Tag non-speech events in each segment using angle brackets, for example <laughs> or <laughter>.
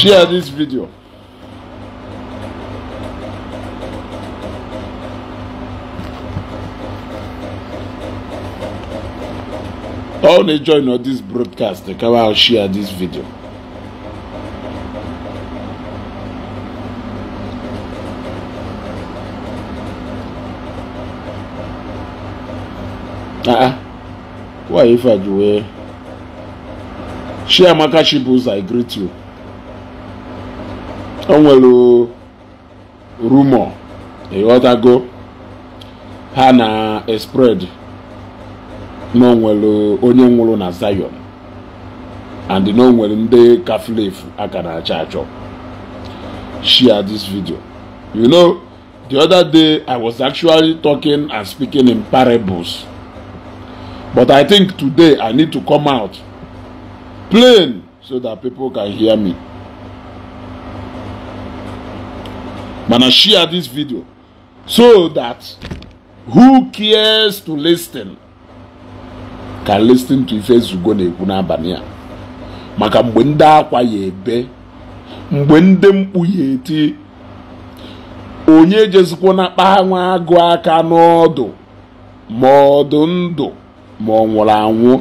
share this video all they join on this broadcast they come out share this video uh-uh. why if i do uh, share maka chibuza i greet you o nwere rumọ ịghọtago ha na spread na onwere onye nwụrụ na Zion and na onwere ndị kaflefu aka na achọ share this video you know the other day i was actually talking and speaking in parables but i think today i need to come out plain so that people can hear me mana share this video so that who cares to listen can listen to ife ezugo na-ekwu n'abalị a maka mgbe ndị akwa ya ebe mgbe ndị mkpu ya eti onye jezikwa na kpa agụ aka n'ọdụ ma ọdụ ndụ ma ọ nwụrụ anwụ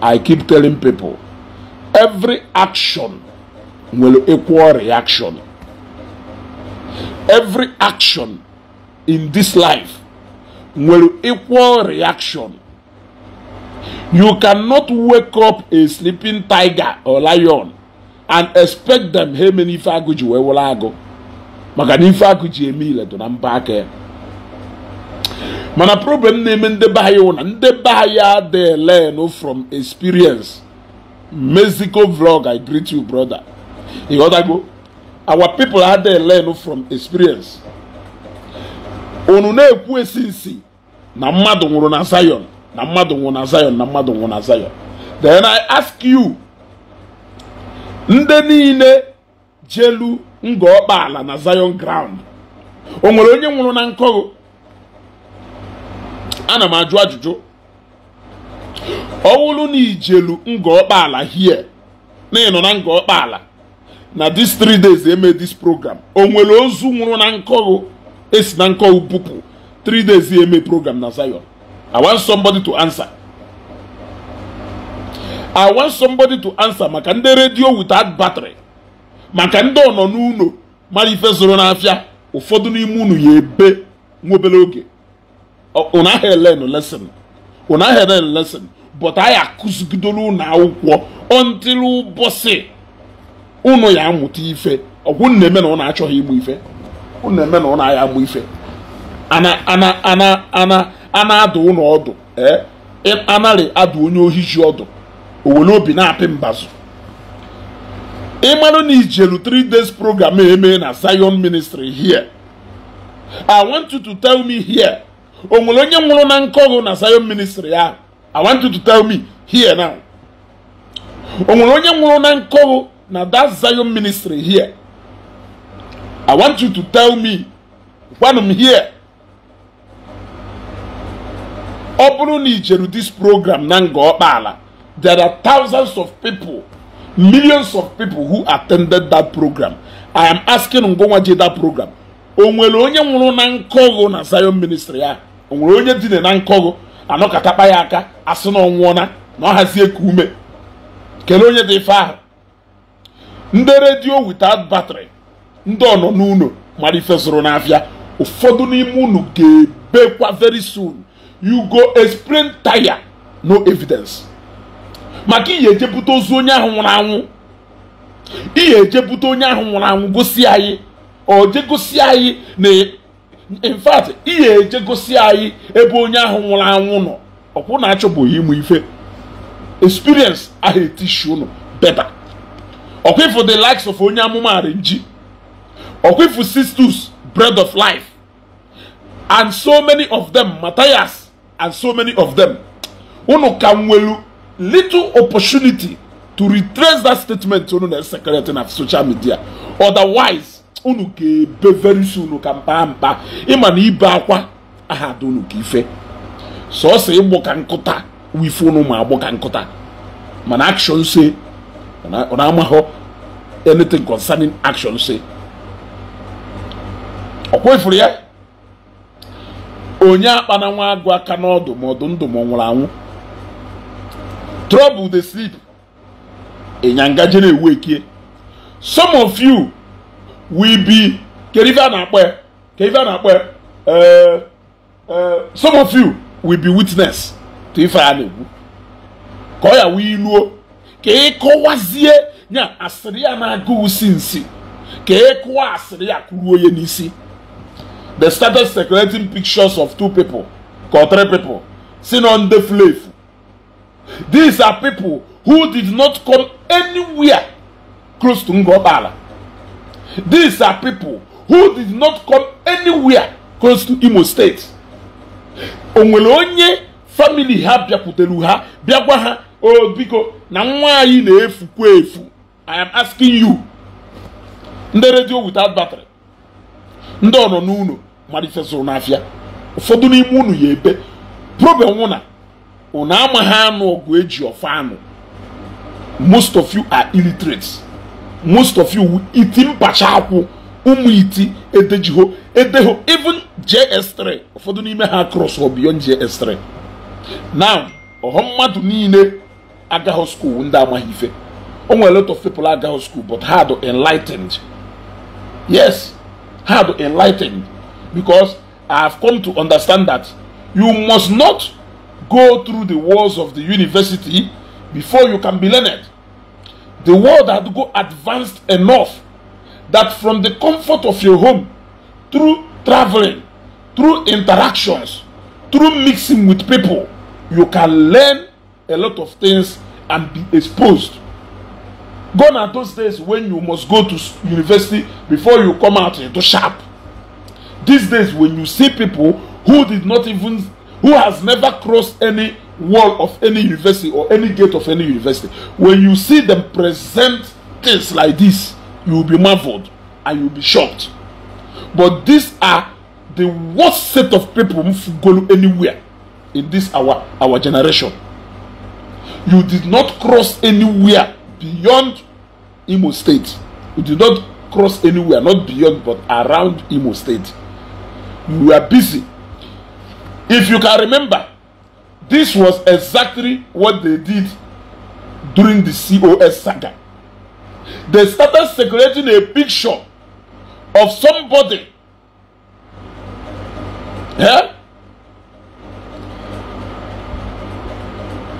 i keep telling people every action nwere equal reaction every action in this life will equal reaction you cannot wake up a sleeping tiger or lion and expect them hey many ife agụ ji wee wụrụ agụ maka na ife agụ ji mana problem na-eme ndị be anyị wụ na ndị be anyi wu na learn from experience mexico vlog i greet you brother You go. our people had they learn from experience unu na-ekwu esi nsi na mmadụ nwụrụ na Zion na mmadụ nwụrụ na Zion na mmadụ nwụrụ na Zion then I ask you ndị niile jelu ngo na Zion ground o nwere onye nwụrụ na nkọgụ ana m ajụ ajụjụ ọ wụrụ na ijelu ngo ọkpaala hie na ịnọ na ngo ala na these three days eme this program o nwere ozu nwụrụ na nkọghụ esi na nkọghụ pụpụ three days eme program na Zion I want somebody to answer I want somebody to answer maka ndị redio without battery maka ndị ọ nọ n'ụlọ mara ife zoro n'afịa ụfọdụ n'ime unu ya ebe nwobere oge ụnụ ahịa elen lesson elen lesson but anyị akụzigidoro ụlọ akwụkwọ until ụbọchị ụnụ ya amụta ife ọgwụ na-eme na ọ na-achọghị igbu ife unu na-eme na ọ na-aya agba ife ana na-adụ ụnụ ọdụ anarị adụ onye ohi ji ọdụ owere obi na-apị mbazụ ịmarụ na ijelu 3 days program eme na Zion ministry here I want you to tell me here o nwere onye nwụrụ na nkọgụ na Zion ministry ahụ I want you to tell me here now o nwere onye nwụrụ na nkọgụ na that Zion ministry here, I want you to tell me when here. ọ bụrụ na ijeru this program na nga ọkpala there are thousands of people millions of people who attended that program i am asking ngwanwa that program o nwere onye nwụrụ na nkọgụ na zion ministry ya o nwere onye dine na nkọgụ anọkatakpa ya aka asị na na ọ hazie ka ume kelee onye dị ife ahụ ndị redio without battery ndị ọnọ n'ụlọ mara ife zụrụ n'afịa ụfọdụ n'ime unu ga-ebekwa very soon you go explain tire no evidence maka ihe ejebute ozu onye ahụ nwụrụ anwụ ihe ejebute onye ahụ nwụrụ anwụ gosi anyị oje gosi anyị na in fact ihe eje gosi anyị ebe onye ahụ nwụrụ anwụ nọ ọkwụ na achọbụghị ịmụ ife experience ahụ etishi unu beta. ọkwifu the likes of onye amụma arinji ọkwifu sisters bread of life and so many of them matthias and so many of them unu ka nwelu little opportunity to retrace that statement unu na secretary na social media otherwise unu ga-ebe very soon ka mkpa mkpa ịma na ibe akwa aha dị unu ka ife sọsọ ịgbụ ka nkụta wife unu ma agbụ ka nkụta mana action say ọ na-amahụ anything concerning action si ọkwa ifuru ya onye akpananwa agụ aka n'ọdụ ma ọdụ ndụ ma ọ nwụrụ anwụ trouble dey sleep ịnyanga je na-ewu ekie some of you will be kerive a na-akpọ kerive na-akpọ eh, eh, some of you will be witness to ife a na-ekwu ka ọ ya wee iluo ka ịkọwazie ya asịrị ya na-agụ usi nsi ka ịkụwa asịrị ya kwuru onye n'isi they started circulating pictures of two people or three people si on the slave these are people who did not come anywhere close to Ngobala these are people who did not come anywhere close to Imo State o nwere onye famili ha bịakwutere ha bịa gwa ha o oh, biko na nwa anyị na-efukwa efu i am asking you ndị redio without battery ndị ọnọ n'ụlọ mmalite zụrụ n'afịa ụfọdụ n'ime unu ya ebe problem na unu amaghị anụ ọgụ eji ọfa anụ most of you are illiterate most of you iti mpacha akwụ ụmụ iti edejiho edeho even js3 ụfọdụ n'ime ha cross or beyond js3 now ọha mmadụ niile agaghị skuul ndị amaghị ife o nwere lot of people agaghị skuul but ha dị enlightened yes ha dị enlightened because i have come to understand that you must not go through the walls of the university before you can be learned the world had go advanced enough that from the comfort of your home through traveling through interactions through mixing with people you can learn a lot of things and be exposed. Gone are those days when you must go to university before you come out into sharp. These days when you see people who did not even, who has never crossed any wall of any university or any gate of any university, when you see them present things like this, you will be marveled and you'll be shocked. But these are the worst set of people who go anywhere in this our our generation. you did not cross anywhere beyond Imo State. You did not cross anywhere, not beyond, but around Imo State. You were busy. If you can remember, this was exactly what they did during the COS saga. They started circulating a picture of somebody. Yeah?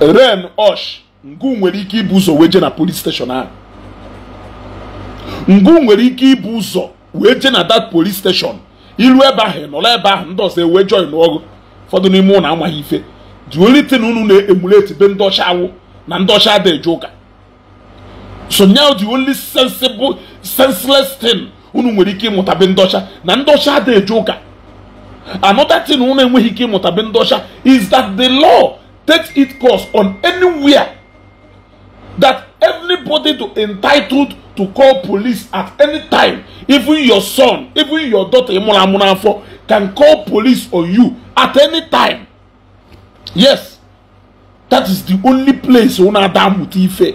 ren osh ngụ nwere ike ibu ụzọ wee jee na police station ahụ ngụ nwere ike ibu ụzọ wee jee na that police station ilu ebe ahụ nọrọ ebe ahụ ndị ọzọ ewee join ọgụ ụfọdụ n'ime ụlọ amaghị ife dị only tin unu na-emulate be ndị ọcha awụ na ndị ọcha adịghị eje ụka so now the only sensible senseless thing unu nwere ike ịmụta be ndị ọcha na ndị ọcha adịghị eje ụka another thing unu enweghị ike ịmụta be ndị ọcha is that the law state its course on anywhere that anybody to entitled to call police at any time even your son even your daughter imunamunafo can call police on you at any time yes that is the only place una adam ti ife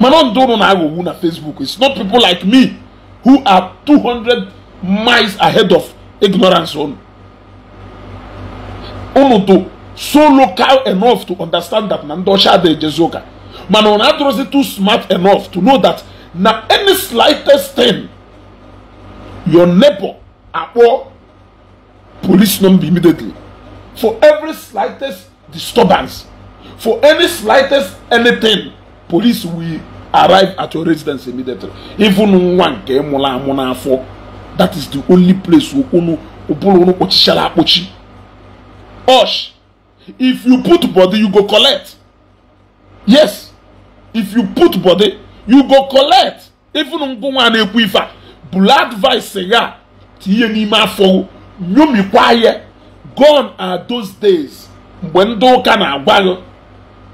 mana ndị ụnụ na-aghọgbu na facebook it's not people like me who are 200 miles ahead of ignorance ụnụ to so local enough to understand that na ndị ọcha adịghị ejezi ụka mana ọ na-adịrọzi too smart enough to know that na any slightest thing your neighbor akpọ police number immediately for every slightest disturbance for any slightest anything police will arrive at your residence immediately even nwa nke mụrụ amụ n'afọ that is the only place ụbụrụ unu kpọchichara akpọchi osh if you put body you go collect yes if you put body you go collect even ngwụ nwa na-ekwu ife a bụrụ advice ya tinye n'ime afọ nyomikwa ya gone are those days mgbe ndị ụka na-agwa gị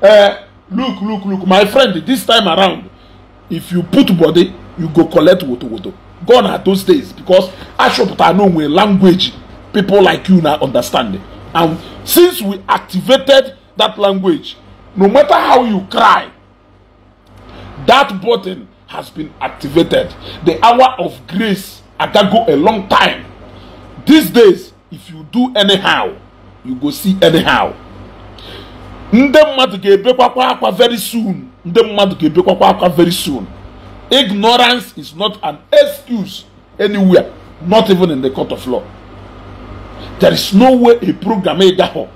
ee eh, look look look my friend this time around if you put body you go collect wotowoto gone are those days because achọpụtara na onwe language people like you na understanding And since we activated that language, no matter how you cry, that button has been activated. The hour of grace, I can go a long time. These days, if you do anyhow, you go see anyhow. Ndị mmadụ ga-ebekwakwa akwa very soon. Ndị mmadụ ga-ebekwakwa akwa very soon. Ignorance is not an excuse anywhere, not even in the court of law. There is no way a program gaho,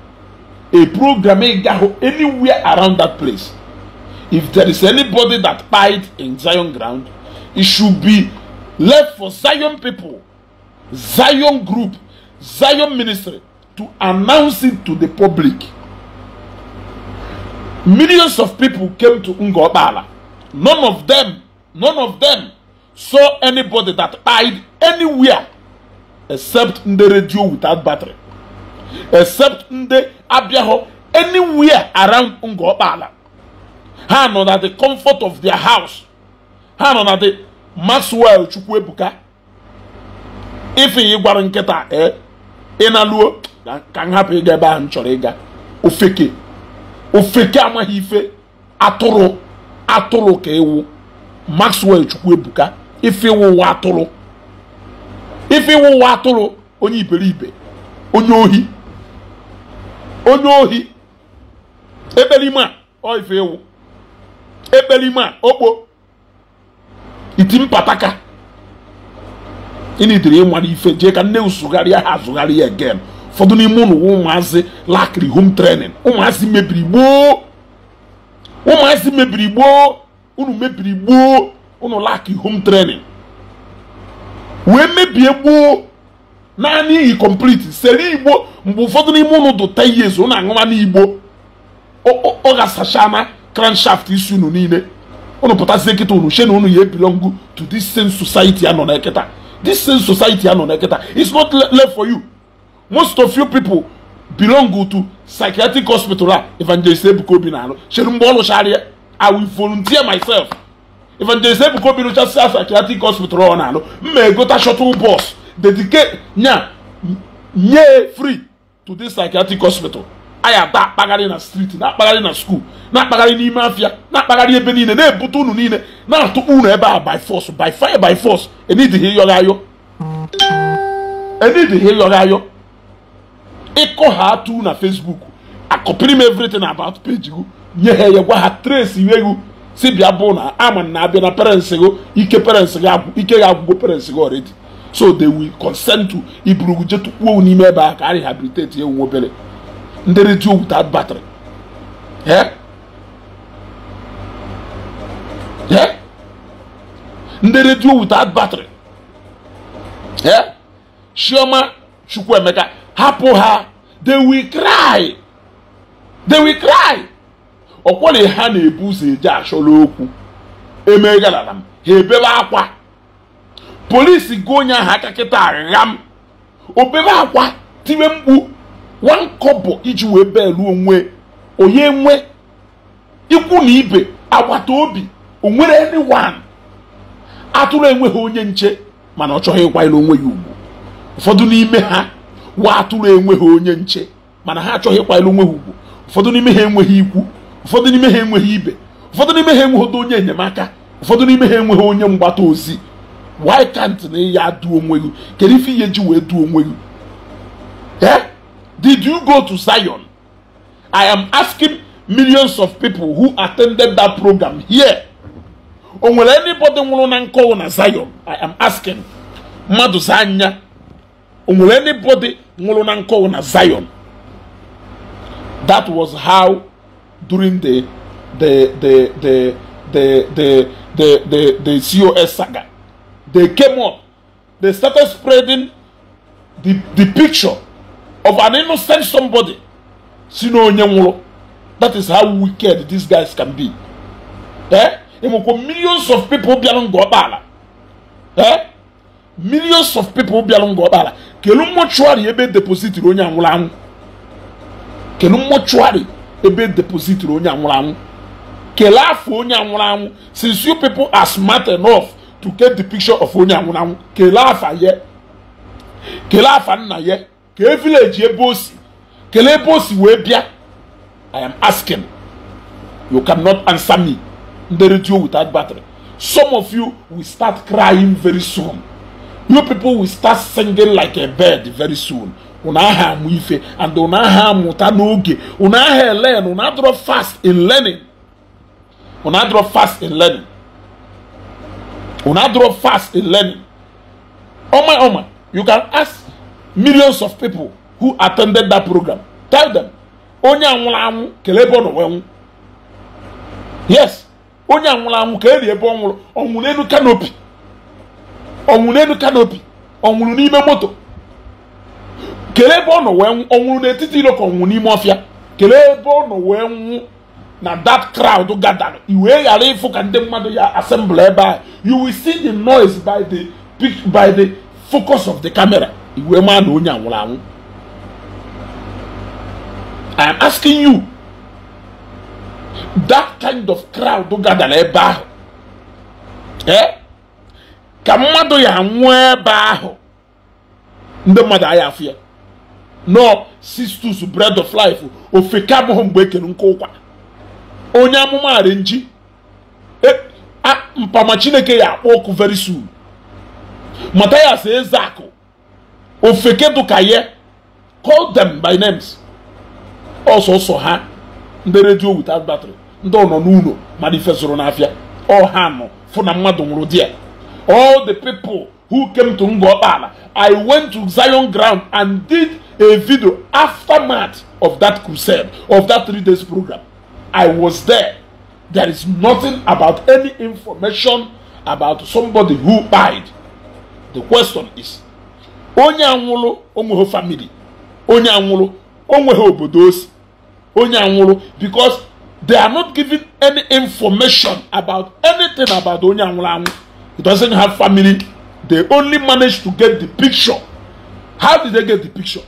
a program ho anywhere around that place. If there is anybody that died in Zion ground, it should be left for Zion people, Zion group, Zion ministry to announce it to the public. Millions of people came to ngobala None of them, none of them saw anybody that died anywhere except ndị radio without battery except ndị abịaghọ anywhere around Ngokpala ha nọ na the comfort of their house ha nọ na the Maxwell chukwu ife ị gwara nkịta ee eh, ị na ka m hapụ ịga ebe ahụ m chọrọ ịga ofeke ofeke amaghị ife atụrụ atụrụ ka ịwụ Maxwell chukwu ebuka ife ịwụ ụwa atụrụ ife ịwụ ụwa atụrụ onye iberibe onye ohi onye ohi a ọ ife ewu ekperime a okpo iti mpataka ịnidiri ịmara ife jee ka nne usugharịa ha azụgharịa again ụfọdụ n'ime ụlọ ụmụazị laakịrị home training ụmụazị mebiri gboo ụmụazị mebiri gboo unu mebiri gboo home training wee mebie gboo naanị iyi kọmpliti sere igbo mgbe ụfọdụ n'ime ụnụ dụta ihe ezo ụnụ aṅụma n'igbo ọ ga-asachana kranshaft isi unu niile ụnụ pụtazie kịta unu she na unu ya ebilongu to this same society nọ na kịta this same society nọ na kịta it's not left for you most of you people belong to psychiatric hospital a evangelist ebuka obi na-arụ chere mgbe ọ lụchara i will volunteer myself evangelist ebuka obi rụchasị asa psychiatric hospital ọ na-alụ mma egota shuttle bus dedike nya nye free to this psychiatric hospital anyị ata akpagharị na street na-akpagharị na school na-akpagharị n'ime afia na-akpagharị ebe niile na-ebute unu niile na-atụkpu unu ebe a by force by fire by force enidghị ịyọghị ayọ enidghị ayọ ịkọ ha atụ na Facebook akọpịrị m everything about page gụ nye ha ya gwa ha trace iwe si bịa bụ na ama na abịa na parents gị ike parents gị ike gị agwụgo parents gị already so they will consent to iburu kwuo n'ime ebe a ka a rehabilitate ewu obere ndị redio without battery ndị redio without battery chioma chukwuemeka hapụ ha they will cry they will cry ọkwọrị ha na-ebu ụzọ eje achọrọ okwu emegharara m ha ebebe akwa polisi gị onye ahụ aka kịta agha m obere akwa tiwe mkpu wankọbọ iji wee belu onwe onye nwe ikwu na ibe agbata obi onwere wan atụrụ enweghị onye nche mana ọ chọghị ịkwanyere onwe ya ugwu ụfọdụ n'ime ha wa atụrụ enweghị onye nche mana ha achọghị ịkwanyere onwe ha ugwu ụfọdụ n'ime ha enweghị ikwu ụfọdụ n'ime ha enweghị ibe ụfọdụ n'ime ha enweghị onye enyemaka ụfọdụ n'ime ha enweghị onye mgbata ozi why can't na ya duo onwe gị kedu ife ihe ji wee duo onwe gị eh did you go to Zion I am asking millions of people who attended that program here o nwere anybody nwụrụ na nkọwụ na Zion I am asking mmadụ za anya o nwere anybody nwụrụ na nkọwụ na Zion that was how during the the the the the the the the, the COS saga. They came up, they started spreading the, the picture of an innocent somebody. That is how wicked these guys can be. Eh? Millions of people beyond Gobala. Eh? Millions of people beyond Gobala. Kelu mortuary ebe deposit onye anwụrụ anwụ. Kelu mortuary ebe depozitiri onye anwụrụ anwụ kelee afọ onye anwụrụ anwụ since you people are smart enough to get the picture of onye anwụrụ anwụ kelee afa ya kelee afa nna ye kee village ebe o si kelee ebe o si wee bịa i am asking you cannot answer me ndị radio without battery some of you will start crying very soon you people will start singing like a bird very soon unu aha amụ ife and unu aha amụta n'oge unu aha elen unu adọrọ fast in learning unu adọrọ fast in learning unu adọrọ fast in learning ọma ọma you can ask millions of people who attended that program tell them onye anwụrụ anwụ kelee ebe ọ nọ wee nwụ yes onye anwụrụ anwụ ka eri ebe ọ nwụrụ ọ nwụrụ n'elu kanopi ọ nwụrụ n'elu kanopi ọ nwụrụ n'ime moto kelee ebe ọ nọ wee n'etiti iro ka n'ime ọfịa kelee ebe ọ nọ wee nwụ na dat crowd gadara i wee ghara ịfụ ka ndị mmadụ ya assemble ebe ahụ you will see the noise by the by the focus of the camera i wee maa na onye anwụrụ nwụrụ anwụ i am asking you that kind of crowd gadara ebe ahụ ee eh? ka mmadụ ya nwụọ ebe ahụ ndị mmadụ agha afọ ya nọ sistus bread of life ofeke abụghị mgbe ekere ụkwa onye amụma nji e, mpama chineke ya akpọ ọkụ very soon matayas ezeakụ ofeke dụka call them by names ọsọsọ ha ndị redio without battery ndị ọ nọ n'ụlọ ma ife fesoro n'afịa ọ ha nọ fụ na mmadụ nwụrụ di ya all the people who came to Ngopala, I went to Zion ground and did a video aftermath of that crusade, of that three days program. I was there. There is nothing about any information about somebody who died. The question is, onye anwụrụ onweghị family, onye anwụrụ onweghị obodo osi, onye anwụrụ because they are not giving any information about anything about onye anwụrụ anwụ. It doesn't have family They only managed to get the picture. How did they get the picture?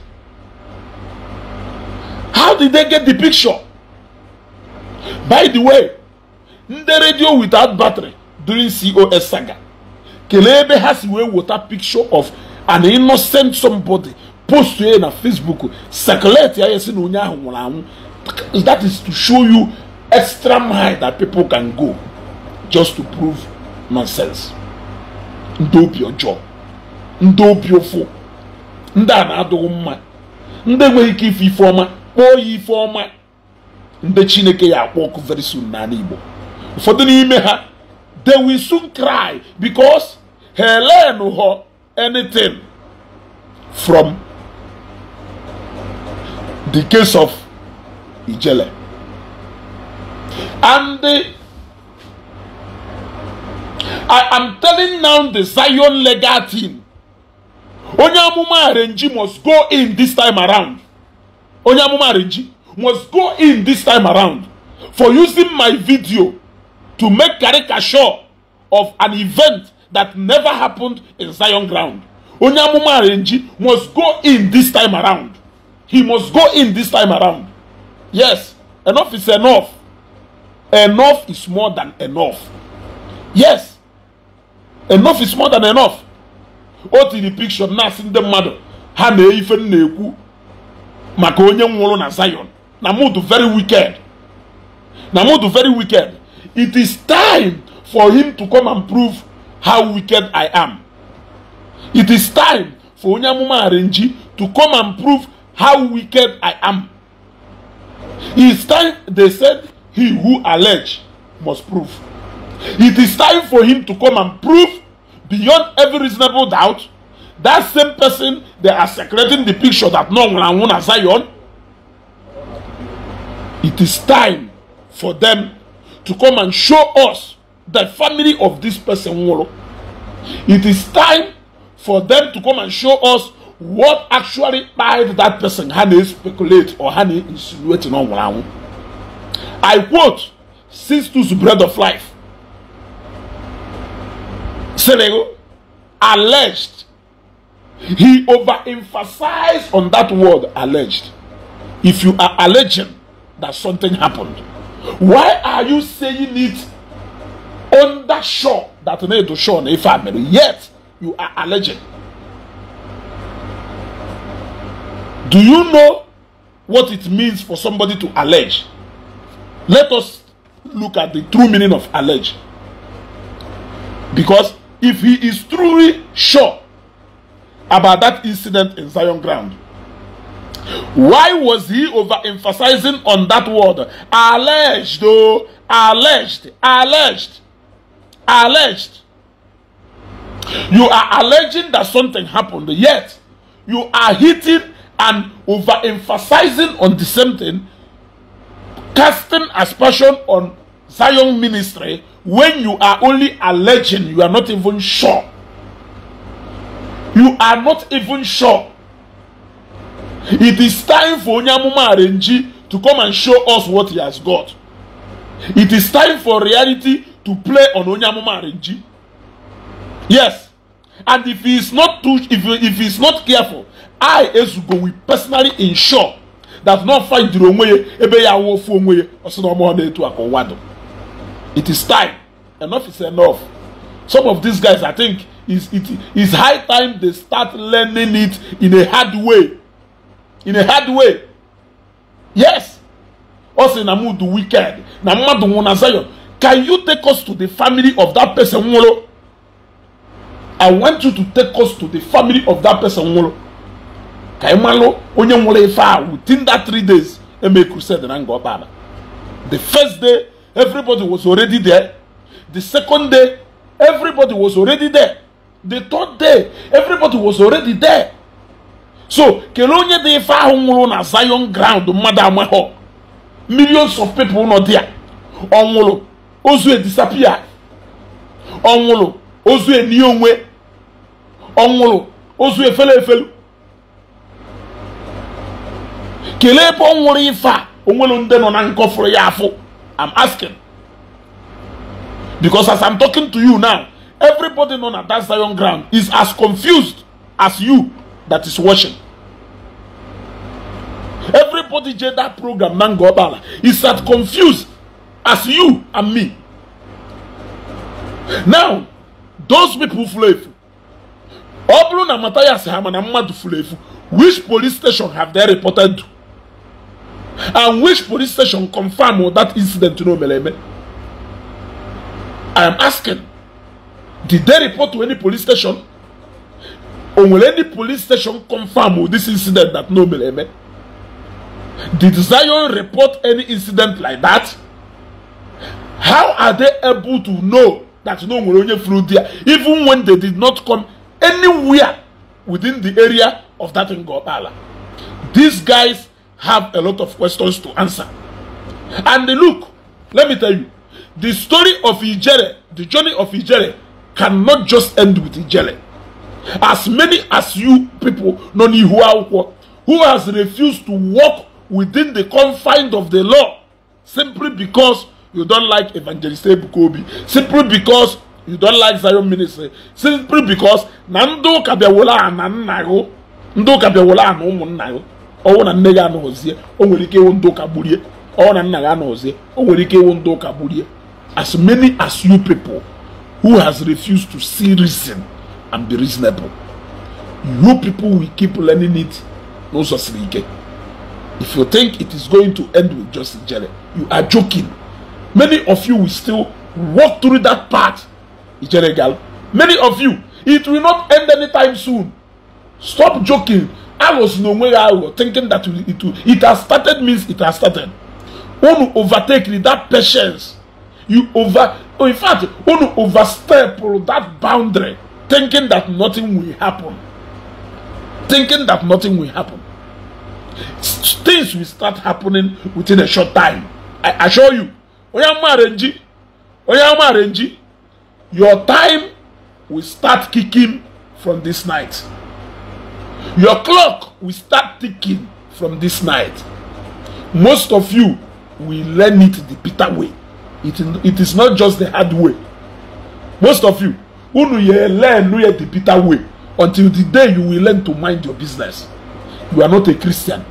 How did they get the picture? By the way, ndị radio without battery during COS saga kelee ebe ha si wee weta picture of an innocent somebody post ya na Facebook circulate ya esi na onye ahụ nwụrụ anwụ that is to show you extra mile that people can go just to prove nonsense. ndị obi ọjọọ ndị obi ụfụ ndị a na-adụghị mma ndị enweghị ike ife ife ọma kpọọ ya ife ọma ndị chineke ya akpọ ọkụ very soon n'ala igbo ụfọdụ n'ime ha they wi soon cry because ha learn ho anything from the case of ijele and I am telling now the Zion legal team. Onye amụma Renji must go in this time around. Onye amụma Renji must go in this time around for using my video to make caricature of an event that never happened in Zion ground. Onye amụma Renji must go in this time around. He must go in this time around. Yes, enough is enough. Enough is more than enough. Yes, enough is more than enough o tiri picture na-asị ndị mmadụ ha na ife m na-ekwu maka onye nwụrụ na Zion na mood very wicked na mood very wicked it is time for him to come and prove how wicked I am it is time for onye amụma arenji to come and prove how wicked I am it is time they said he who allege must prove It is time for him to come and prove beyond every reasonable doubt that same person they are secreting the picture that no one and as Zion. It is time for them to come and show us the family of this person. It is time for them to come and show us what actually made that person honey speculate or honey insinuate on one. I quote, since to the bread of life. Selego alleged. He overemphasized on that word alleged. If you are alleging that something happened, why are you saying it under sure that need to show if family? Yet you are alleging. Do you know what it means for somebody to allege? Let us look at the true meaning of allege. Because if he is truly sure about that incident in Zion ground. Why was he overemphasizing on that word? Alleged, oh Alleged. Alleged. Alleged. You are alleging that something happened, yet you are hitting and overemphasizing on the same thing, casting aspersion on Zion ministry when you are only alleging you are not even sure you are not even sure it is time for onyamuma arenji to come and show us what he has got it is time for reality to play on onyamuma arenji yes and if he is not too if if he is not careful i ezugo will personally ensure that n'ofa fight onwe ya ebe ya awụfu onwe ya ọsị na ọmụọ na-etu aka It is time. Enough is enough. Some of these guys, I think, is it is high time they start learning it in a hard way. In a hard way. Yes. Also, Namu the wicked. Namadu Munazayon. Can you take us to the family of that person? Molo? I want you to take us to the family of that person. Molo. Ka imalo onye nwere ife within that three days Emeku said na nga ọkpa The first day Everybody was already there. The second day, everybody was already there. The third day, everybody was already there. So, kele onye dị ife ahụ nwụrụ na Zion ground mmadụ amaghọ. Millions of people nọ there. Ọ nwụrụ, ozu edisapia. Ọ nwụrụ, ozu eni onwe. Ọ nwụrụ, ozu efele efelu. Kele ebe ọ nwụrụ ife a, onwere ndị nọ na nkọfụrụ ya afọ. I'm asking. Because as I'm talking to you now, everybody on that Zion ground is as confused as you that is watching. Everybody did that program, Mangobala, is as confused as you and me. Now, those people flefu. Obluna Matayas Hamana Madu flefu. Which police station have they reported to? and which police station confirm confirmed that incident to meleme. I am asking, did they report to any police station? Or will any police station confirm with this incident that no, meleme. Did Zion report any incident like that? How are they able to know that no Nwere flew there, even when they did not come anywhere within the area of that Ngopala? These guys have a lot of questions to answer. And look, let me tell you, the story of Ijere, the journey of Ijere, cannot just end with Ijere. As many as you people, Noni Huauko, who has refused to walk within the confines of the law simply because you don't like Evangelist Ebukobi, simply because you don't like Zion ministry, simply because Nando Kabiawola and Nanago, Nando Kabiawola and Umunnago. ọnwụ na nne gị anọzie o nwere ike ịwụ ndụ ụka gburie ọnwụ na nna anọzie o nwere ike ịwụ ụka gburie as many as you people who has refused to see reason and be reasonable you people will keep learning it n'ụzọ siri ike if you think it is going to end with just jere you are joking many of you will still walk through that path ijere gal many of you it will not end anytime soon stop joking arrows n'onwe ya aghụghọ thinking that it, it has started means it has started unu overtake with that patience you over oh, in fact unu overstep that boundary thinking that nothing will happen thinking that nothing will happen things will start happening within a short time i assure you Oya amaara nji Oya amaara nji your time will start kicking from this night. Your clock will start ticking from this night. Most of you will learn it the bitter way. It, it is not just the hard way. Most of you, unu ye learn ye the bitter way until the day you will learn to mind your business. You are not a Christian.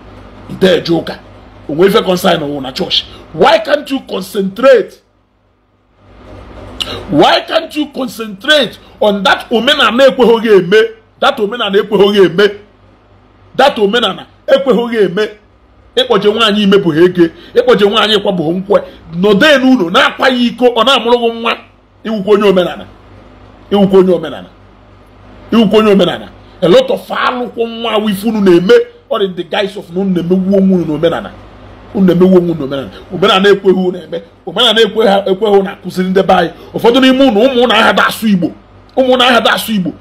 You are a Onwefe concern on una church. Why can't you concentrate? Why can't you concentrate on that omena na ekweghị eme? data omenala ekweghị eme data omenala ekweghị eme ịkpọje nwaanyị imebụghị ege ịkpọje nwaanyị ịkwabụghị nkwe nọdee n'ụlọ na-akwa ya iko ọ na-amụrụghị amụrụ nwa iwukwu onye omenala iwukwu onye omenala iwukwu onye omenala a lot of alụkwụ nwa wifunu na-eme ọ dị the guise of na unu na-emegwu onwe unu na-emegwu onwe unu omenala omenala ekweghị unu eme omenala ekweghị unu akụziri ndị anyị ụfọdụ n'ime unu ụmụ na aha da asụ igbo ụmụ na aha da asụ igbo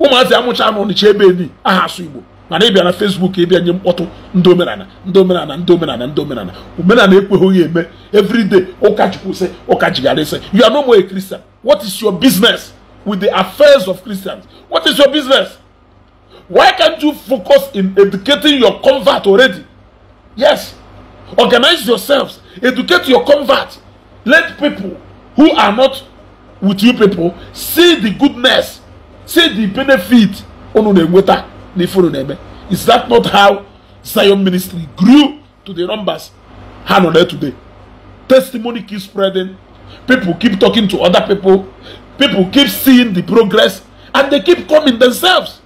ụmụazị amụcha anụ ọnịcha ebe eli aha asụ igbo mana bịa na fesbuk bịa nye mkpọtụ ndị omenala ndị omenala ndị omenala ndị omenala omenala ekweghị eme evriday ụka chukwu sị ụka jigara you are no more a christian what is your business with the affairs of christians what is your business why can't you focus in educating your convert already yes organize yourselves educate your convert let people who are not with you people see the goodness say the benefit unu na-enweta n'ife unu na-eme is that not how zion ministry grew to the numbers ha nọ there today testimony keep spreading people keep talking to other people people keep seeing the progress and they keep coming themselves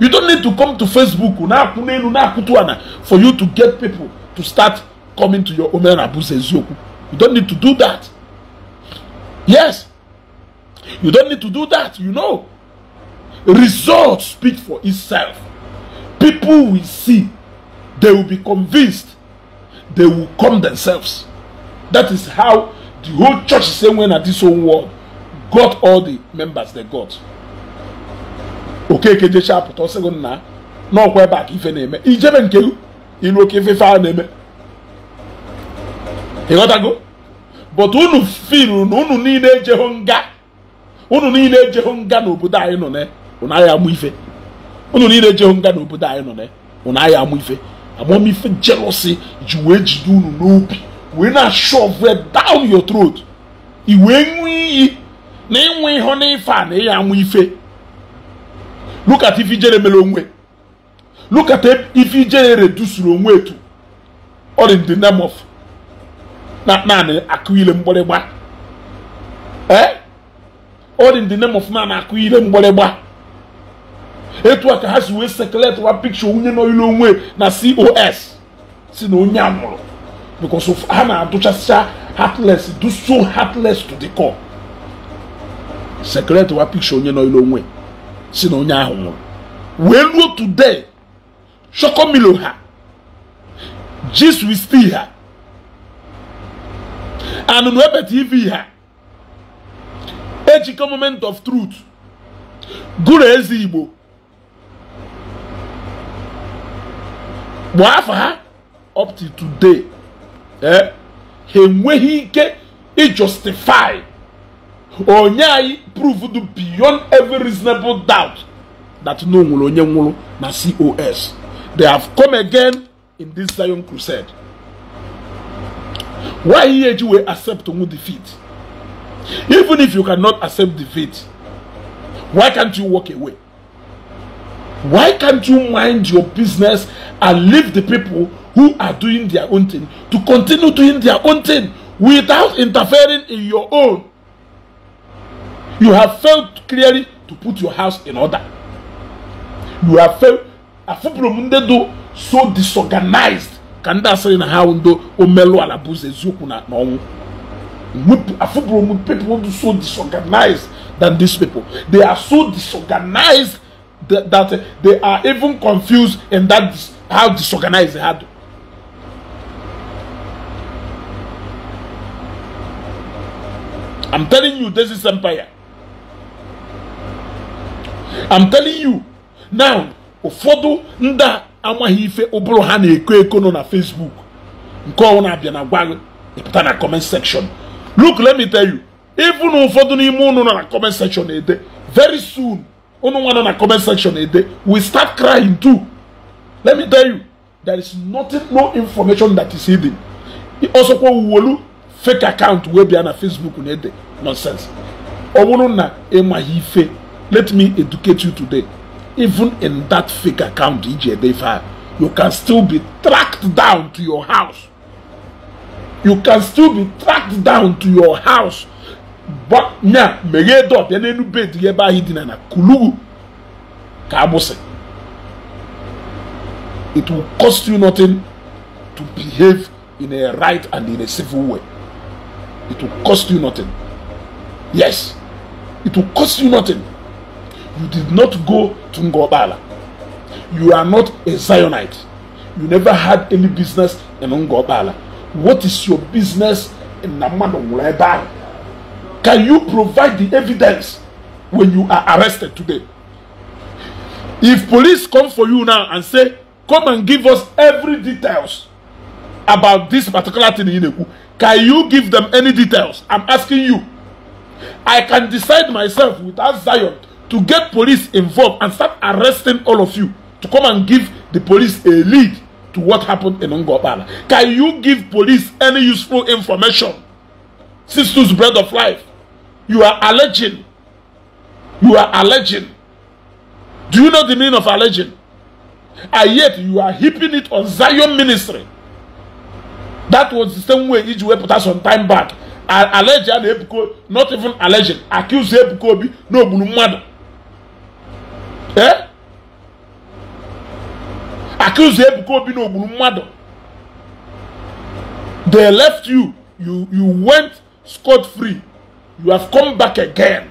you don't need to come to facebook na-akwụ n'elu na-akwụtu ana for you to get people to start coming to your omena abụzi eziokwu you don't need to do that yes you don't need to do that you know Results speak for itself. People will see. They will be convinced. They will come themselves. That is how the whole church is saying when at this whole world got all the members they got. okeke jecha apụta ọsịgụ nna n'ọkwa ife na-eme ijebe nke ilu oke ife a na-eme go but unu firu na unu niile ejeho nga unu niile ejeho nga n'obodo anyị nọ na ụnụ agha amụ ife ụnụ niile jehụ nga n'obodo anyị nọ na ụnụ agha amụ ife amamife jealousy ji wee jide unu n'obi wee na-ashove down your throat i wee ṅụọ iyi na ịnwe ihe ife a na ịya amụ ife look at ife ijere mere onwe look at ife ijere redusuru onwe etu or in eh? the name of naanị akụ ile mgbịrịgba eh or in the name of naanị akụ ile mgbịrịgba etu a ka ha si wee wa pikcha onye nọ onwe na cos si na onye a nwụrụ of ha na-adụchasịcha heartless do so heartless to the core wa pikcha onye nọ onwe si na onye ahụ nwụrụ wee ruo today chọkọmilo ha jis wisti ha anụnụ ebe tv ha ejikọ moment of truth gụrụ eze igbo kpụọ afa ha up to today eh ha enweghị ike ijustify onye anyị do beyond every reasonable doubt that no nwere onye nwụrụ na cos they have come again in this zion crusade why ihe eji wee accept onwe defeat even if you cannot accept defeat why can't you walk away Why can't you mind your business and leave the people who are doing their own thing to continue doing their own thing without interfering in your own? You have failed clearly to put your house in order. You have failed. do so disorganized ka ndị asịrị na ha ndo omelu ala bụzi eziokwu na ọnwụ afụbụrụ m people so disorganized than these people they are so disorganized that, that they are even confused in that how disorganized they had. I'm telling you, this is empire. I'm telling you now ụfọdụ ndị amaghị ife ụbụrụ ha na-eko eko nọ na Facebook nke ọnwụ na-abịa na gwa ịpụta na comment section look let me tell you even ụfọdụ n'ime ụnụ nọ na comment section na-ede very soon unu nwana na comment section ede eh, we start crying too let me tell you there is nothing no information that is hidden ọsọkwa wuolu fake account wee be eh, na facebook na ede nonsense ọ bụrụ na ịmaghị ife let me educate you today even in that fake account iji ede ife a you can still be tracked down to your house you can still be tracked down to your house nya meghee dọbịa n'elu bed ya ebe ahụ dina na kulugu ka agbụsị it will cost you nothing to behave in a right and in a civil way it will cost you nothing yes it will cost you nothing you did not go to ngobala you are not a zionite you never had any business in ngobala what is your business in namano ebe ahụ Can you provide the evidence when you are arrested today? If police come for you now and say, come and give us every details about this particular thing in eku can you give them any details? I'm asking you. I can decide myself without Zion to get police involved and start arresting all of you to come and give the police a lead to what happened in Ungobala. Can you give police any useful information? Sisters, bread of life. You are alleging. You are alleging. Do you know the meaning of alleging? And yet you are heaping it on Zion ministry. That was the same way Iji wepụta some time back. Allege a ebuko not even alleging accuse ebuko obi na ogburu mmadụ. Eh? Accuse ebuko obi na ogburu mmadụ. They left you. You you went scot free you have come back again.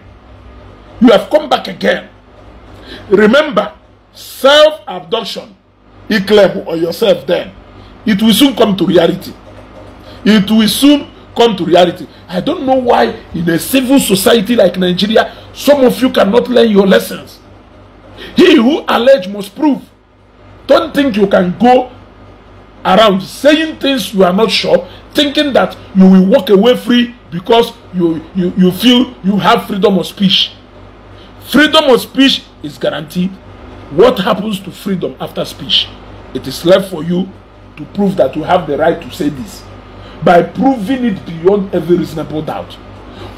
You have come back again. Remember, self abduction, Ikleb or yourself, then it will soon come to reality. It will soon come to reality. I don't know why, in a civil society like Nigeria, some of you cannot learn your lessons. He who allege must prove. Don't think you can go around saying things you are not sure, thinking that you will walk away free because you, you, you feel you have freedom of speech. Freedom of speech is guaranteed. What happens to freedom after speech? It is left for you to prove that you have the right to say this by proving it beyond every reasonable doubt.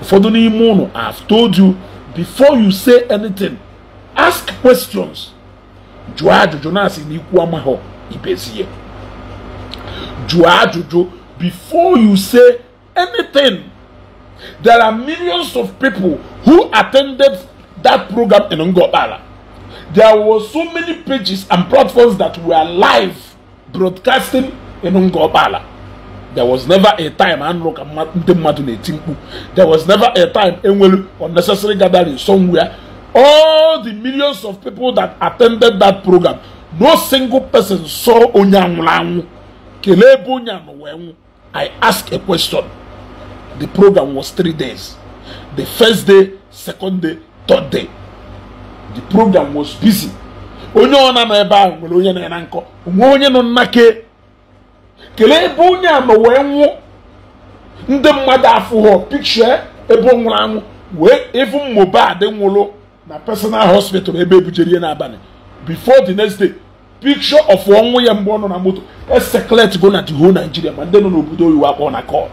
the new unu I have told you before you say anything, ask questions. Jụọ before you say anything There are millions of people who attended that program in Ngobala. There were so many pages and platforms that were live broadcasting in Ngobala. There was never a time There was never a time enwere unnecessary gathering somewhere. All the millions of people that attended that program, no single person saw onye anwụrụ anwụ. I ask a question. The program was three days. The first day, second day, third day. The program was busy. onye ọ na-anọ ebe ahụ nwere onye na-ena nkọ onwe onye nọ nnake kelee ebe onye a ma wee nwụ ndị mmadụ afụghọ pikchọ ebe ọ nwụrụ anwụ wee ịfụ adị nwụrụ na personal hospital ebe ebujere ihe n'abalị before the next day picture of ọnwụ ya mgbe ọ nọ na moto eseklet go na the whole Nigeria ma ndị nọ n'obodo oyiwu akpọ na kọl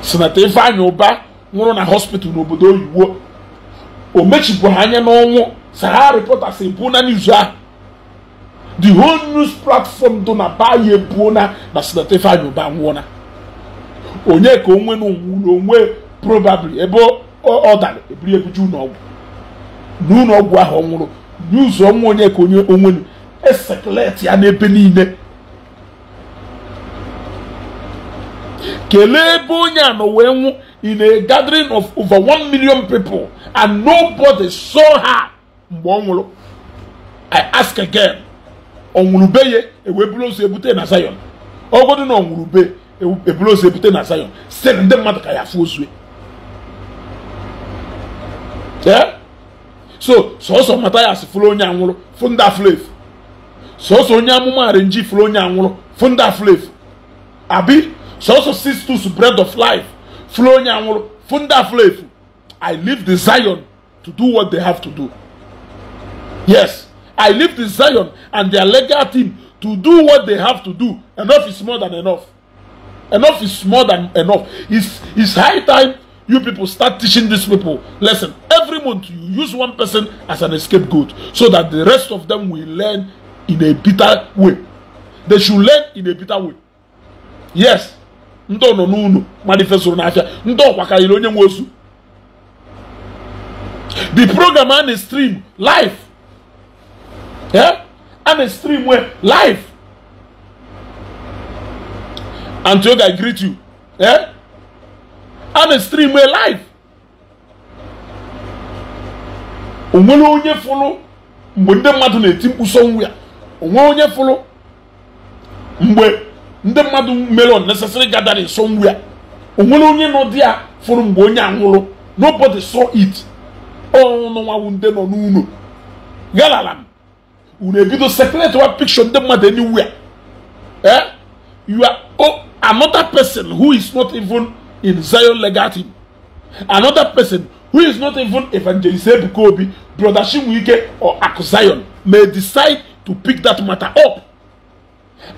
sinata Ifeanyi Uba nwụrụ na hospital n'obodo oyiwo o mechipụ anya n'ọnwụ Sahara Reporters ebuo na n'izu ahụ the whole news platform dị na baya ebuo na na sinata Ifeanyi Uba nwụọna onye ka onwe na onwe probably ebe ọ dara eburu ebuju n'ọgwụ ahụ ọ nwụrụ n'ụzọ ọnwụ onye ka onye onwenu esekuleti ya n'ebe niile kelee ebe onye a nọ wee nwụ in a gathering of over one million people and nobody saw her mgbe ọ nwụrụ i ask again ọ nwụrụ be ya ewee buru oso ebute na Zion ọgodo na ọ nwụrụ be eburu oso ebute na Zion sị ndị mmadụ ka ya afụ ozue so sọsọ mata ya asị fụrụ onye anwụrụ fụ ndị afụrụ efu sọsọ onye amụma arinji fụrụ onye anwụrụ fụ ndị afụrụ abi sọsọ sisters bread of life furu onye anwụrụ fu ndị i leave the zion to do what they have to do yes i leave the zion and their legal team to do what they have to do enough is more than enough enough is more than enough it's it's high time you people start teaching these people lesson every month you use one person as an escape goat so that the rest of them will learn in a bitter way they should learn in a bitter way yes ndị nọ n'ụlọ mmadụ fesoro n'afịa ndị ọkwa karịrị onye nwe osu the program a na-stream live eh? a na-stream live I greet you eh? a na-stream live onwere onye fụlụ mgbe ndị mmadụ na-eti mkpu sọnwụ ya onwere onye fụlụ mgbe ndị mmadụ mere unnecessary gathering somewhere onwere onye nọ di a fụrụ mgbe onye anwụrụ nobody saw it ọnụnwawu ndị nọ n'ụlọ galala m unu ebido separate one picture ndị mmadụ anywhere eh you are oh, another person who is not even in Zion legal another person who is not even evangelist Ebuka Obi brother Chinwike or Aku Zion may decide to pick that matter up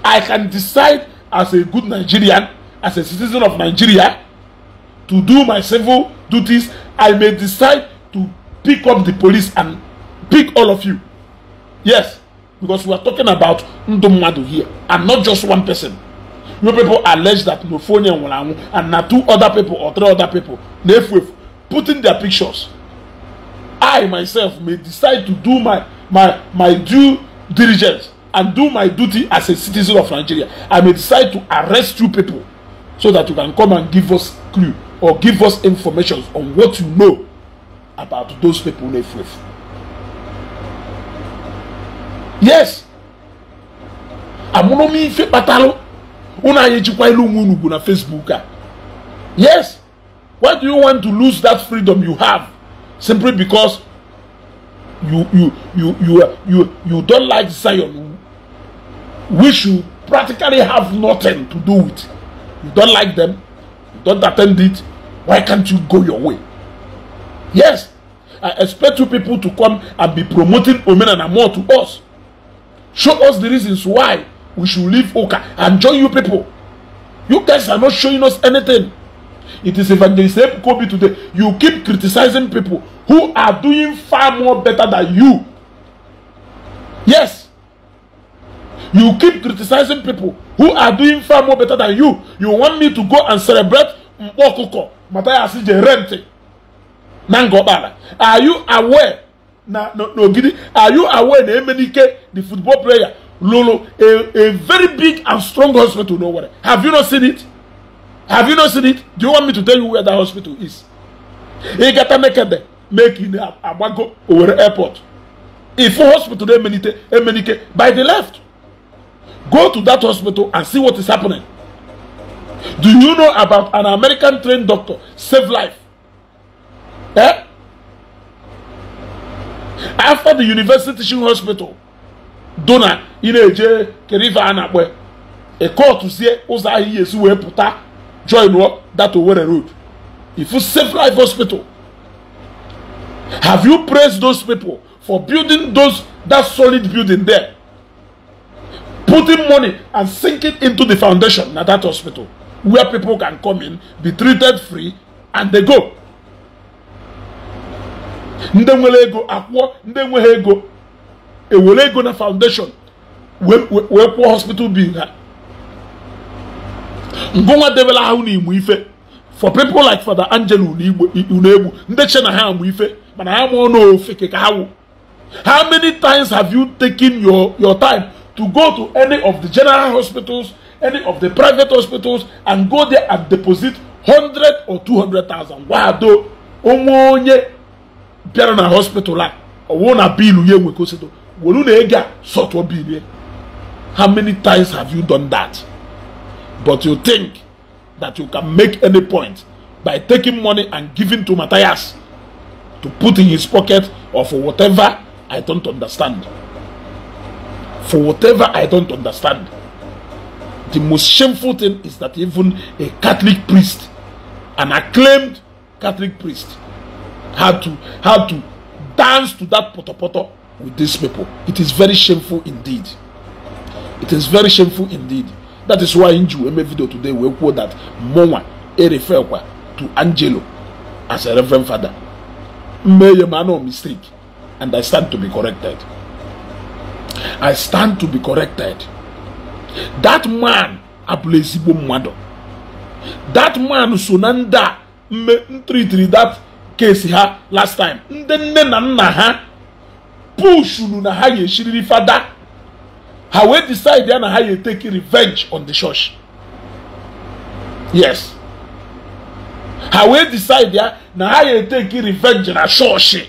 I can decide as a good Nigerian, as a citizen of Nigeria, to do my civil duties, I may decide to pick up the police and pick all of you. Yes, because we are talking about Ndomadu here and not just one person. You people allege that Nofonia Nwalanwu and now two other people or three other people, Nefwef, putting their pictures. I myself may decide to do my, my, my due diligence and do my duty as a citizen of Nigeria. I may decide to arrest you people so that you can come and give us clue or give us information on what you know about those people in Efuefu. Yes. Amụrụ m ife kpatalụ unu anyị ejikwa ilu nwe unu na Facebook a. Yes. Why do you want to lose that freedom you have simply because you you you you you you, you don't like Zion which you practically have nothing to do with. You don't like them, you don't attend it, why can't you go your way? Yes, I expect you people to come and be promoting Omenana more to us. Show us the reasons why we should leave Oka and join you people. You guys are not showing us anything. It is evangelist Kobe today. You keep criticizing people who are doing far more better than you. Yes, You keep criticizing people who are doing far more better than you. You want me to go and celebrate Mkpokoko, Mataya Asije Rente, Nangobala. Are you aware? Na, no, no, are you aware na Emenike, the football player, Lolo, a, a very big and strong hospital, no worry. Have you not seen it? Have you not seen it? Do you want me to tell you where that hospital is? Igata make Meki Abago, Owerri Airport. If hospital Emenike, Emenike, by the left. Go to that hospital and see what is happening. Do you know about an American trained doctor save life? Eh? After the university teaching hospital, donor ị keriva eje kerive a call to see oza ahụ esi join that Owerri road if you save life hospital have you praised those people for building those that solid building there putting money and sinking into the foundation at that hospital where people can come in, be treated free, and they go. Ndị nwere ego akwụọ ndị nweghị ego ewere ego na foundation wee kwụọ hospital bill ha. Ngụnwa debere ahụ n'Imo Ife for people like Father angel Unegbu ndị che na ha amụ ife mana ha mụọ n'ofe ka ha wụ. How many times have you taken your your time to go to any of the general hospitals, any of the private hospitals, and go there and deposit 100 or 200,000. Wado, onwe onye bịara na hospital a, ọwụ na biilu ya enwekosịdo, wolu na ego a sọtụọ biilu ya. How many times have you done that? But you think that you can make any point by taking money and giving to Matthias to put in his pocket or for whatever, I don't understand. for whatever I don't understand. The most shameful thing is that even a Catholic priest, an acclaimed Catholic priest, had to had to dance to that potopoto with these people. It is very shameful indeed. It is very shameful indeed. That is why in Jew video today we quote that Mowa e to Angelo as a reverend father. May a man mistake, and I stand to be corrected. I stand to be corrected. That man abụla ezigbo mmadụ. That man so na ndị a ntritiri that case ha last time ndị nne na nna ha pushuru na ha ga-eshiriri fada ha wee decide ya na ha ga-eteki revenge on the church. Yes. ha wee decide ya na ha ga-eteki revenge na church.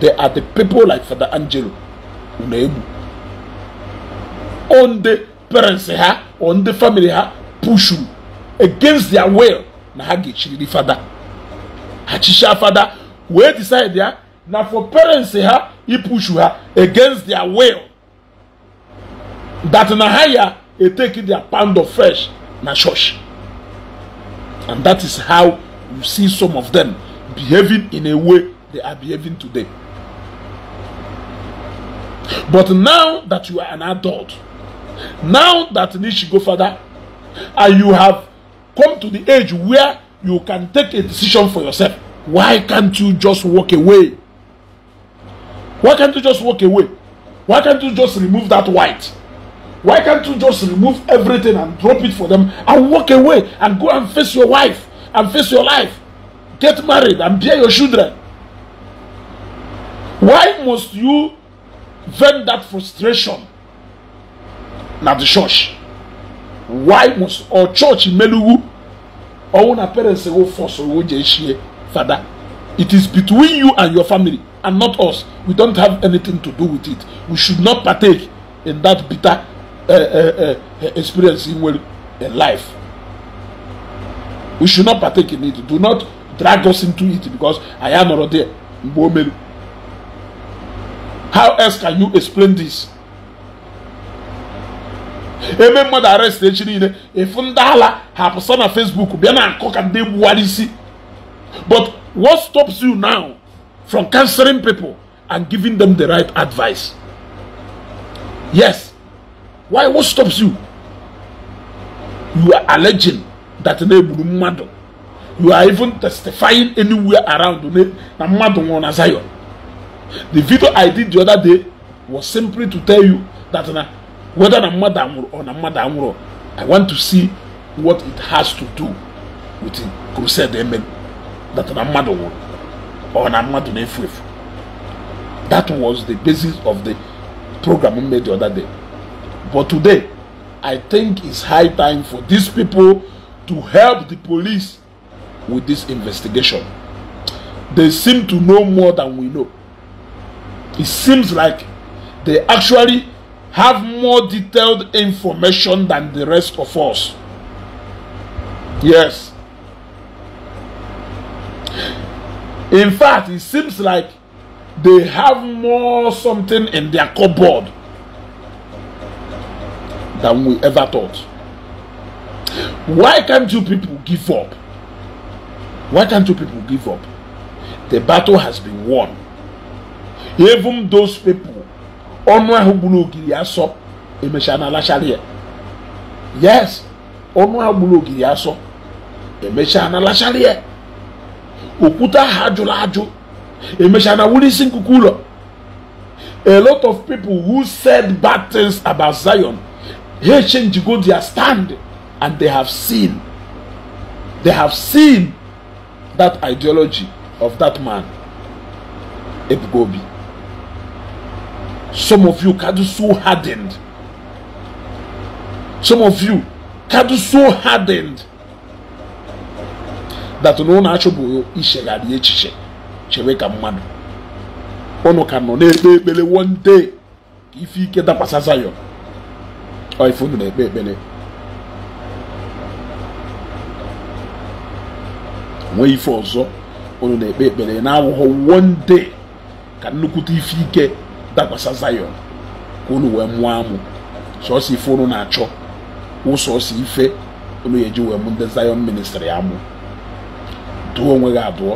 they are the people like Father Angelo na egwu onde ndị parents ha or ndị family ha pushuru against their will na ha ga-echiriri fada ha chichaa fada wee decide ya na for parents ha ipushu ha against their will that na ha ya etake their pound of flesh na church and that is how you see some of them behaving in a way they are behaving today But now that you are an adult, now that need to go further, and you have come to the age where you can take a decision for yourself, why can't you just walk away? Why can't you just walk away? Why can't you just remove that white? Why can't you just remove everything and drop it for them and walk away and go and face your wife and face your life? Get married and bear your children. Why must you vent that frustration na the church why must or church meluwu ọwụ na parents go oh, force owo je shie father it is between you and your family and not us we don't have anything to do with it we should not partake in that bitter uh, uh, uh, experience in well in life we should not partake in it do not drag us into it because i am not there mgbe o meru how else can you explain this ebe mmadụ arrest echi niile efu ndị ala na facebook bịa na nkọ ka ndị egbuwara isi but what stops you now from cancelling people and giving them the right advice yes why what stops you you are alleging that na-egburu mmadụ you are even testifying anywhere around na mmadụ nwụrụ na zion The video I did the other day was simply to tell you that na, whether na mmadụ or na mmadụ I want to see what it has to do with the crusade that na mmadụ or na mmadu That was the basis of the program we made the other day. But today, I think it's high time for these people to help the police with this investigation. They seem to know more than we know it seems like they actually have more detailed information than the rest of us. Yes. In fact, it seems like they have more something in their cupboard than we ever thought. Why can't you people give up? Why can't you people give up? The battle has been won. even those people ọnụ ahụ gburu ogiri asọ emechaa na alachara ya yes ọnụ ahụ gburu ogiri asọ emechaa na alachara ya okwute ahụ ajụrụ ajụ emechaa na wuri isi nkuku ụlọ a lot of people who said bad things about zion ha change go their stand and they have seen they have seen that ideology of that man obi. Some of you got so hardened. Some of you got so hardened that no na-achụbụ ichegharị echiche chewe ka mmanụ unu ka nọ na-ekpe ekpere one day ka ife ike dakwasa Zion ọ ife unu na-ekpe ekpere nwee ife ọzọ unu na-ekpe ekpere na-awụghọ one day ka nnukwu ife ike dakwasa Zion ka unu wee mụọ amụ sọsọ ife unu na-achọ ụsọsọ ife unu eji wee mụ ndị Zion ministri amụ dụọ onwe gị adụọ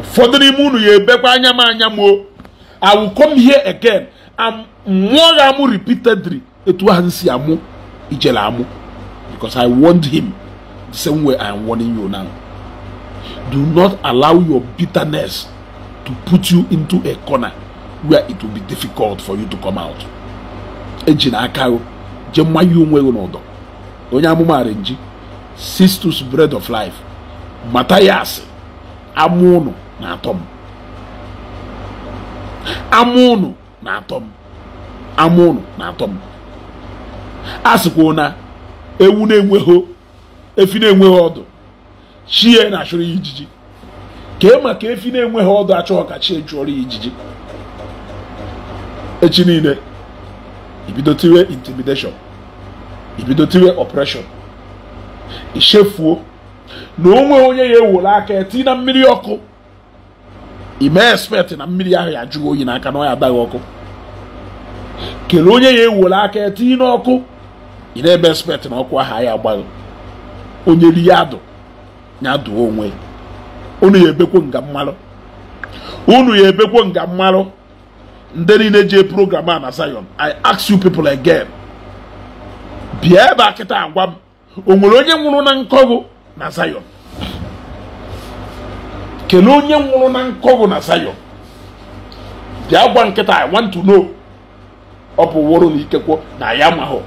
ụfọdụ n'ime unu ya ebekwa anya m anya mụ o I will come here again and mụọ gị amụ repeatedly etu ahụ si amụ ijele amụ because I warned him the same way I am warning you now do not allow your bitterness to put you into a corner where it will be difficult for you to come out eji na aka jee mmanya onwe gị n'ụdọ onye amụmara nji Sistus bread of life mata ya asị ama ụnụ na-atọ m ama ụnụ na-atọ m ama ụnụ na-atọ m a sịkwa na ewu na-enweghị efi na-enweghị ọdụ chie na-achụrụ ya ijiji e ma maka efi na-enweghị ọdụ achọghị ka chie chụọrọ ya ijiji echi niile ibido tiwe intimidation ibido tiwe oppression ichefuo na onwe onye ya ewere aka eti na mmiri ọkụ ime expect na mmiri ahụ ya jụọ oyi n'aka na ọ ya adaghị ọkụ kelee onye ya ewere aka eti n'ọkụ ị na ebe expect na ọkụ ahụ ya agbaghị onye ri ya dụ ya dụọ onwe unu ya ebekwo nga mmalụ unu ya ebekwo nga mmalụ ndị niile ji program a na Zion I ask you people again bịa ebe a kịta agwa m o nwere onye nwụrụ na nkọgụ na Zion kelee onye nwụrụ na nkọgụ na Zion bịa gwa nkịta I want to know ọ bụ wụrụ na ikekwo na ya hụ.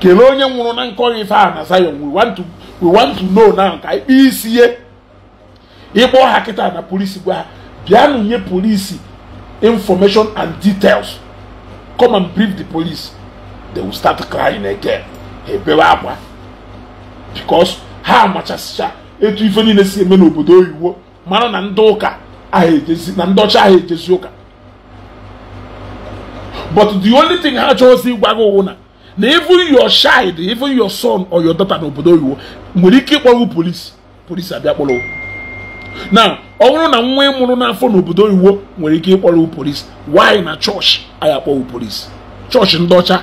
kelee onye nwụrụ na nkọgụ ife a na Zion we want to we want to know now ka ikpe isi ye ịkpọ ha kịta na polisi gwa ha bịa nụnye polisi information and details come and brief the police they will start crying again ebewe akwa because ha amachasịcha etu ife niile si eme n'obodo oyiwo mara na ndị ụka ahụ na ndị ọcha ahụ ejezi ụka but the only thing ha chọrọzi ịgwa gị na na even your child even your son or your daughter n'obodo oyiwo nwere ike ịkpọrụ polisi polisi abịa kpọrọ na ọ bụrụ na nwa e mụrụ n'afọ n'obodo oyiwo nwere ike ịkpọrọ polisi wanyị na chọọchị anyị akpọwụ polisi chọọchị ndị ọcha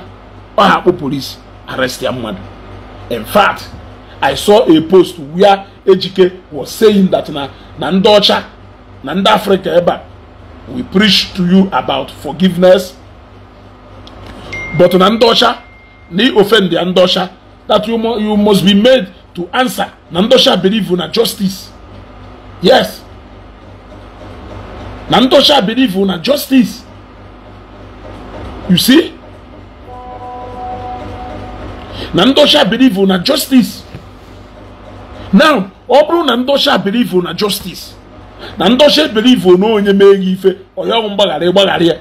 ọha akpọ mmadụ in fact i saw a post where ejike was saying that na na ndị ọcha na ndị africa ebe a we preach to you about forgiveness but na ndị ọcha na ị ndị ọcha that you, must be made to answer na ndị ọcha believe na justice yes na ntọcha ọcha believe na justice you see na ntọcha ọcha believe na justice now ọ bụrụ na ntọcha ọcha believe na justice na ntọcha ọcha believe na onye mee gị ife ọyọghụ mgbaghara ịgbaghara ya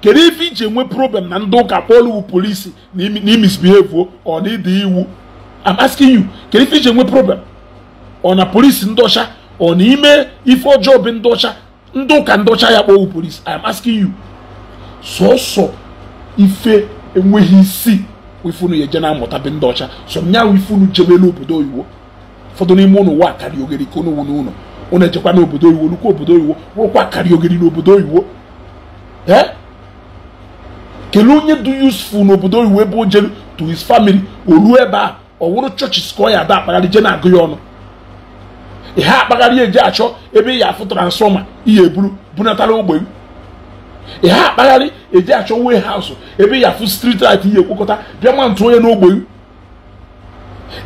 kedu ife iji enwe problem na ndị ụka kpọlụ polisi na imisbehave ọ na ịdị iwu I'm asking you kedu ife iji enwe problem ọ na polisi ndọcha ọ n'ime ife ọjọọ bụ ndị ọcha ndị ụka ndị ọcha ya kpọwụ polis i am asking you sọsọ ife enweghị isi ifunu ya eje na-amụta be ndị ọcha sọ m nyanwụ ifunu jebelu obodo oyiwo ụfọdụ n'ime ụnụ wa akari ogeri ka ụnụ n'ụlọ ụnụ ejekwa n'obodo oyiwo lukwa obodo oyiwo rụkwa akari ogeri n'obodo oyiwo ee kelee onye dị useful n'obodo oyiwo ebe o jelu to his family o ruo ebe a ọ wụrụ chọọchị ọ ya ada akpagharị je na-agụ ya ọnụ ihe akpagharị eji achọ ebe ị afụ transfọma iye eburu bunatara ogbe m ihe akpagharị eji achọ wee haụsụ ebe ị afụ strit rit iye ekwekọta bịa ma ntụ onye n'ogbe m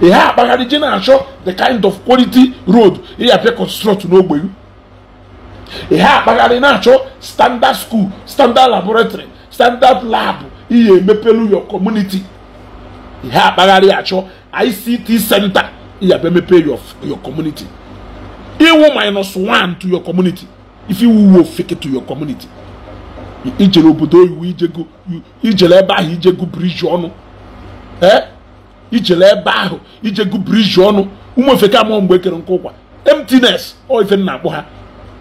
ihe akpagharị je na-achọ the kind of quality road ị ga-apịa construct n'ogbe m ihe akpagharị na-achọ standard school standard laboratory standard lab ihe emepelu your community ihe akpagharị achọ ICT center ị ga-abịa mepe your community iwu minus one to your community if iwu wo fake to your community ijele obodo oyiwu ijele ebe ahụ ijegu bridge ọnụ ee ijele ebe ahụ ijegu bridge ọnụ ụmụ ofeke amụọ mgbe ekere nke ụkwa emptiness ọ ife na-akpọ ha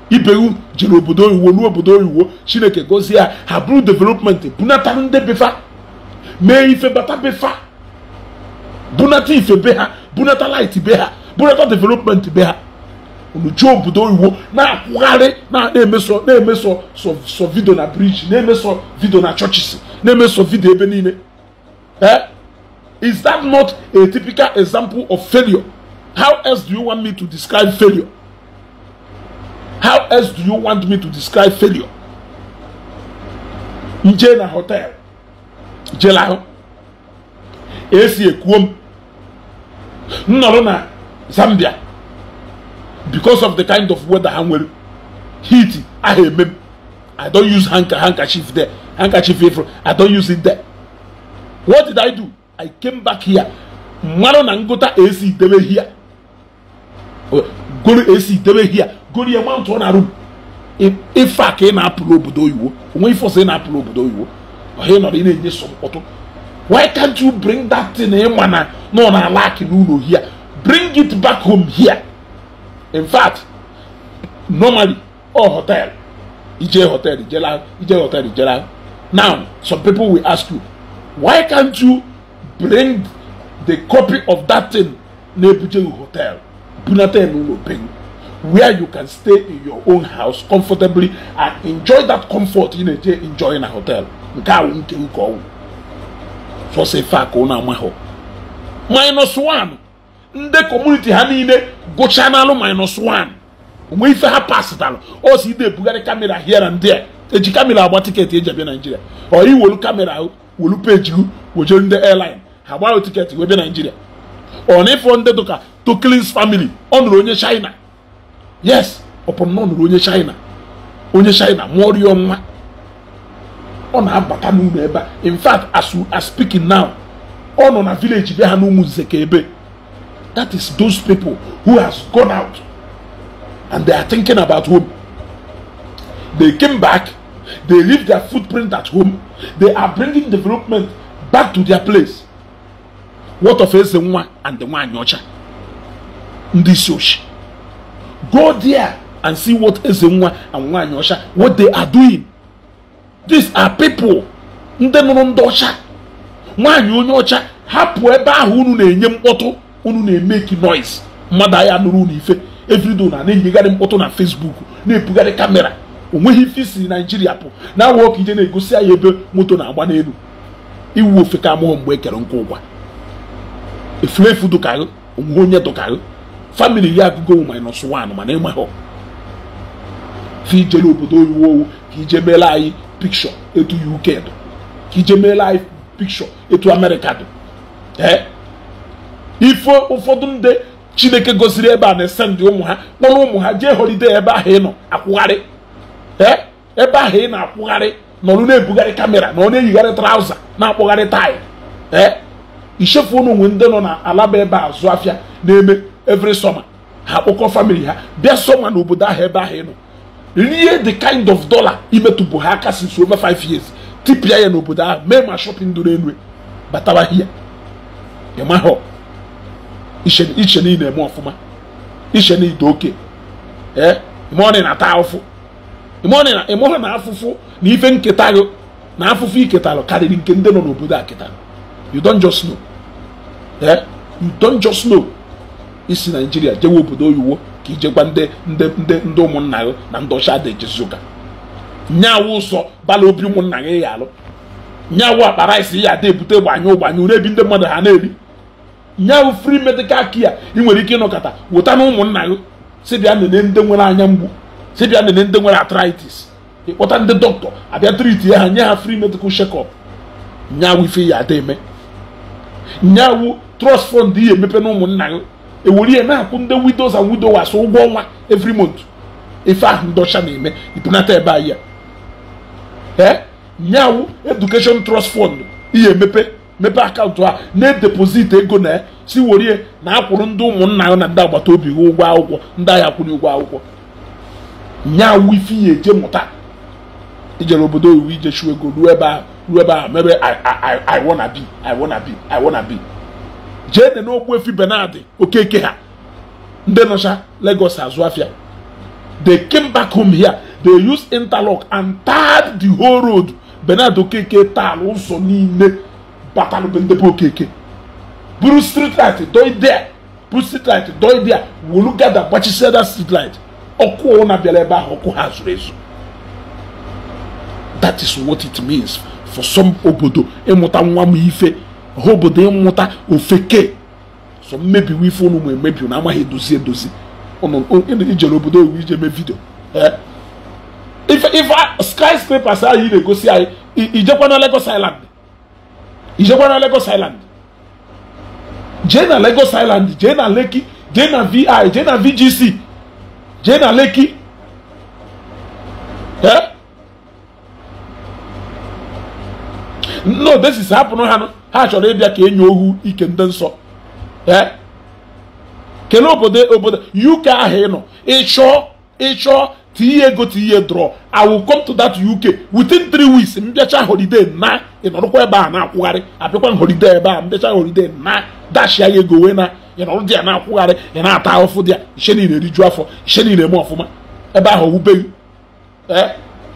ibewu jere obodo oyiwo ruo obodo oyiwo chineke gozie ha ha bụrụ development bunata ndị bifa mee ife bata bifa bunata ife be ha bunata light be ha bunata development be ha job obodo oyibo na-akwụgharị na-emeso na-emeso sọ vidio na briji na-emeso vidio na chọchis na-emeso vidio ebe niile eh is that not a typical example of failure how else do you want me to describe failure how else do you want me to describe failure nje na hotel ahụ. esi ekwuo m Nnọrọ na Zambia because of the kind of weather ha nwere heat aha eme i don use handkerchief there handkerchief ifro i don use it there what did i do i came back here mmanụ na ngụta ac debe here goro ac debe here goro ya mount ọ na room ife a ka ị na-apụrụ obodo oyibo onwe ife ọsọ ị na-apụrụ obodo oyibo ọha ị nọrọ ị na-enye so mkpọtụ why can't you bring that thing ịma na nọ na alaki n'ụlọ here bring it back home here in fact normally all hotel ije hotel ijela ije hotel ijela now some people will ask you why can't you bring the copy of that thing ebuje hotel bunata n'ụlọ be where you can stay in your own house comfortably and enjoy that comfort you na-eje enjoy na hotel nke awu nke nke ọwụ sọsọ ka ụnụ amahụ minus one ndị kọmuniti ha niile gụchaa n'alụ minus one onwe ife ha pasitalụ o si ide ebugharị kamera hịa na ndị a eji kamera agba tiketi eji abịa naijiria ọ iwelu kamera welu peji gụ wejere ndị airline ha gbaghị tiketi wee bịa naijiria ọ na ịfọ ndị dụka toklins famili ọ nụrụ onye china yes ọpụrụ na ọ nụrụ onye china onye china rịọ nwa ọ na-abata n'ụlọ ebe a in fact as we are speaking now ọ nọ na vileji be ha n'ụmụ nze ka ebe That is those people who has gone out and they are thinking about home. They came back, they leave their footprint at home, they are bringing development back to their place. What of is the one and the one yocha? This yoshi. Go there and see what is the one and one ocha what they are doing. These are people. Ndị nụrụ ndị ọcha nwaanyị onye ọcha hapụ ebe ahụ unu na-enye mkpọtụ unu na-emeki noise mmadụ ahịa nụrụ unu ife evrido na na enyegharị mkpọtụ na fesbuk na-ebugharị kamera onweghị ife isi naijiria pụ na awa ka ije na-egosi anyị ebe moto na-agba n'elu iwu ofe ka amụghị mgbe ekere nkwa ụgwa efulefu dụkaghị onwe onye dụkarị famili ya agụgo minus one mana ịmaghọ ka ije n'obodo oyiwo owu ka ije meela anyị pikshọ etu uk dụ ka ije meela anyị pikshọ etu amerịka dụ ee ife ụfọdụ ndị chineke gosiri ebe a na ndị ụmụ ha kpọrọ ụmụ ha jee holide ebe ahụ ị nọ akwụgharị ee ebe ahụ ị na-akwụgharị nọrụ na-ebugharị kamera na ọ na-eyigharị trauza na-akpụgharị taịl ee ichefu unu nwe ndị nọ na alaba ebe a zụ afịa na-eme every summer ha akpọkọ famili ha bịa sọma na obodo ahụ ebe ahụ ị nọ rie the kind of dollar imetụbụ ha aka since over five years tipịa ya n'obodo ahụ mee ma shopping duru enu batawa hia ịmahụ iche na eme ọfụma iche niile oke ee ịmụọ na ata ụfụ ịmụọ na afụfụ na ife nketa gị na afụfụ iketalụ karịrị nke ndị nọ n'obodo a ketara you don't just know ee you don't just know isi naijiria jewe obodo oyiwo ka ijekwa ndị ndị ndị ndị ụmụnna gị na ndị ọcha dị ejezu ụka nyawu ụsọ bala obi ụmụnna gị ya alụ nyawu akpara isi ya ada ebute gbanyụ gbanyụ ebi ndị mmadụ ha na-eri nye bụ free medical care ị nwere ike ịnọkọta wụta na ụmụnna gị si nene ndị nwere anya mgbu si nene ndị nwere atritis ịkpọta ndị dọkịta abịa treat ya ha nye ha free medical shekọp up nyawụ ife ya ada eme nyawụ trust fọnd ihe emepe na ụmụnna gị ewere ihe na-akwụ ndị widows and widowers ụgwọ ọnwa every mont ife ahụ ndị ọcha na-eme ibunata ebe anyị ya nyawụ education trust fọnd ihe emepe mepee akaụntụ a na-edepoziti ego na si worie na akwụrụ ndị ụmụnna ya na ndị agbata obi ha ụgwọ akwụkwọ ndị agha kwụrụ ụgwọ akwụkwọ nya awụ ife ya eje mụta ijere obodo oyiwu ije ego ruo ebe ahụ ruo ebe ahụ mebe I wanna be I wanna be I wanna be jee dị n'Ogbuefi Benard Okeke ha ndị nọcha Lagos azụ afịa they came back home here they used interlock and tarred the whole road Benard Okeke taal ụzọ niile kpatalụ ndebe okeke buru street light doidea buru street light doidea wolu gada gbachisiada street light ọkụ na bịara ebe ahụ ọkụ ha zuru ezu that is what it means for some obodo ịmụta e nwa m ife ha obodo ịmụta e ofeke so mmebiwa ife ụnụ ma emebi na amaghị edozi edozi oh, oh, ijere obodo oyiwu ije mee vidio eh? ife skyscrapers anyị na-egosi anyị na Lagos Island ijekwa na Lagos Island jee na Lagos Island jee na Lekki jee na vi jee na VGC jee na Lekki nnaodesisi hapụrụ ha ha chọrọ ịbịa ka enyo ohu ike ndị nsọ kelee obodo obodo UK ahụ ị nọ ịchọ ịchọ tinye ego tinye drọ i will come to that uk within three weeks mbịacha holiday na ịnọrọkwa ebe a na-akwụgharị abịakwa holiday ebe a mbịacha holiday na dashia ya ego wee na ịnọrọ dị ya na-akwụgharị ị na-ata ahụfụ dị ya ihe niile rijuo afọ ihe niile eme ọfụma ebe ahụ owubeghị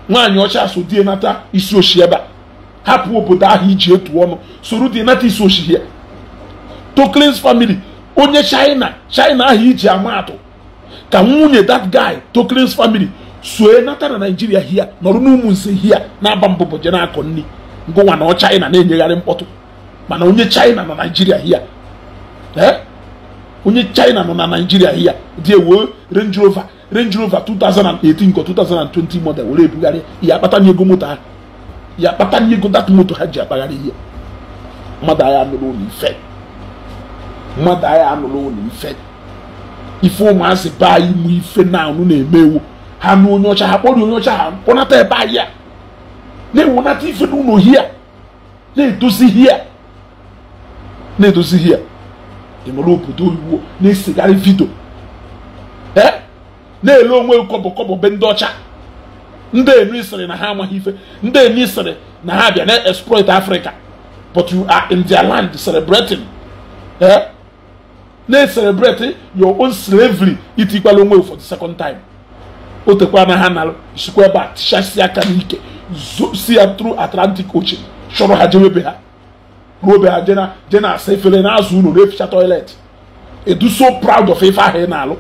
nwaanyị ọcha so die nata isi oshi ebe a hapụ obodo ahụ iji etu ọnụ soro dị nata isi oshi ya toklins family onye china china ahụ iji ama atụ ka nwunye that guy Tokren's family sue nata na naijiria hia nọrụ n'ụmụ nse hia na-aba mbụbụ je na-akọ nri na ọ China na-enyegharị mkpọtụ mana onye China na naijiria hia onye China nọ na naijiria hia dị ewe Range Rover Range Rover 2018 ka 2020 model were ebugharị ya akpata n'ego moto ha ya kpata n'ego dat moto ha ji akpagharị ihe mmadụ agha anụrụ ụlọ ife mmadụ agha anụrụ ụlọ ife ife ụmụazị be anyị mụ ife na anụ na-emewo ha nụ onye ọcha ha kpọrọ onye ọcha ha kpọnata ebe ahịa a na ewunata ife n'ụlọ hia na-edozi hia na-edozi hia enwere obodo oyibo na-esegharị vidio ee na-ele onwe kọbọ kọbọ be ndị ọcha ndị enu isiri na ha amaghị ife ndị enu isiri na ha bịa na exploit Africa but you are in their land celebrating ee na-eselebreti your own slavery itikwala onwe for the second time o tekwa na ha na sikwa ebe a tichasị aka n'ike si ya through atlantic ocean chọrọ ha jewe be ha ruo be ha je na asa efere na-azụ ụlọ na-eficha toilet edu so proud of ife ahụ ị na-alụ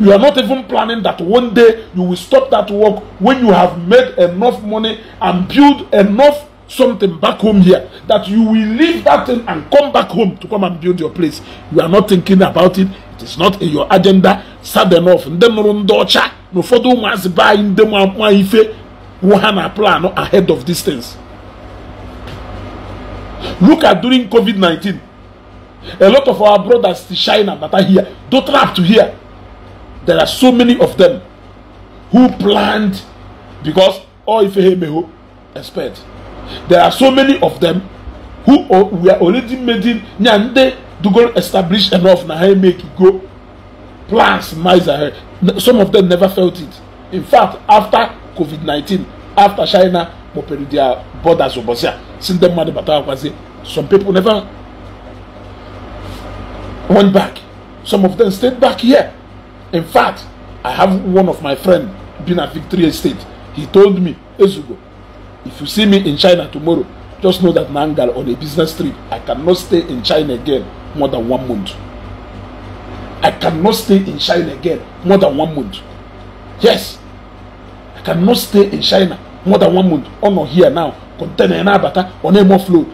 you are not even planning that one day you will stop that work when you have made enough money and build enough something back home here that you will leave that thing and come back home to come and build your place. You are not thinking about it. It is not in your agenda. Sad enough. Ndị no ndị ọcha na ụfọdụ ụmụazị be anyị ndị nwa ife plan ahead of these things. Look at during COVID-19. A lot of our brothers to China that are here, don't have to here. There are so many of them who planned because all if me may expect. there are so many of them who were already making ya ndị dugoro establish enough na ha make go plans miles ahead some of them never felt it in fact after covid-19 after china kpọpere their borders ụbọchị a si mmadụ bata akwazi some people never went back some of them stayed back here in fact i have one of my friend been at victoria state he told me ezugo If you see me in China tomorrow, just know that Nangal on a business trip, I cannot stay in China again more than one month. I cannot stay in China again more than one month. Yes, I cannot stay in China more than one month. On oh, or here now, container na abata on a more float,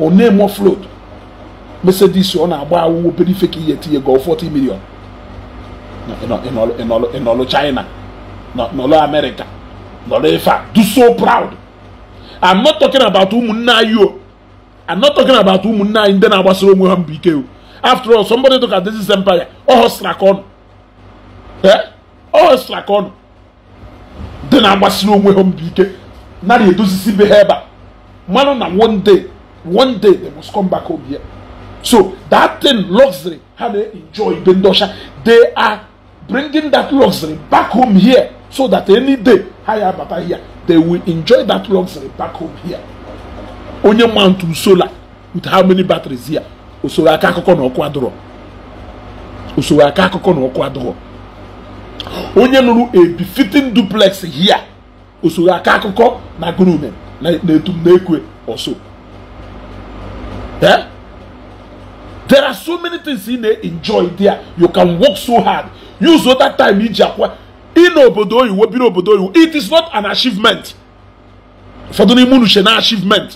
on a more float. Mercedes on a wow, very fake year to go forty million. No, in all, in all, in all China, not in all America. nọrọ ife a do so proud i'm not talking about ụmụnne anyị o i'm not talking about ụmụnne anyị ndị na-agbasara onwe ha mbụ ike o after all somebody took at this empire ọ hụsịra ka ọnụ ọ hụsịra ka ọnụ ndị na-agbasara onwe ha mbụ ike nara edozisi be ha ebe a mmanụ na one day one day they must come back home here so that thing luxury ha na-enjoy ibe ndị ọcha they are bringing that luxury back home here so that any day ha ya abata here they will enjoy that luxury back home here onye mantu solar with how many batteries here usoro aka akụkọ na ọkụ adụrọ usoro aka akụkọ na ọkụ adụrọ onye nụrụ a befitting duplex here usoro aka akụkọ na gurume na-etum na-ekwe ọsọ eh there are so many things you na-enjoy there you can work so hard use that time iji akwa n'obodo oyiwo bi n'obodo oyiwo it is not an achievement ụfọdụ n'ime unu na achievement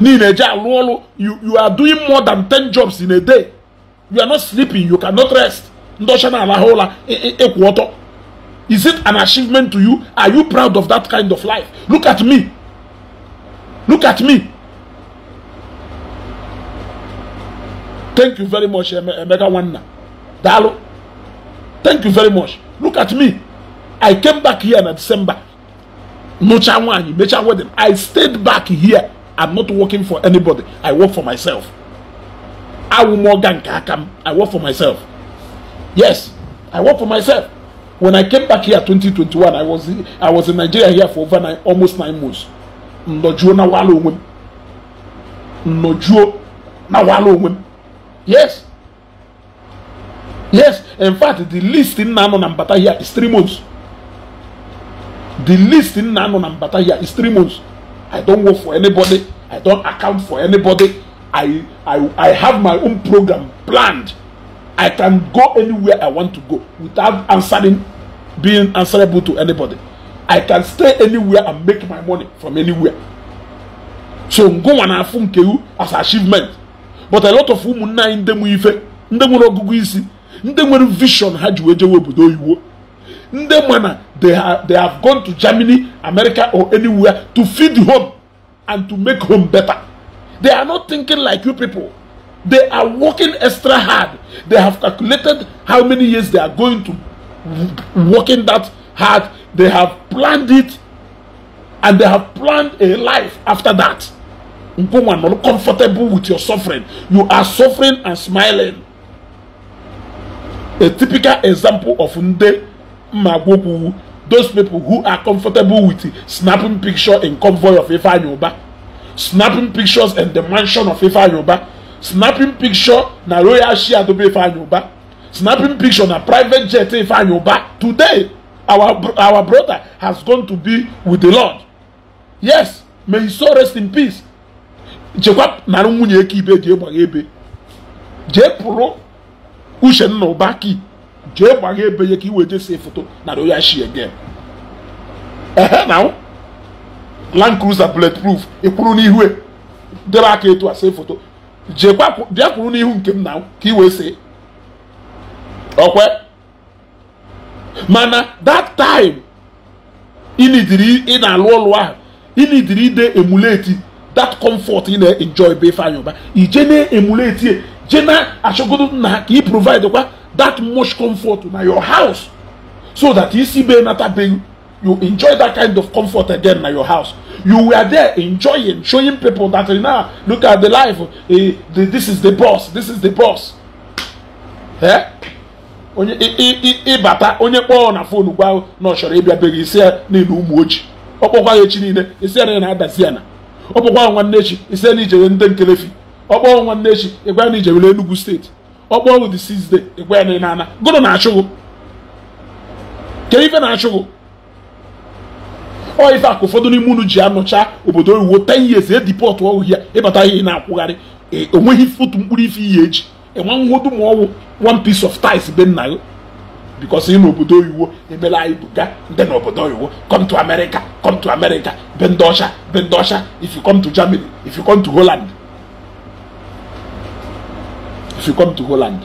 niile eji alụ ọrụ you are doing more than 10 jobs in a day you are not sleeping you cannot rest ndị ọcha na-alahụ ụla ịkwụ ọtọ is it an achievement to you are you proud of that kind of life look at me look at me thank you very much emeka nwanna daalụ thank you very much look at me i came back here na december nụcha nwaanyị mecha wedding i stayed back here i'm not working for anybody i work for myself awụ m ọga nke aka m i work for myself yes i work for myself when i came back here 2021 i was i was in nigeria here for over nine, almost nine months nnọjuo na wala onwe m nnọjuo na wala onwe m yes yes in fact the least nna anọ na mbata here is three months the least nna anọ na mbata here is three months i don't work for anybody i don't account for anybody i i i have my own program planned i can go anywhere i want to go without answering being answerable to anybody i can stay anywhere and make my money from anywhere so ngụnwa na afu nke as achievement but a lot of ụmụnne anyị ndị mụ ife ndị nwere isi nde nwere vision ha ji wee jewe obodo oyiwo ndị mana they have gone to Germany America or anywhere to feed home and to make home better they are not thinking like you people they are working extra hard they have calculated how many years they are going to working that hard they have planned it and they have planned a life after that comfortable with your suffering you are suffering and smiling a typical example of Nde mmagwokwu those people who are comfortable with snapping picture in convoy of Ifeanyoba, snapping pictures in the mansion of Ifeanyoba, snapping picture na royal share dobe Ifeanyoba, snapping picture na private jet Ifeanyoba. Today, our, our brother has gone to be with the Lord. Yes, may his soul rest in peace. chekwa narị nwunye eke ibe jee gbagha ebe. Jee pụrụ uchenna ụbaki jee gbagha ebe ya ka iwe see foto na royal shi again ehe na land cruiser bulletproof ịkwụrụ n'ihu e, debe aka etu a see foto jeekwa bịa kwụrụ n'ihu nke m na ka iwe see okwe mana that time ịnidiri ị na-alụ ọlụ ahụ ịnidiri ide emuleti that comfort ị na-enjoy be ife anya ụba ije na-emuleti e, je na-achọgodo nna ka ị provide kwa that much comfort na your house so that isi be natabeghị you enjoy that kind of comfort again na your house you were there enjoying showing people that now look at the life eh, the, this is the boss this is the boss eh? onye ịbata onye kpọọ na fon gwa na ọ chọrọ ịbịa beghị isi ya niile ụmụ ojii ọ kpọkwa ya echi niile isi ya na ya na-adazi ya na ọ kpọkwa nwanne echi isi ya na ijere ndị nkelefi ọkpọọ nwanne echi ịgwa na ijewere Enugu steeti ọkpọọ wụ the sixth ịgwa ya na ana na-achụgụ ke ife na-achụgụ ọ ife akụ ụfọdụ n'ime unu ji anọcha obodo oyiwo ten years edipọtụ ya ịbata e ihe na-akwụgharị e, onweghị fotu mkpụrụ ife ihe eji enwe nwodu ma ọwụ one piece of ties be nna gị bikos ị obodo oyiwo emela anyị buga ndị n'obodo oyiwo come to America come to America be ndị ọcha be ndị ọcha if you come to Germany if you come to Holland if you come to Holland.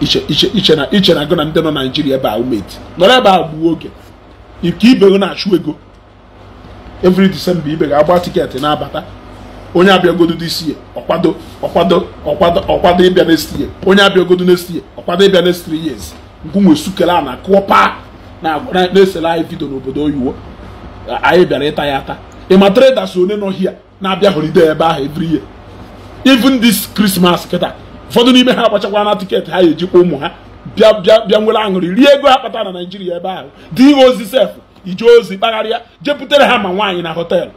iche na iche na gị na ndị nọ naijiria ebe a umeti nọrọ ebe a gbuo oge nke ibe na-achụ ego every December ibe ga-agba tiketi na-abata onye abịagodo this year ọkwado ọkwado ọkwado ọkwado ịbịa next year onye abịagodo next ọkwado ịbịa next three years nkwunwe sukele a na kụọ paa na-esere anyị vidio n'obodo oyiwo anyị bịara ịta ya ata ịma traders one nọ hia na-abịa holiday ebe ahụ every year even this Christmas kịta ụfọdụ n'ime ha agbachakwa na tiketi ha kwa ụmụ ha bịa bịa bịa nwere aṅụrị rie ego ha kpata na Naịjirịa ebe ahụ dị ihe ozi sef ije ozi kpagharịa jepụtara ha ma nwaanyị na họteelụ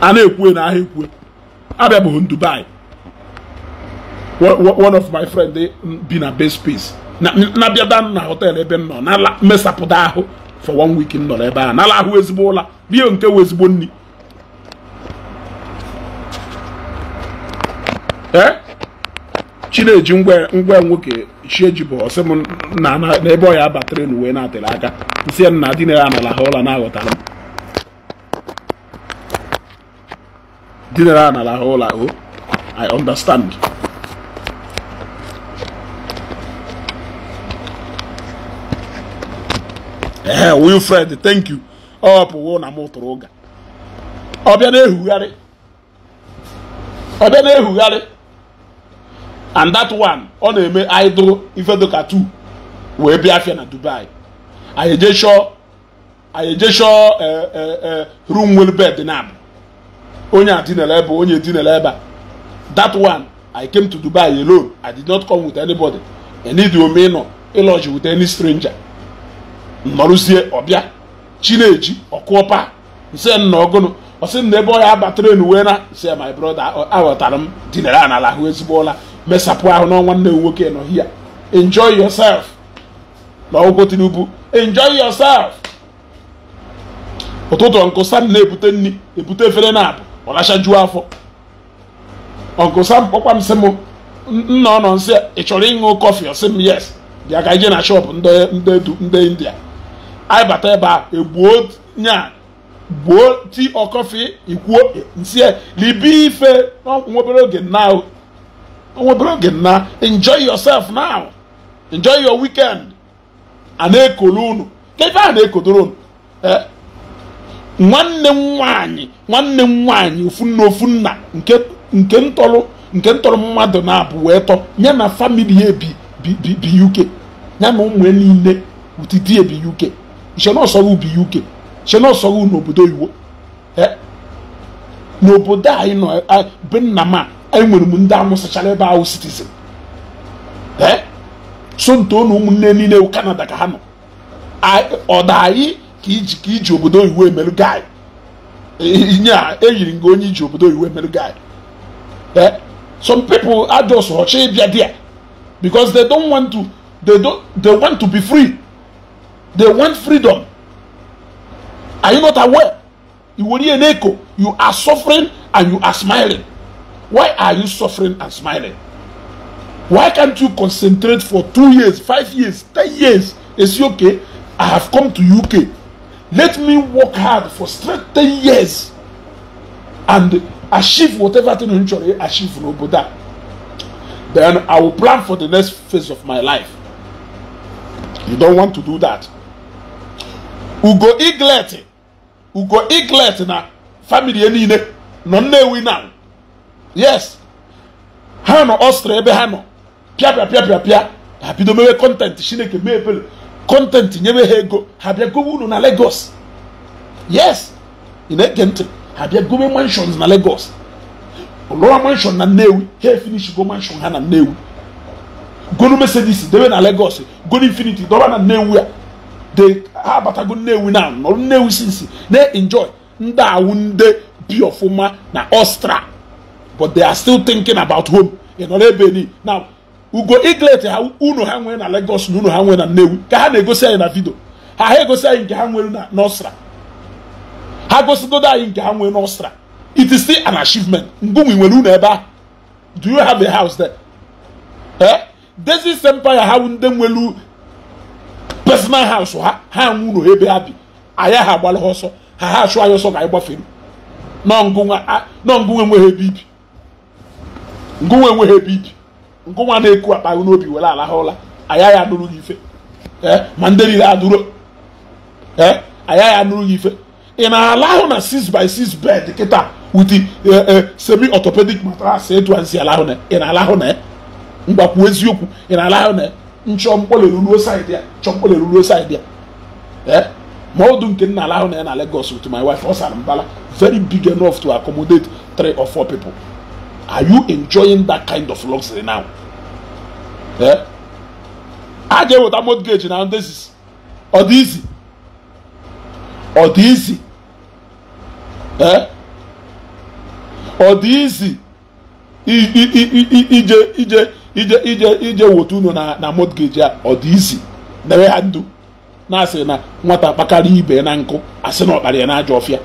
a na-ekwue na ahịa ekwue abịabeghị Dubai one of my friend eh, bi na base space na bịada na họteelụ ebe m nọ na mesapụta ahụ for one week m nọrọ ebe ahụ nala ahụ ezigbo ụla rie nke wụ ezigbo nri ee chineji ngwa nwoke chie ji bụ ọsị m na n'ebe ọ ya batara na uwe na-atịrị aka nsị ya na dinere anala ha ụla na-aghọtara m dinere anala ha ụla o oh, i understand ee Wilfred thank you ọ pụwo na m tụrụ ụga ọbịa na-ehugharị ọbịa na-ehugharị and that one ọ na-eme idol ifedoka two wee bịa afịa na Dubai anyị eje chọọ anyị eje chọọ e, e, e, room well bed na abụ onye adinala ebe onye edinala ebe that one I came to Dubai alone I did not come with anybody enidome ịnọ ịlọji with any stranger nnọrụzie ọbịa chineji ọkụọpa nse nnọgụnụ ọ sị na ebe ọ ya abataren uwe na se my brother aghọtara m dinara anala ahụ ezigbo ụla mesapụ ahụ n'ọnwa nne nwoke nọ hia enjoy yourself na ọgwụgwọ Tinubu enjoy yourself ụtụtụ nkụ sam na-ebute nni ebute efere na abụ ọlacha juo afọ ọnkụ sam kpọkwa m sị m nna ọ nọ nsị ị chọrọ ịṅụ kọfị ọ sị m yes bịa ka ije na shọpụ ndị india anyị bata ebe a egbuo nya gbuo tii ọkọfị ikwuo nsi libi ife nwobere oge now nwobere oge na enjoy yourself now enjoy your weekend a na-ekolu unu kebe a na-ekodoro unu eh, nwanne m nwaanyị nwanne m nwaanyị ofu nna ofu nna nke ntọrọ nke ntọrọ mmadụ na-abụ wee tọ ya na famili ya bi uk ya na ụmụ niile utidi ebi uk iche na ubi uk iche na n'obodo iwo n'obodo anyị nọ be nna m nwere m ndị amụsachara ebe ahụ citizen so nto na ụmụnne niile kanada ka ha nọ ọda anyị ka iji obodo iwu emerụ gị e, inye a m e gị onye iji obodo oyiwu emerụ gị some people are just They want freedom. Are you not aware? You will hear an echo. You are suffering and you are smiling. Why are you suffering and smiling? Why can't you concentrate for two years, five years, ten years? Is It's okay. I have come to UK. Let me work hard for straight ten years and achieve whatever thing you to achieve but that. Then I will plan for the next phase of my life. You don't want to do that. ugo iglet ugo iglet na famili niile nọ nnewi na yes ha nọ ọstra ebe ha nọ pịa pịa pịa pịa ha bido mewe kọntentị chineke mee ebere kọntentị nyebe ha ego ha bịa gowe unu na legos yes ị na-ege ntị ha bịa gowe manshons na legos lụwa manshon na nnewi ha efinishigo manshon ha na nnewi gonu mesedis debe na legos gonu infiniti dọba na nnewi de ha abatago ah, nnewi na nọrụ nnewi sinsi na-enjoy ndị awụ ndị bi ọfụma na ostra but they are still thinking about home ị nọrọ ebe ni na ugo iglet ha unu ha nwere na Lagos na unu ha nwere na nnewi ka ha na-egosi anyị na vidio ha ha egosi anyị nke ha nwere n'ostra ha gosigodo anyị nke ha nwere n'ostra it is still an achievement mgbe nwere unu ebe a do you have a house there eh desi empire ha ndị nwelu personal house ha ha nwụ ụlọ ebe ha bi anyị ha agbalị ha ọsọ ha ha achụ anyị ọsọ ka anyị gbafere nọ ngụnwe enweghị ebe ibi ngụnwe enweghị ebe ibi ngụnwa na-eku akpa gị n'obi were ala ha ụla anyị ya anụrụ gị ife eh, ma ndị niile adụrụ ee eh, anyị ya anụrụ gị ife ị na-ala ahụ na 6 by 6 bed kịta wit eh, semi orthopedic matras etu ansi ala ahụ na ị na-ala ahụ na ngwakwuo eziokwu ị na-ala ahụ na nchọmkpọle ruruo saịdị ya nchọmkpọle ma ọdụ nke nna ala ahụ na ya na Lagos with my wife ọ sara mbala very big enough to accommodate three or four people are you enjoying that kind of luxury now a ga-eweta mortgage na ndezis ọ dị izi ọ dị izi ọ dị izi ije ije ije ije ije wotu unu na na mortgage a ọ dị izi ha ndụ na-asị na nwata kpakarị ibe na nkụ asị na ọkpara ya na ajọ ọfịa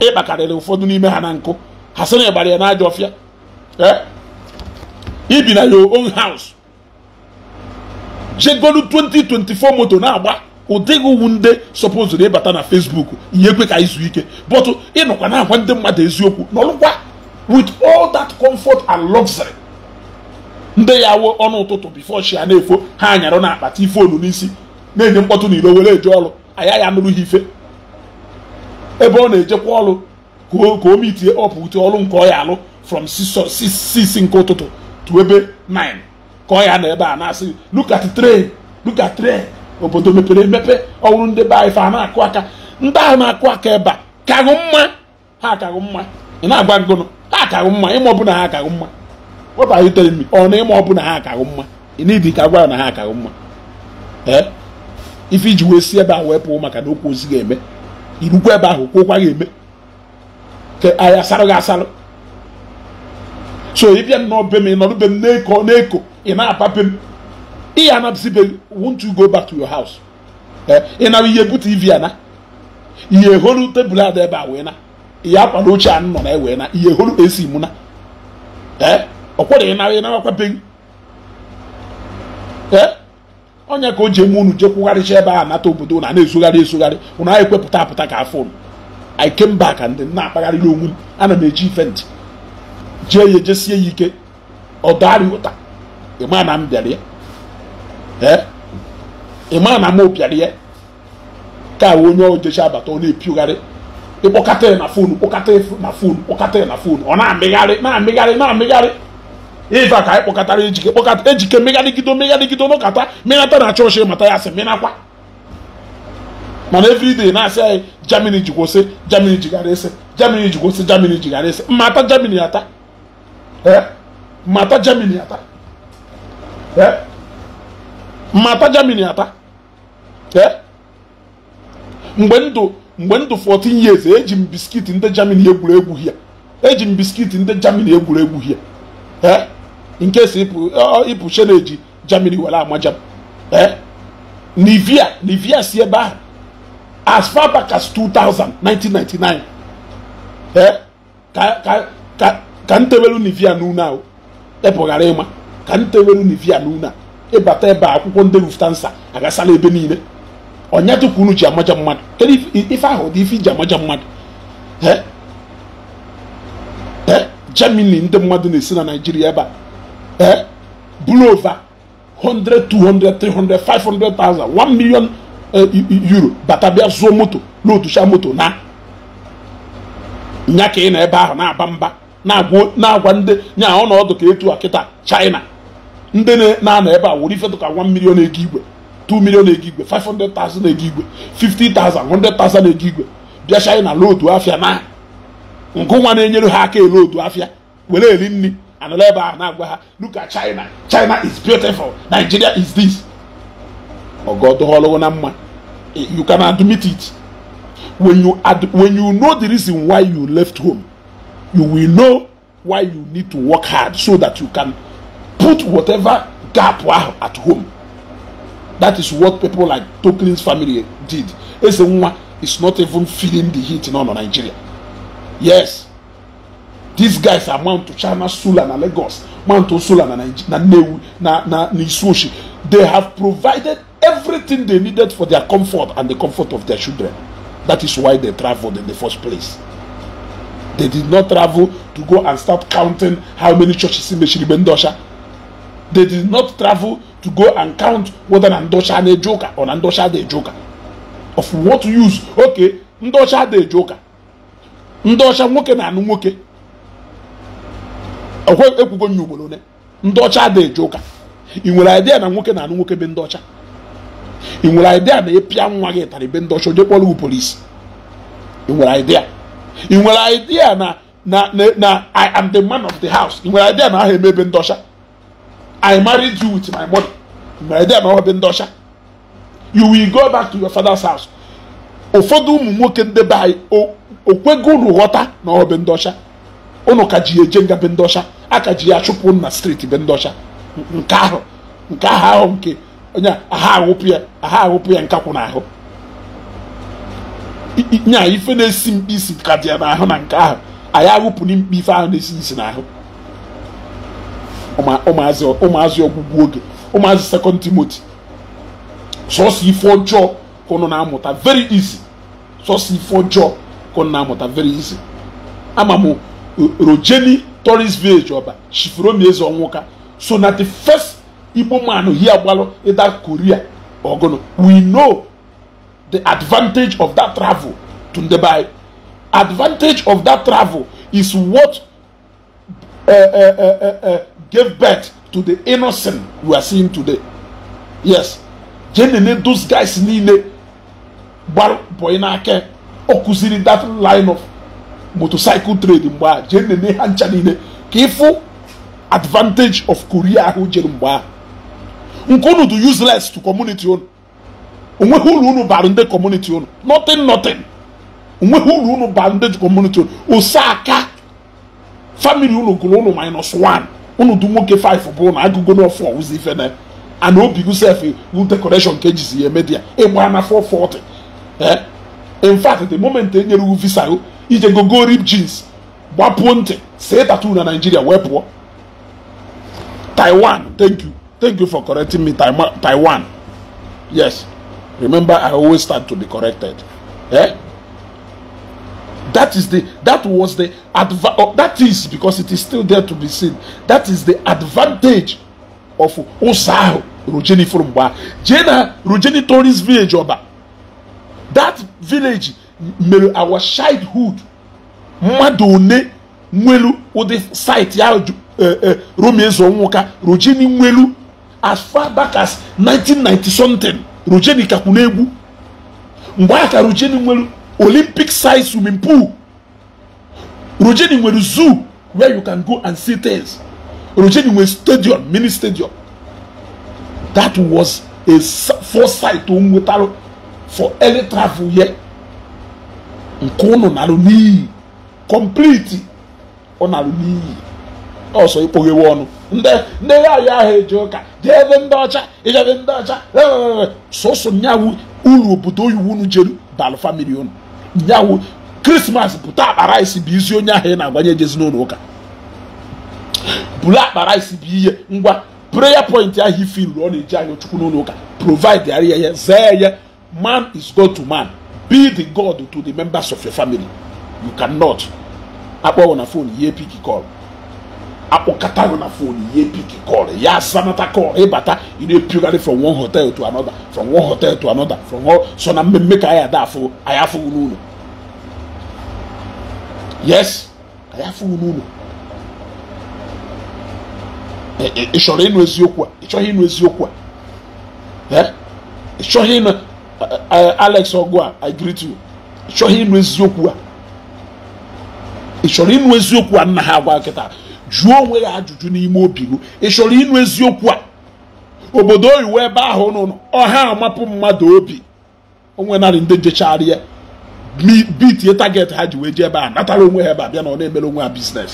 ịkpakarịrị ụfọdụ n'ime ha na nkụ ha sị na ịgbara ya na ajọ ọfịa ibi e? na your own house jegolu 2024 moto na-agba ụdịghị uwu ndị sọpụzụ na ịbata na Facebook ihe ekwe ka izu ike bọtụ ịnọkwa na agwa ndị mmadụ eziokwu nọrụkwa with all that comfort and luxury ndị ya wuo ọnụ ụtụtụ bifo chi ya na-efo ha anyarụ na akpata ife onu n'isi na-enye mkpọtụ na iro were eje ọrụ anya ya nụrụ ha ife ebe ọ na-ejekwa ọrụ ka o mitie ọpụta ọrụ nke ọ ya alụ from 6 nke ụtụtụ to ebe 9 ka ọ ya na ebe a na-asị look at train look obodo mepere emepe ọhụrụ ndị be ife a na-akụ aka ndị ahụ na-akụ aka ebe a kagụ mma ha akagụ mma ị na-agwa ngụnụ ha akagụ mma ịma ọbụla ha akagụ mma what are you telling me ọ na ịma ọ bụ na ha akaghị mma n'idi ka gwara na ha akaghị mma ee ife iji wee si ebe a wee pụọ maka na okwu ozi ga-eme irukwa ebe ahụ kwụkwa ga-eme ka anyị asarụ gị asarụ so ị bịa nnọọ be m ị nọrọ be m na-eko na-eko ị na-apape apa m ị ya anabzi be won't you go back to your house ị nara ihe bute tv ana ihe holu tebụl ada ebe a wee na ihe akwa na oche anụ nọ na ewee na ihe holu esi mụ na ee ọ kwereghị nara ya narakwabeghị ee onye ka o ji eme unu jekwugharịcha ebe a nata obodo na na-ezugharị ezugharị unu anyị kwepụta apụta ka afọ unu i came back and na-akpagharịrị onwe m ana m eji ife ntị jee ya ejesie ya ike ọdarị ụta ịma na m ya ịma na m ya ka onye ojechi abata ọ na-epiogharị ịkpọkata ya na fonu kpọkata na kpọkata ya na fonu ọ na-amịgharị na-amịgharị na-amịgharị ife ka anyị kpọkọtara ejike kpọkọta ejike megharịgido megharịgido n'ụkata menata na chọọchị mata ya sị mịnakwa mana everyday na-asị anyị jamini ji kwụsị jamini jigara ese jamini ji kwụsị jamini jigara ese mmata jamini ata mmata jamini ata mmata jamini ata mgbe ndụ mgbe ndụ 14 years eji m biskit ndị jamini egwuregwu hie eji m biskit ndị jamini egwuregwu hie nke uh, si ịpụ cheneji germany were amaja eh? nivia nivia si ebe ahụ as far back as 2000 1999 eh? ka ka ka ntewelu nivia n'ụlọ ahụ ghara ịma ka ntewelu nivia n'ụlọ ịbata ebe akwụkwọ ndị Lufthansa agasala ebe niile ọnya tupu unu ji amaja mmadụ kedu ife ahụ dị ife iji amaja mmadụ eh? Germany ndị mmadụ na-esi na nigeria ebe a eh, blew over 100, 200, 300, 500,000, 1 million uh, euro batabịa zuo moto n'otucha moto na nya ka ị na ebe ahụ na-aba na-agwa ndị ya ọ na ọdụ ka etu a kịta China ndị na-anọ ebe a were ifetu ka 1 million ego igwe 2 million ego igwe 500,000 ego 50,000 100,000 ego igwe bịa China lootu afịa na ngụ nwa na-enyere ha aka ele otu afịa were eri nri anuleba anagba look at china china is beautiful nigeria is this ọgọ ọdọọlọwọ na mma eh, you can admit it when you ad when you know the reason why you left home you will know why you need to work hard so that you can put whatever gap ahụ at home that is what people like Toklin's family did eze is not even feeling the heat in all of nigeria yes these guys are mount china sula na lagos mount sula na na newu na na Nisushi. they have provided everything they needed for their comfort and the comfort of their children that is why they traveled in the first place they did not travel to go and start counting how many churches in meshiribe ndosha they did not travel to go and count whether na ndosha na ejoka or na ndosha dey ejoka of what use okay ndosha dey ejoka ndosha nwoke na anụ nwoke ekwugo nya ugboro ole ndị ọcha adịghị eje ụka ị nwere idea na nwoke na-anụ nwoke be ndị ọcha ị nwere idea na ịpịa nwa gị tara ibe ndị ọcha onye kpọrọ polisi ị nwere idea ị nwere idea na na na i am the man of the house ị nwere idea na aha eme ebe ndị ọcha i married you with my money ị nwere idea na ọ ebe ndị ọcha you will go back to your father's house ụfọdụ ụmụ nwoke ndebe be anyị okwego ụlọ ghọta na ọ ebe ndị ọcha ụnụ ka ji eje nga be ndị ọcha aka ji ya chụpụ na steeti be ndị nke ahụ nke ahụ ahụ nke onye aha awụpụ ya aha awụpụ ya nkakwụ n'ahụ nya ife na-esi mkpi isi ka dị ya n'ahụ na nke ahụ anyị awụpụ na mkpi ife ahụ na-esi isi n'ahụ ụmụazị ọgwụgwụ oge ụmụazị sekọnd timoti sọsọ ife ọjọọ ka ụnụ na-amụta veri izi sọsọ ife ọjọọ ka ụnụ na-amụta veri izi ama m rojeni tourist village ọba shifromi eze ọnwụka so na the first igbo man he agbalụ ịda korea ọgụnụ we know the advantage of that travel to ndebai advantage of that travel is what uh, uh, uh, uh, gave birth to the innocent we are seeing today yes jenene those guys niile gbara bọyị n'aka ọ kụziri that line of motorcycle trade mgbe a jee nene ha ncha niile ka ịfụ advantage of korea ahụ jere mgbe ahụ nke unu dị useless to community unu onweghị ụlọ unu bara ndị community unu nothing nothing onweghị ụlọ unu bara ndị community unu ose aka family unu gụrụ unu minus one unu dị nwoke 5 bụrụ na agụgo n'ọfọ ụzọ ife na ana obi gusef wu decoration ka ejizi ya emedia ịgba na 440 eh? in fact the moment e nyere wu visa ije go rip jeans gbapuo ntị see tattoo na Nigeria wee pụọ taiwan thank you thank you for correcting me taiwan yes remember i always start to be corrected eh? that is the that was the adva- oh, that is because it is still there to be seen that is the advantage of ụzọ ahụ rojeni fụrụ mgbe jee na rojeni tourist village ọba that village mere our childhood mmadụ one nwelu ụdị site ya eh, eh, romeo ezeonwuka rojeni nwelu as far back as 1990 something rojeni kakwu na-egwu mgbe aka rojeni nwelu olympic size swimming pool rojeni nwere zoo where you can go and see things rojeni nwere stadium mini stadium that was a foresight to nwetara for early travel here nke ụnụ narụ n'iyi kọmpliti ọ narụ n'iyi ọsọ ikpoghewe ọnụ ndị ya ya ahụ eji ụka dị ebe ndị ọcha ijebe ndị ọcha sọsọ nyawu uru obodo oyiwu unu jeru balụ famili unu nyawu krismas bụta akpara isi bụ izi onye ahụ ị na-agwanye jezin'ụlọ n'ụlọ ụka bụrụ akpara isi bụ ihe ngwa prayer point ahụ ife iru ọ na-eji anya chukwu n'ụlọ ụka provide ya ihe zee ya man is god to man be the God to the members of your family. You cannot. Akpọ na phone ihe piki call. Akpọkata na phone ihe piki call. Ya sanata call ịbata e ị na-epugharị from one hotel to another from one hotel to another from all so na mmemme ka anyị ada afụ anyị unu n'ụlọ. Yes, anyị afụ unu Ị chọrọ ịnụ eziokwu a? Ị chọghị ịnụ eziokwu a? Ị chọghị ịnụ Eh, eh, alex ọgụ a i greet you ị chọrọ ịnụ eziokwu a ị chọrọ ịnụ eziokwu a nna ha agwa kịta jụọ onwe ya ajụjụ n'ime obi ị chọrọ ịnụ eziokwu a obodo oyiwu ebe ahụ nọ ọha amapụ mmadụ obi onwe narị ndị jechara ya bitie target ha ji wee ji ebe a natara onwe ha ebe a bịa na ọ na-emere onwe ha biznes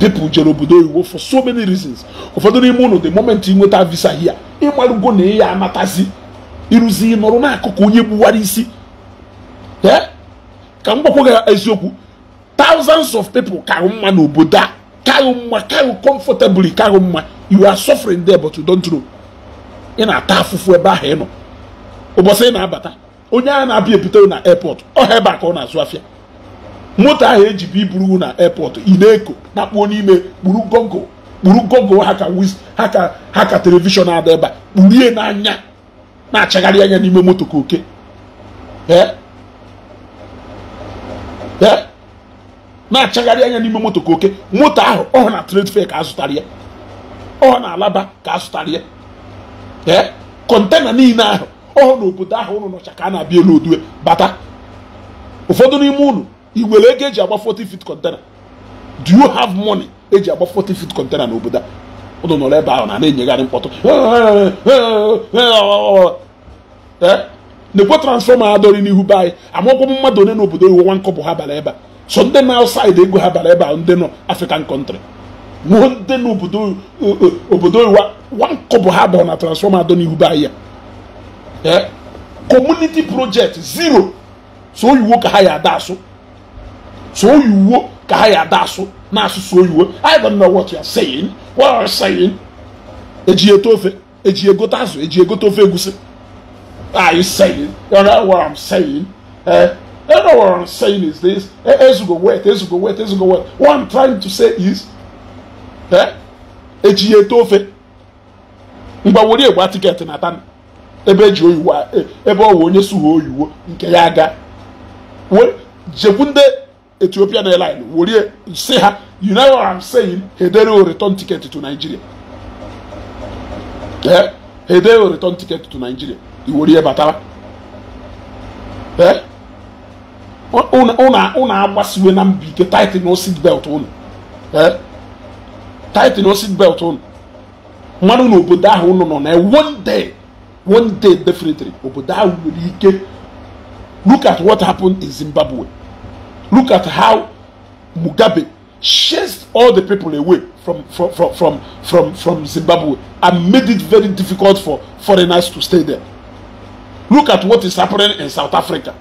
people jere obodo oyiwo for so many reasons ụfọdụ n'ime ụlọ the moment ị nweta visa hia ịmarugo na ị ya amatazi iruzi nọrọ n'akụkụ onye gbuwara isi ka m gwakwa gị eziokwu thousands of people karụ mma n'obodo a karụ mma karụ comfortably karụ mma you are suffering there but you don't know ị na-ata afụfụ ebe ahụ ị nọ ụbọchị ị na-abata onye ahụ na-abịa ebute na airport ọha ebe a ka ọ na-azụ afịa moto ahụ eji bụ iburu na airport ị na-eko na-akpụọ n'ime kpuru gogo kpuru gogo ha ka ha ka telivishọn adị ebe a kpurie n'anya na-achagharị anya n'ime moto ka oke na-achagharị anya n'ime moto ka oke moto ahụ ọ na trade fair ka azụtara ya ọ na alaba ka azụtara ya kọntena niile ahụ ọhụụ n'obodo ahụ ụnụ nọcha ka a na-abịa elu odue bata ụfọdụ n'ime ụnụ nwere ego eji agba 40 feet container do you have money eji agba 40 feet container n'obodo a ụnụ nọrọ ebe ahụ na na-enyegharị mkpọtụ na-ekwe transfọma adọrị n'ihu be anyị amakwọ mmadụ onye n'obodo iwu nwa nkọpụ ha bara ebe a so ndị na outside ego ha bara ebe ahụ ndị nọ African country nwụọ ndị n'obodo obodo iwa nwa nkọpụ ha bara na transfọma adọ n'ihu be anyị ya kọmuniti projekt zero so oyiwo ka ha ya ada asụ so oyiwo ka ha ya ada asụ na asụsụ oyibo I don't know what you are saying what are you saying eji eto ofe eji egote azụ eji egote ofe egusi are you saying you know what I'm saying eh you know what I'm saying is this eh, ezugo wet ezugo wet ezugo wet what I'm trying to say is eh eji eto ofe mgbawori egba tiketi na tana ebe eji oyiwo eh, ebe ọ wụ onye suhu oyiwo nke ya aga jekwu ndị Ethiopian airline were say ha you know what I'm saying hedere o return ticket to Nigeria eh hedere o return ticket to Nigeria iwere batara eh unu agbasiwe na mbi ike tight o seat belt unu eh tight o seat belt unu mmanụ na obodo ahụ unu nọ na one day one day definitely obodo ahụ nwere ike look at what happened in Zimbabwe Look at how Mugabe chased all the people away from, from, from, from, from, from Zimbabwe and made it very difficult for foreigners to stay there. Look at what is happening in South Africa.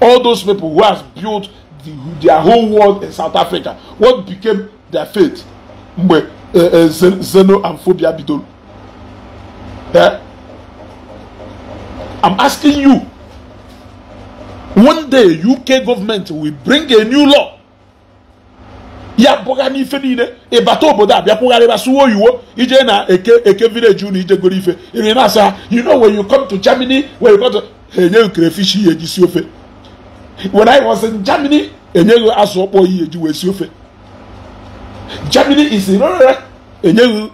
All those people who have built the, their whole world in South Africa, what became their fate? Mgbe xeno eh, eh, and phobia bidoro. Eh? I'm asking you one day uk government will bring a new law ya bụga n'ife niile ịbata e obodo a bịakwụgharịba suwa oyiwo ije na eke eke village unu ijegoro ife iri e na asa you know when you come to germany when you come to ha e enyeghị crayfish ihe eji si ofe when i was in germany enyeghị azụ ọkpọ ihe eji wee si ofe germany is rere enyeghị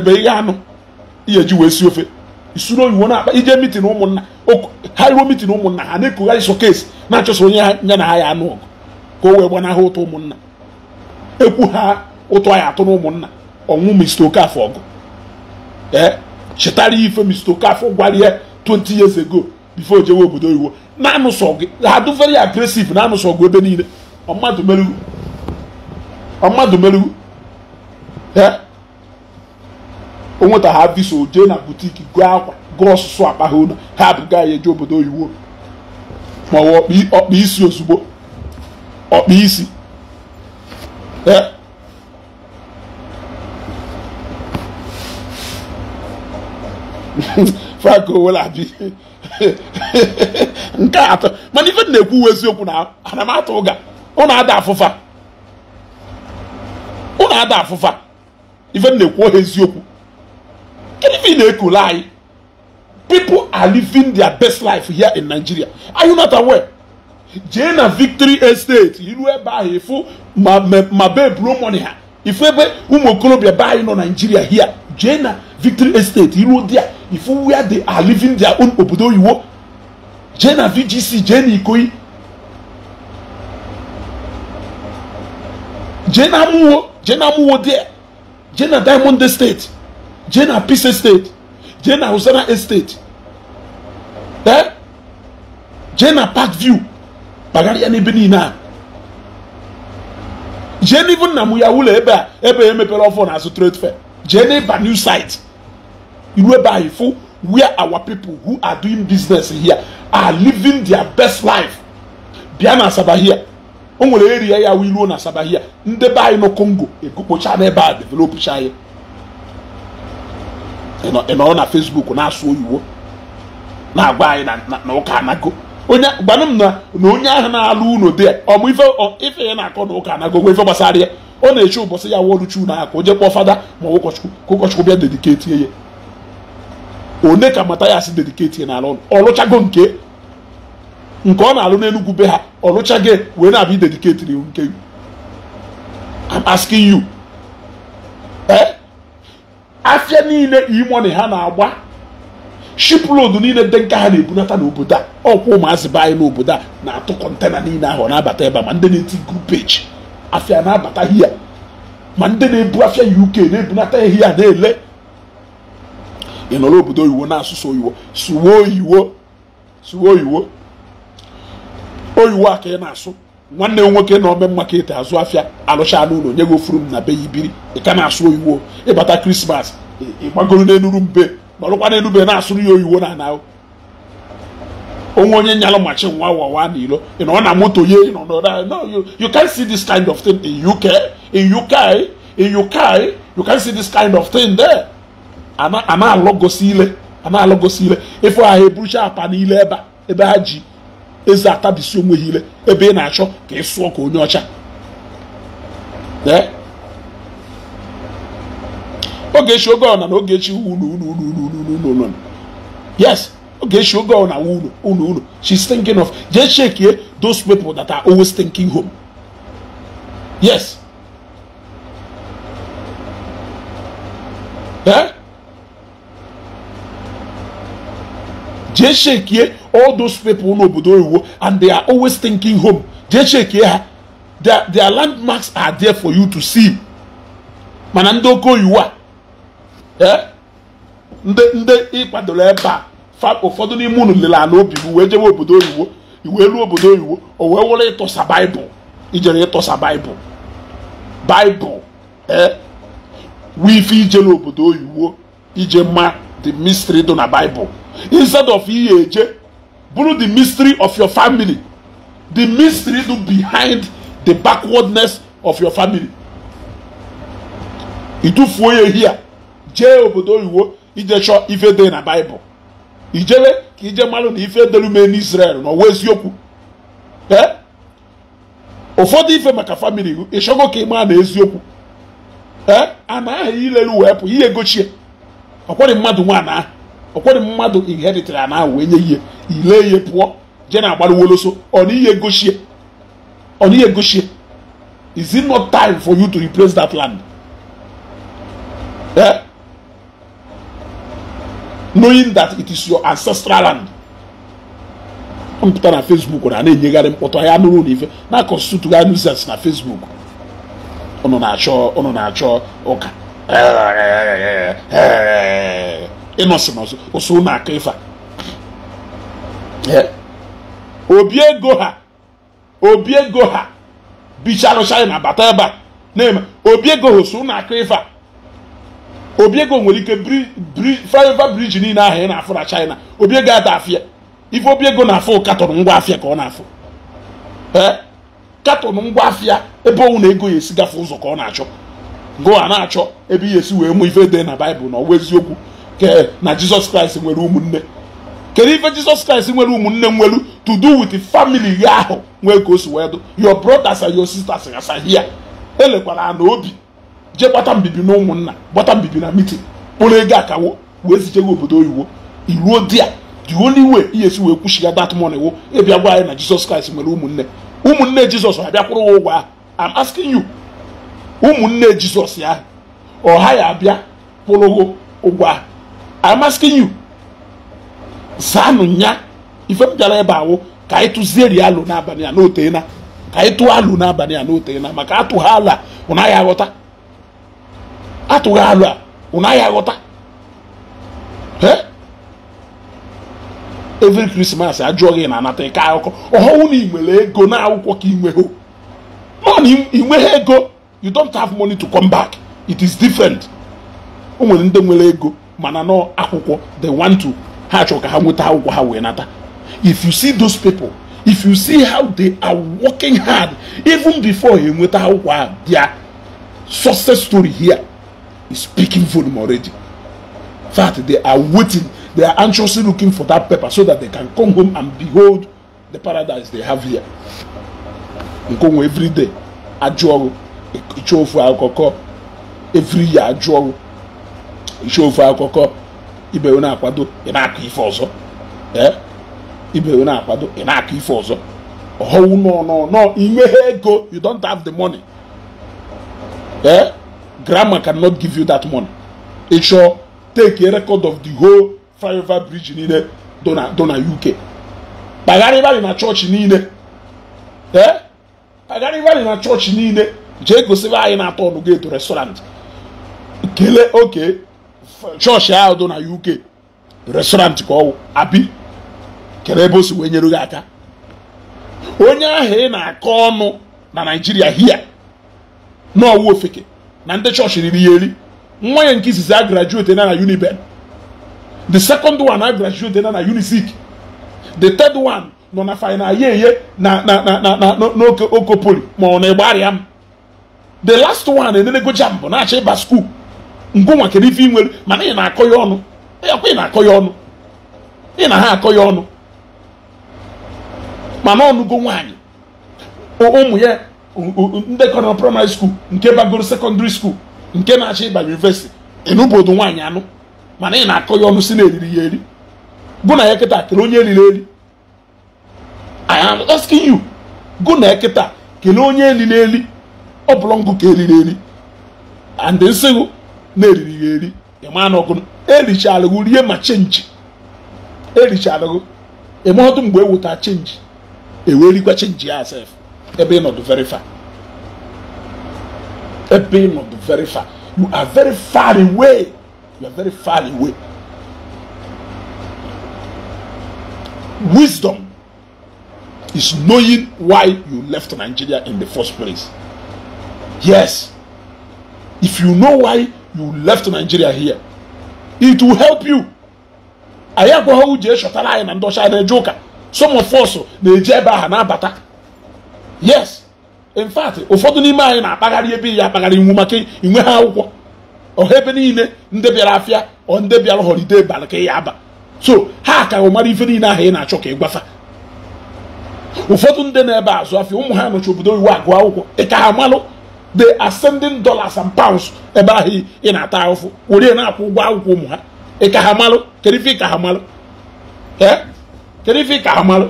ebe ihe anụ ihe eji wee si ofe isuru oyiwo na-akpa ije mitin ụmụnna ha iruo mitin ụmụnna ha na-ekugharị kesi na achọsa onye nye na ha ya anụ ọgụ ka o wee gbanahụ ụtọ ụmụnna ekwu ha ụtọ ya atụ na ụmụnna ọnwụ Mr Okafor ọgụ ee eh, chetara ife Mr Okafor gwara ya 20 years ago before jewe obodo oyiwo na-anụsọ gị ha dụ very aggressive na-anụsọ gị ebe niile mmadụ merụrụ ee onweta ha visa jee na butiki gụọ akwa gụọ ọsụsụ akpa ha ụlọ ha abụga ya eje obodo oyibo maọbụ ọkpa isi ozugbo ọkpa isi e. <laughs> frank owelabi <laughs> nke atọ mana ife na-ekwu uwe eziokwu na anamatụ ụga ụnụ ada afụfa ụnụ ada afụfa ife na-ekwu ohe eziokwu gịnị na-ekule anyị people are living their best life here in Nigeria are you not aware jee na victory estate iru ebe ahụ ifu ma bee buru money ha ifu ụmụ okorobịa be anyị nọ Nigeria here jee na victory estate iru dia if where they are living their own obodo oyiwo jee na VGC jee na Ikoyi jee na amụwo jee na amụwo dia jee na Diamond State jee na Peace Estate jee na Usana Estate eh? je jee na Park View kpagharịa n'ebe niile a jee n'ivu nna m ya ụlọ ebe a ebe emepere ọfọ na azụ trade fair jee n'ịba new site iru ebe anyị fụ where our people who are doing business here are living their best life bịa na Asaba here o nwere area ya wụ iruo na Asaba here ndị be anyị nọ Congo ekokpocha n'ebe a developcha ya ị nọrọ na Facebook na-asụ oyiwo na anyị na ụka anago onye gbanụ m na onye ahụ na-alụ unu dị ọmụ ife ya na-akọ na ụka anago ife gbasara ya ọ na-eche ụbọchị ya wọlụchi unu aka o jekpọ fada ma ụkọchukwu ka ụkọchukwu bịa dediketi ya one ka mata ya si dediketi ya n'ala ọ lụchago nke nke ọ na-alụ n'enugwu be ha lụchago wee na-abịa idediketiri nke asking you eh afia niile imoni ha na-agba road niile dị nke ha na-ebunata n'obodo a ọkwa ụmụazị be anyị n'obodo a na-atụ kọntena niile ahụ na-abata ebe a ma ndị na-eti grupeji afia na-abata hia ma ndị na-ebu afia uk na-ebunata hia na-ele ị nọrọ obodo oyiwo na-asụsụ oyiwo suwe oyiwo oyiwo oyiwo a ka ị na-asụ nwanne m nwoke na ome market azụ afịa alụchala ụlọ nye gị ofuru m na be ya ibiri ị ka na-asụ oyiwo ịbata krismas ịgbagoro n'elu mbe nọrụkwa n'enube na-asụrụ ya oyiwo na ana onwe onye nyalụ machi nwa wawa na ilo ị na moto ye nọ nọ na you can see this kind of thing in UK in UK in UK you can see this kind of thing there ana ana alọgosi ile ana alọgosi ile ịfụ ha eburucha apa n'ile ebe ebe ha ji eze atabisi onweghi ile ebe ị na-achọ ka ị sụọ ka onye ọcha ogechi oge ọna na ogechi unu unu unu unu unu unu yes ụlọ ụlọ ọna unu unu thinking of jee chekie those people that are always thinking home yes jee shekie all those people n'obodo oyibo and they are always thinking home jee shekie ha their their landmarks are there for you to see mana ndị oke oyiwo a eh, ndị ndị ịkwadoro ebe a ụfọdụ n'ime unu lere ala obi wee jebe obodo oyibo iwee elu obodo oyibo o wee wụrụ ịtọsa baịbụl ijere ịtọsa baịbụl baịbụl ee eh, ife ije n'obodo oyiwo ije ma the mystery dị na baịbụl instead of je bụrụ the mystery of your family the mystery do behind the backwardness of your family ịtụfuo ya hia jee obodo oyiwo ije ife de na baịbụl ijewe ka ije malu na ife delume n'israel n'ọwa eziokwu e? ụfọdụ ife maka famili ịchọgo ka maa na eziokwu ee a na ileru wee pụ ihe gochie ọkwari mmadụ nwaanyị ahụ ọkwado mmadụ iheritere a na wee nye ihe ile ihe pụọ je na agbaruwoloso ọnihe gochie is it not time for you to replace that land eh? knowing that it is your ancestral land mpụta na facebook na na-enyegharị mkpọtụ ahịa nụrụ na ife na constitutugharị nuzens na facebook na-achọ ụnụ na-achọ ụka eh, eh, eh, ịnọsị n'ọzọ ụsụ aka ife obi ego ha obi ego ha bichalụ china bata ebe a na-eme obi ego ha aka ife obi ego nwere ike flyover briji niile ahụ ị na-afụ na china obi ego ada afịa ife obi ego na-afụ katọn ngwa afịa ka ọ na-afụ ngwa afịa ebe ọnwụ na ego ya esi gafe ụzọ ka ọ na-achọ go a na-achọ ebe ihe esi wee mụ ife dị na baịbụl na ọwa eziokwu ke na jizọs kraịst nwere ụmụnne kedu ife jizọs kraịst nwere ụmụnne nwelu to do with family ya ahụ nwee ka o si wee dụ your brothers and your sisters gasa hia elekwara na obi jee gbata mbibi na ụmụnna gbata mbibi na mitin kpụrụ ego akawo wee zichego obodo oyiwo iruo di ya the only way ihe si wee kwuchiga that money wo ịbịa gwa anyị na jizọs kraịst nwere ụmụnne ụmụnne jizọs abịakwụrụ wa ụgwọ ahụ am asking you ụmụnne jizọs ya ọha ya abịa kwụrụgo ụgwọ ahụ I'm asking you zaanụ ya ife m bịara ebe awụ ka anyị tụzieri alụ n'abalị a n'otena ka anyị tụọ alụ n'abalị a n'otena maka atụghị alụ a ụnaghị aghọta atụghị alụ a ụnaghị aghọta every krismas ajụọ gị na anata ike akụkọ ọhụụ na ị nwere ego na akwụkwọ ka ị nweghị nọ na ị ego you don't have money to come back it is different o nwere ndị nwere ego mana nọ akwụkwọ they want to ha chọrọ ka ha nweta akwụkwọ ha wee nata if you see those people if you see how they are working hard even before ha enweta akwụkwọ ha ah, their success story here is speaking volume already in fact they are waiting they are anxiously looking for that paper so that they can come home and behold the paradise they have here nkonwe every day ajụ ọrụ ịchọ ofu akụkọ every year ajụ ọrụ iche ofe akụkọ ibe na-akwado ị na-akọ ife ọzọ ibe onye akwado ị na-akọ ife ọzọ ọhụụ nọ nọ nọ inweghị ego you don't have the money eh grandma cannot give you that money ị take a record of the whole flyover bridge niile do na UK kpagharịbarị na chọọchị niile ee kpagharịbarị na chọọchị niile jee gosiba anyị na-atọ ọnụ geto restaurant kele oke chọọchị ahụ dị na uk restọrantị ka ọwụ abi kere ebe o si wee nyere gị aka onye ahụ ị na-akọ ọnụ na naijiria hia n'ọwụ ofeke na ndị chọọchị riri ya eri nwa ya nke izizi a na na uniben the second one a na na unizik the third one nọ na final yeye na na na na na ma ọ na-egbarịa m the last one enenego jambụ na-achọ ịba skuul ngụnwa kedu ife ị nwere mana ị na-akọ ya ọnụ ọkwa ị na-akọ ya ọnụ ị na ha akọ ya ọnụ mana ọnụgo nwaanyị ụmụ ya ndekọrọ na praịmarị skuul nke bagoro sekọndịrị skuul nke na-achọ ịba yunivesiti ịnụbodo nwaanyị anụ mana ị na-akọ ya ọnụ si na eriri ya eri gụ na ya kịta kere onye eriri eri I am asking you gụ na ya kịta kele onye eli na eli ọ bụla ngụ ka eriri eri and nsịgụ na-eriri ya eri ịma na ọgụ erichalụgụ rie ma chenji eme ọdụ mgbe eweta chenji ewerikwa chenji ya asef ebe ịnọdụ very far ebe ịnọdụ very far you are very far away you are very far away wisdom is knowing why you left Nigeria in the first place yes if you know why you left Nigeria here it will help you anyị agwaghị uji echọtara anyị na ndọcha na-eje ụka some of us na-eji ebe aha na-abata yes in fact ụfọdụ n'ime anyị na-akpagharị ebe ya akpagharị iwu maka inwe ha akwụkwọ ọha ebe niile ndị bịara afịa ọ ndị bịara holiday balị ka ya aba so ha ka mara ife niile ahụ ị na-achọ ka ị ụfọdụ ndị na-ebe azụ afịa ụmụ ha nọchi obodo iwu agụ akwụkwọ ị e ka ha malụ the ascending dollars and pounds ebe ahụ ị na-ata ahụfụ were na-akwụ ụgwọ akwụkwọ ụmụ ha ka ha malụ kedu ife ha malụ ha malụ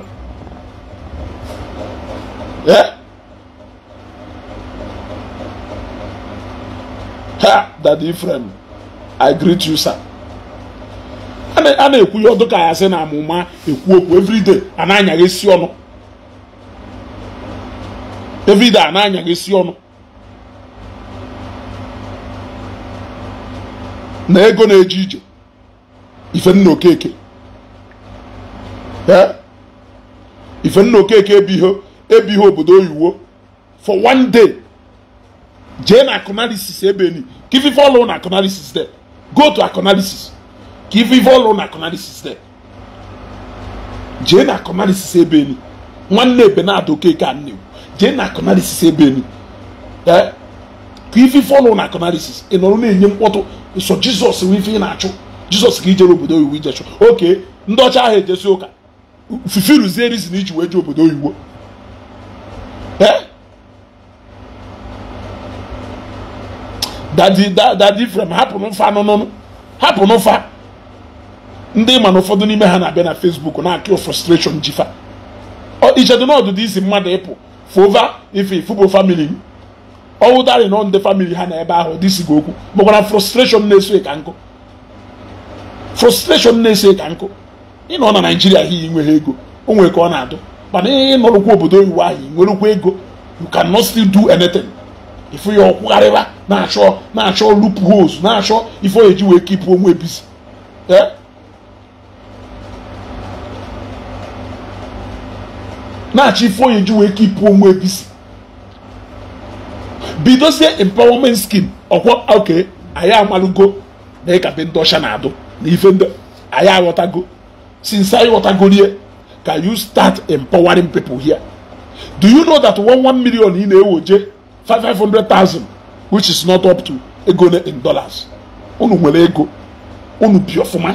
ha dadi Ifrem I greet you sir a na-ekwu ya ọdụ ka ya sị na amụma ekwu okwu everyday a na-anyaghị ọnụ a na-anyaghị isi ọnụ na ego na-eje ije ifenna okeke ifenna okeke ebiho ebiho obodo oyiwo for one day jee na akọnalisis ebeni ka ife ife ọlụ na akọnalisis de go to akụnalisis give ife ọlụ na akọnalisis de jee na akọnalisis ebeni nwanne ebe na-ada okeke a nnewu jee na ebe ebeni ee ka ife ife ọnụ na akọnarisis ị nọrọ na-enye mkpọtụ nso jizọs wee ife ị na-achụ jizọs ka ijere obodo oyiwu ijechụ oke ndị ọcha ahụ ejesi ụka fufi rizi rizin iji wee jee obodo oyiwo dadi e? frem hapụ n'ụfa anụnụnụ hapụ n'ụfa ndị ma na ụfọdụ n'ime ha na-abịa na fesbuk na-akịọ frustration jifa ichedu n'ọdụdụ isi mmadụ ịpụ fova ife ifubo famili m ọwụtarị nọ ndị famili ha na ebe ahụ gị okwu bụkwara frustration na-eso ka nkụ frustration na-eso ka nkụ ịnọ na naijiria hi nwere ego o nwere ka ọ na-adụ mana ịnọrụkwa obodo oyibo ahụ nwerekwa ego you cannot still do anything ife ya ọkwụgharịba na-achọ na-achọ loopholes na-achọ ife ọ eji wee kipụ onwe ebisi eh? na-achọ ife ọ eji wee kipụ onwe ebisi bidozie empowerment scheme ọkwọ oke anyị amalụgo na ịkabe ndị ọcha na-adụ na ife ndị anyị aghọtago since anyị ghọtagorie can you start empowering people here do you know that one one million ị na-ewoje 500,000 which is not up to ego in dollars unu nwere ego unu bi ọfụma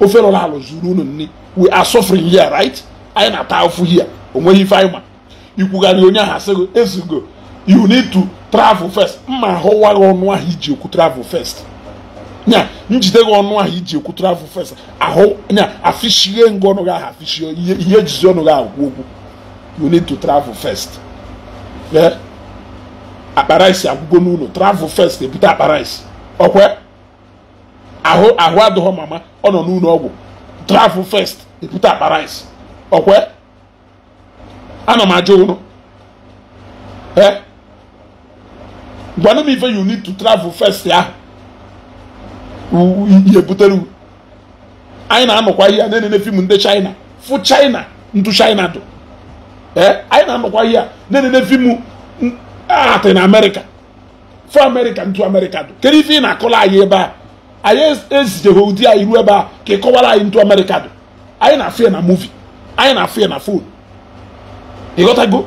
ofe lọrọ alụ zuru unu nri we are suffering here right anyị na-ata afụ here onweghị ife anyị ma ikwugharị onye ahụ asịgo ezugo you need to travel first mma ahụwa gị ọnụ ahụ iji ekwu travel first nya njide gị ọnụ ahụ iji ekwu travel first ahụ nya afishie ngụ ọnụ gị ahụ afishie ihe ejizi ọnụ gị ahụ kwu okwu you need to travel first akpara isi agwụgo n'ụlọ travel first ebute akpara isi ọkwe ahụ ahụ adịghọ mama ọ nọ n'ụlọ ọgwụ travel first ebute akpara isi ọkwe m ajụ ụnụ ee gwana m ife you need to travel first ya ihe butere anyị na-anọkwa ihe na-enene fim ndị china fu china ntu china dụ ee eh? anyị na-anọkwa ihe na-enene fim ah, atị na Amerika. fụ Amerika ntu Amerika dụ kedu ife ị na-akọla anyị ebe a anyị ezijeghị ụdị anyị ruo ebe a ka ị kọwara anyị ntu Amerika dụ anyị na-afụ ya na muvi anyị na-afụ ya na fon ịghọtago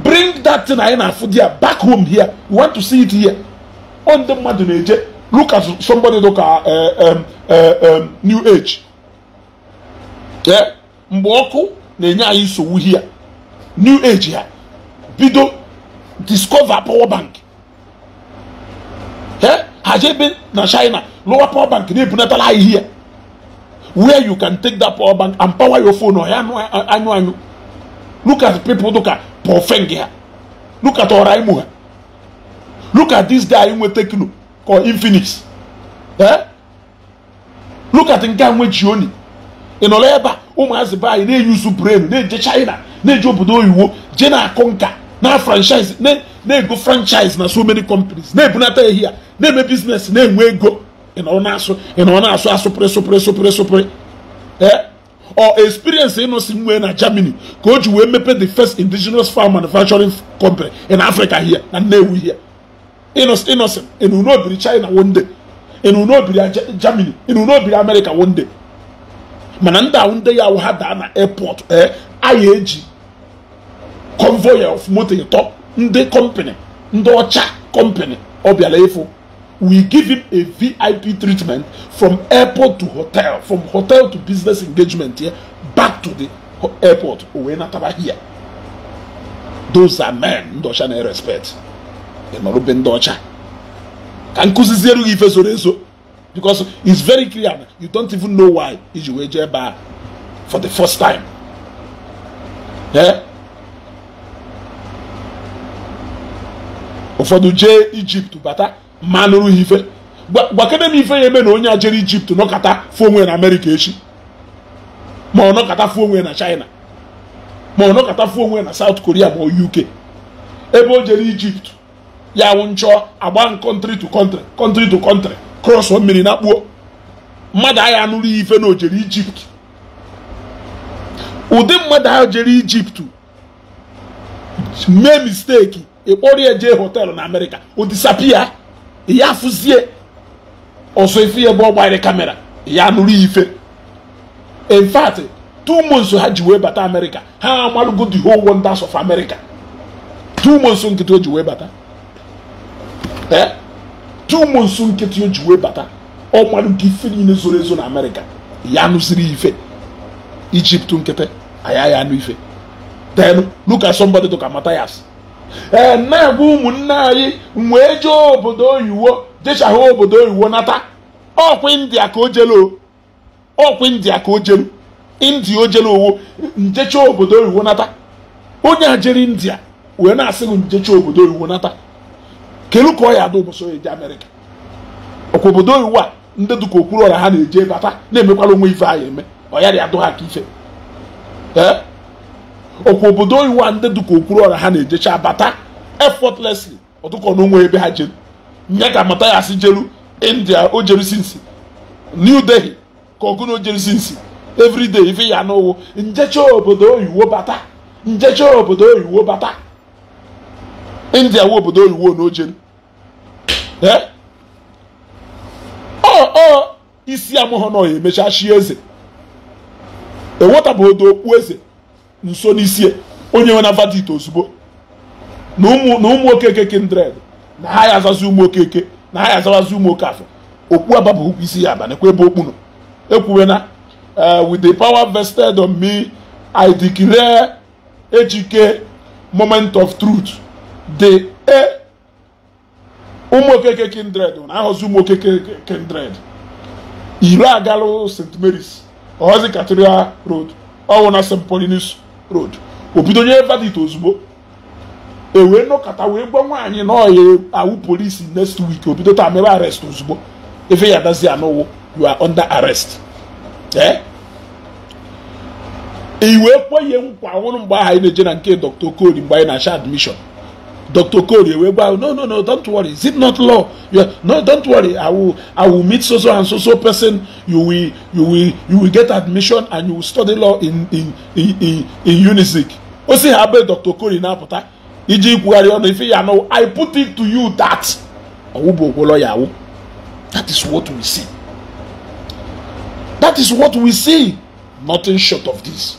bring that thing anyị na-afụ di ya back home here we want to see it here ọ ndị mmadụ na-eje look at somebody look at uh, um, uh, um, new age mgbe ọkụ na-enye anyị nsogbu here new age ya bido discover power bank ha jebe na china lower power bank na-ebunatala anyị here where you can take that power bank and power your phone ọhịa anyụ anyụ look at people look at pọfeng ha look at ọra imo ha look at this guy nwe tekno kọ infinix eh look at nke a nwe jioni ị nọrọ ebe a ụmụazị be na-eyuzu brain na-eje china na-eje obodo oyiwo je na-akụ nka na franchise na-ego franchise na so many companies na-ebunata ehi ya na-eme biznes na-enwe ego ị nọrọ na-asụ ị nọrọ na-asụ asụpụrị sụpụrị sụpụrị sụpụrị ee eh? or experience ịnọsi nwee na germany ka o ji wee mepe the first indigenous farm manufacturing company in africa here na nnewi here ịnọsin ịnụnobiri china one day ịnụnobiri germany ịnụnobiri america one day mana ndị ahụ ndị ya ha daa na airport ee eh, a ya eji convoy of motor ịtọ ndị company ndị ọcha company ọ bịara ịfụ we give him a VIP treatment from airport to hotel, from hotel to business engagement here, yeah, back to the airport. here. Those are men Ndọcha na respect Ịmarụbe ndị ọcha. Ka nkụziziere gị ife soro eso. Because it's very clear you don't even know why iji wee jee for the first time. Yeah? ụfọdụ jee Egypt bata ma nụrụ ha ife gwakene m ife ya eme na onye a ijipt nọkata fụ onwe na amerịka echi ma ọ nọkọta fụ na china ma ọ nọkọta fụ na saut koria ma uk ebe o jere ijipt ya wụ nchọ agba kọntrị to kọntrị kọntrị to kọntrị krọsọ mmiri na kpuo mmadụ agha anụrụ ya ife na o jere ijipt ụdị mmadụ ahụ jere ijipt mee misteki ịkpọrọ ya jee họteelụ na amerịka o disapia ya afụzie ọsọ efi ya ebe ọ gbanyere kamera ya nụrụ ife in fact two months ha ji wee bata amerịka ha amalụgo the whole wonders of america two months nkịtị o ji wee bata ee eh? two months nkịtị o ji wee bata ọ malụgo ife niile zoro ezo na amerịka ya nụziri ife ijipt nkịtị aya ya anụ ife then look at somebody to ka Matthias na bụ ụmụnne anyị wee jee obodo oyiwo jechagha obodo oyiwo nata ọkwa india ka o ọkwa india ka o jelu india o owo njecha obodo oyiwo nata onye a jere india wee na-asị gị njecha obodo oyiwo nata kelu ka ọ ya ada ụbọchị eje amerịka ọkwa obodo oyiwo a ndị dụka okwuru ọra ha na-eje bata na-emekwala onwe ife anyị eme ọ yarị adụ ha ka ife ee okwu obodo oyiwa ndị dịka okwuru ọra ha na-ejecha abata effortlessly ọtụkọ n'onwe ebe ha jeru nye ka mata ya si jeru india o jeru sinsi new delhi ka ọgụ na o jeru sinsi everyday ife ya n'ụwụ njecha obodo oyiwo bata njecha obodo oyiwo bata india wụ obodo oyiwo na o jeru eh? ọ isi ya emecha chi eze ewetabeghị odo okpu eze nso n'isie onye nwe na verdict ozugbo na ụmụ okeke kindred na ha ya azazi ụmụ okeke na ha ya azawazi ụmụ afọ okpu aba bụ isi ya aba nekwa ebe okpu nọ ekwuwe na eh, with the power vested on me i declare ejike moment of truth the e ụmụ okeke kindred na ahọzi ụmụ kindred iri agalụ st mary's ọhọzi cathedral rod ọwụ na st paulinus road o bido nye verdict ozugbo ewee nọkọta wee gwa nwaanyị na ọya awụ polisi next week o taa mere arest ozugbo efe ya dazi anọwo you are under arrest ee iwee e ihe nkwa ọhụrụ mgbe aha na-eje na nke dr okoli mgbe anyị na-acha admission Dr. Koriewe, well, no, no, no, don't worry. Is it not law? Are, no, don't worry. I will, I will meet so so and so so person. You will, you will, you will get admission and you will study law in in in in, in UNISIC. O si ha be Dr. Kori na apụta iji ikwugharị ọnụ ife ya no I put it to you that ọwụ bụ okwu lawyer That is what we see. That is what we see. Nothing short of this.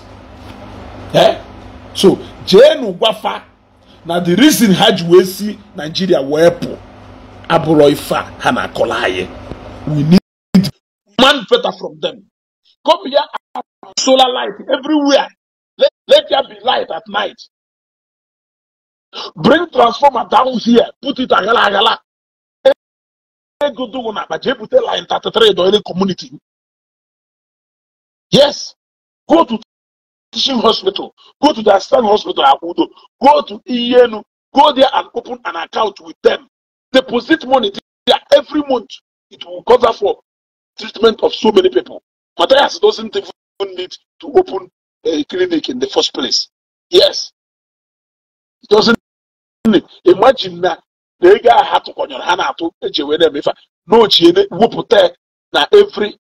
Eh? So, jeenu gwafa na the reason ha ji wee si wee pụ abụrọ ife a ha na-akọla anyị we need man better from them come here solar light everywhere let, let there be light at night bring transformer down here put it aghala aghala ego dụwụ na akpa jee bute line 33 do any community yes go to teaching hospital, go to the Aslan hospital, Akudo, go to Enu, go there and open an account with them. Deposit money there every month. It will cover for treatment of so many people. Matthias doesn't even need to open a clinic in the first place. Yes. It doesn't need. Imagine that. They ego a ha tụkọnyere ha na-atụ eji wee na-eme ife na every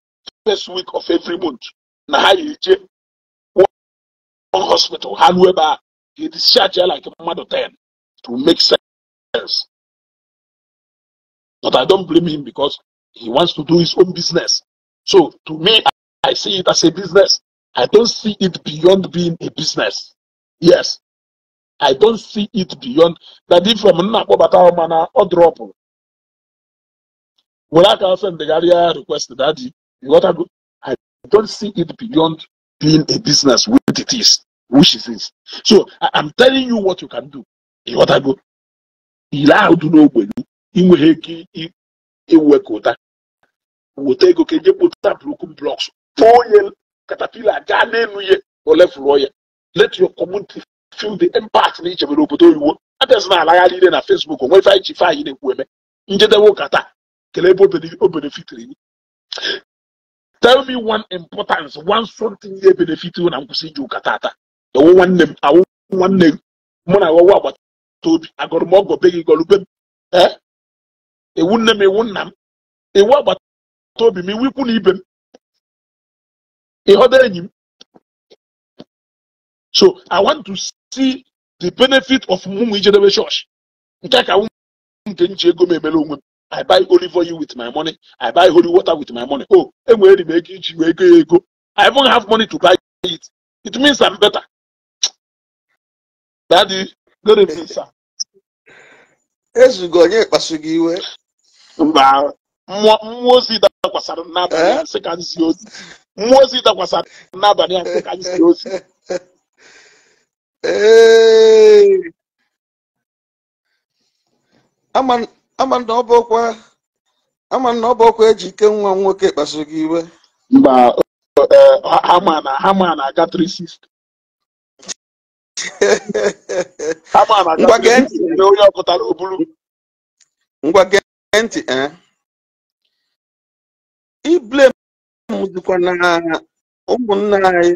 first week of every month Now ha hospital, however, he discharged her like a mother 10 to make sense. But I don't blame him because he wants to do his own business. So to me, I see it as a business. I don't see it beyond being a business. Yes. I don't see it beyond that if from Nakobata Mana or drop. Well, I can send the Garia request that you got I don't see it beyond being a business with it is, which it is. So I, m telling you what you can do. Ịghọtago ile ahụ dị n'ogbenye inweghị ike iwekọta weta ego ka eje kpụta broken blocks tụọ onye katapila gaa n'elu ya olefụrọ let your community feel the impact na ichebere obodo oyiwo abịazi na alagharị ile na Facebook onwe ife anyị ji na eme njedebe ụka kelee ebe o benefitiri tell me one importance one something ihe benefit na nkwụsị iji ụka tata ewu nwanne m awụ nwanne m mụ na awọwa agbata obi agọrọ m be gị gọrọ m ee ewu nne m ewu nna m iwu agbata obi m iwu ikwu na ibe m ịghọta enyi m so i want to see the benefit of Mụmụ ijedebe chọọchị nke ka nwụ nke nji ego m emere onwe m I buy olive oil with my money. I buy holy water with my money. Oh, enwere m ego iji wee go ego. I even have money to buy it. It means I'm better. Daddy, good evening, sir. Ezugo onye kpasu gị iwe. Mba, mmụọ eh? ozi dakwasara n'abalị a sị ka nzi ozi. Mmụọ ozi dakwasara n'abalị a sị ka nzi ozi. Ee. Ama ama na ọ bụ ọkwa eji ike nwa nwoke kpasu gị iwe mba hama na-aga 360 ngwa gee ntị e. iblem dịkwa na ụmụnna anyị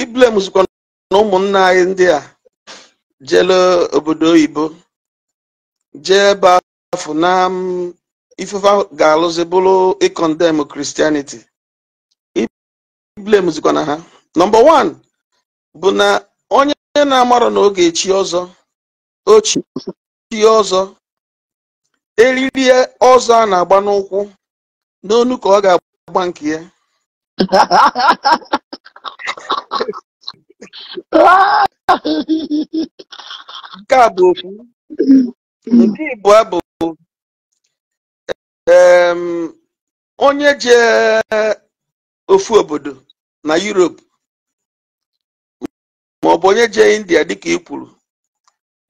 iblem zikwa na ụmụnna anyị ndị a jele obodo oyibo jee ebe afọ na um, ifefe ga-alụzi bụrụ ịkọndem kristianity iblemzikwa na ha nọmba wan bụ na onye na amarụ na oge echi ọzọ ochi ọzọ eriri ọzọ a na-agba n'ụkwụ n'onu ka ọ ga-agba nke ya <laughs> nke a bụ okwu nke ịbụọ bụ onye ji ofu obodo na Europe maọbụ onye jee India dịka ị kwuru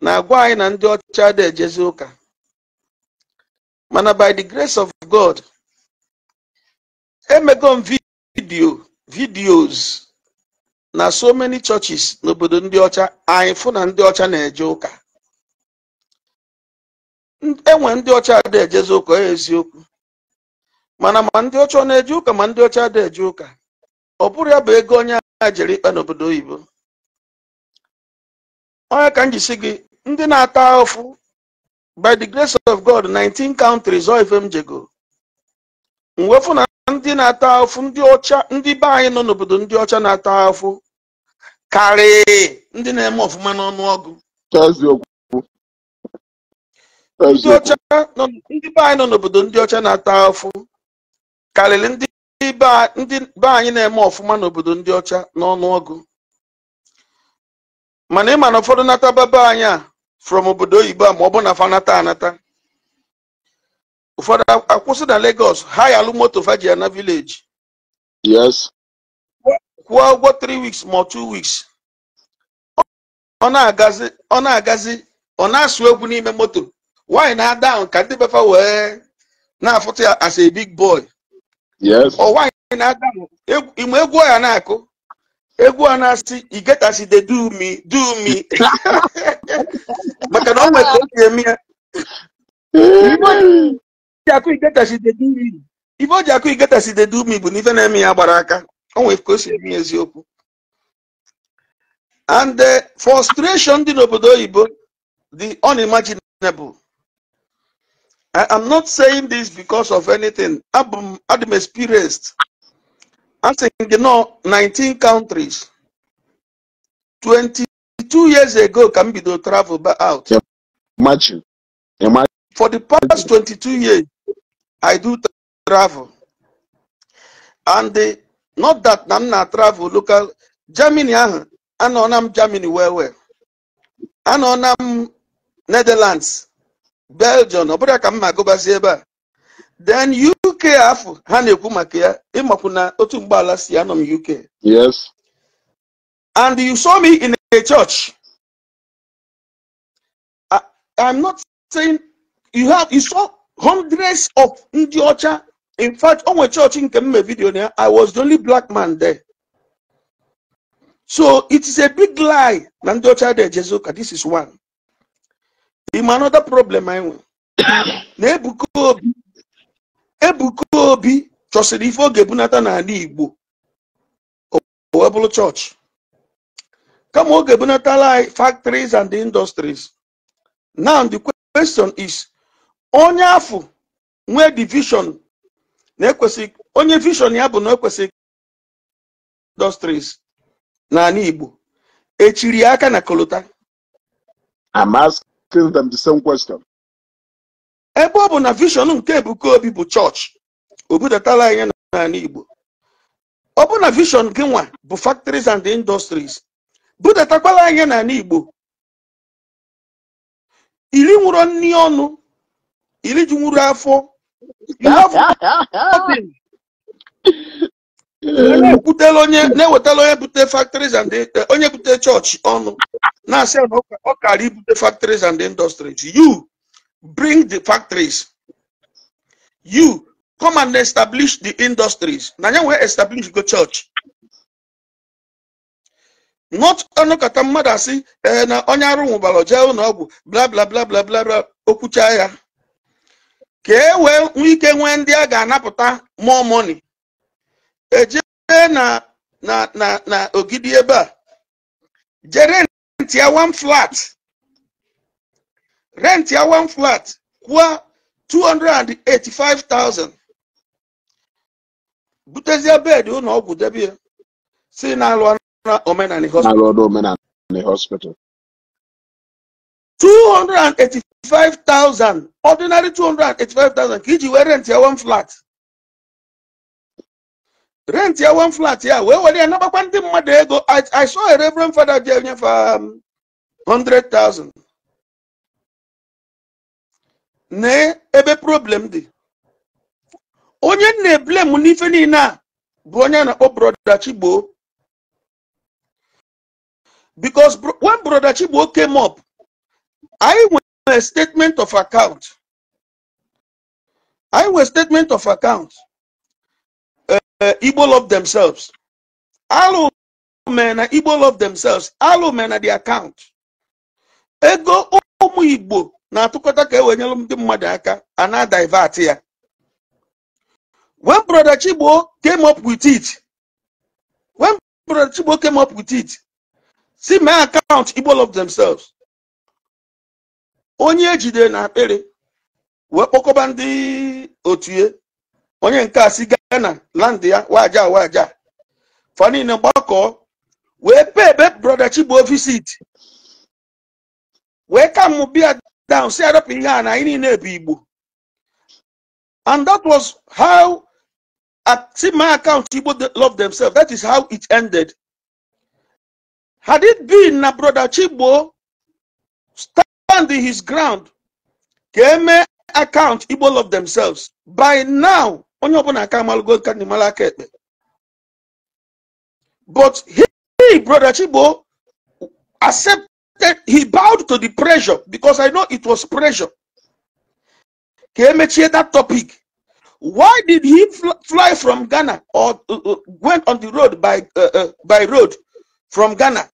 na-agwa anyị na ndị ọcha dị ejezi ụka mana by the grace of God emego m vidio na so many churches n'obodo ndị ọcha anyị fụ na ndị ọcha na-eje ụka enwe ndị ọcha ada ejezi ụka e eziokwu mana ma ndị ọcha ọ na-eje ụka ma ndị ọcha ada eje ụka ọ bụrụ ya bụ ego onye a jere ikpe n'obodo oyibo onye ka m jisi gị ndị na-ata ọfụ by the grace of God 19 countries ọ ife m jego mwefu na ndị na-ata ahụfụ ndị ọcha be anyị nọ n'obodo ndị ọcha na-ata ahụfụ karịa ndị na-eme ọfụma n'ọnụọgụ ndị ọcha ndị be anyị nọ n'obodo ndị ọcha na-ata afụ karịrị ndị be anyị na-eme ọfụma n'obodo ndị ọcha n'ọnụọgụ mana ịma na ụfọdụ nata baba anyị a from obodo oyibo a ma ọ bụ na fanata anata ụfọdụ akwụsị na Lagos ha ya alụ moto faji na vileji kwụọ ụgwọ 3 weeks ma 2 weeks ọ na-agazi ọ na-asụ egwu n'ime moto nwaanyị na-ada ahụ ka ndị befa wee na-afụta ya as a big boy ọ nwaanyị na-ada ahụ egwu ya na-akụ egwu a na-asị igetachide dumi dumi maka na ọ nwere ka o eme ya ibe o ji akụ igetachide dumi bụ na ife na-eme ya gbara aka o nwere ka o si eme e e e eziokwu and the frustration dị n'obodo oyibo the unimaginable I am not saying this because of anything. i have experienced. I'm saying, you know, 19 countries. 22 years ago, can be the travel back out. Imagine. Imagine. For the past 22 years, I do travel. And the, not that I'm not travel local. Germany, ah, I know I'm Germany where where, I know I'm Netherlands. belgium ọ bụrụ ka m ma ebe a then uk afọ ha na-ekwu maka ya ịmakwu na otu mgbaala si anọ m uk yes and you saw me in a church I, i'm not saying you have you saw hundreds of ndị ọcha in fact onwe church nke mme video vidio na ya i was the only black man there so it is a big lie na ndị ọcha dị ejezi ka this is one im another problem anyị nwere na ebuka obi chọsiri chọsịrị ife oge ebunata n'ala igbo wee bụrụ chọọchị kama oge ebunata ebunatala anyị factories and industries now the question is onye afọ nwee division na-ekwesịghị onye vision ya bụ na ekwesịghị industries n'ala igbo echiri aka na kolota asking them the same question. ebe ọ bụ na vision nke Ebuka Obi bụ chọọchị obudatala anyị n'ala Igbo ọ bụ na vision gị nwa bụ factories and industries budatakwala anyị n'ala Igbo iri nwụrụ nni ọnụ iri ji nwụrụ afọ <laughs> na-ewetala onye bute factories and onye bute chọọchị ọnụ na-asị na ọ kara ibute factories and industries you bring the factories you come and establish the industries na ya wee establish go church not ọnụkọta oh, mmadụ asị ee eh, na onye arụ nwụbara jee ụlọ oh, ọgwụ bla bla bla okwucha ya ka e wee nwee ike nwee ndị a ga-anapụta more money eje na na na na ogidi ebe a jere rent your one flat rent your one flat kwa 285,000 your bed you ụlọ ọgwụ debe ya si na-alụ the hospital 285,000 ordinary 285,000 ka iji wee rent your one flat rent ya one flat ya wee were ya nabakwa ndị mmadụ ego i saw a reverend father ji enyefe 100,000 na ebe problem dị onye na-eblem n'ife niile a bụ onye na-akpọ broda Chigbo because when brodachi gboo came up anyị nwere statement of account anyị nwere statement of account Eh, Igbo love themselves. Alụ mee na Igbo love themselves. alụmụ mee na the account. Ego ụmụ Igbo na-atụkọta ka ewenyelụ ndị mmadụ aka a na-divert ya. When Brother Chigbo came up with it. When Brother Chigbo came up with it. Si mee account Igbo love themselves. Onye ejide na akpịrị wee kpọkọba ndị otu onye nke a si Ghana land ya waja waja fanine gbakọ wee pee ebe brọda Chigbo visit wee ka mụ bịa down si adọpụ ihe a na anyị niile bụ Igbo and that was how at see my account Igbo love themselves that is how it ended had it been na brother Chigbo stand his ground ka eme account Igbo love themselves by now onye ọbụla aka amalụgo ka ndị mara aka ekpe but he brother Chibo accepted he bowed to the pressure because I know it was pressure ka emechie that topic why did he fly from Ghana or uh, uh, went on the road by uh, uh, by road from Ghana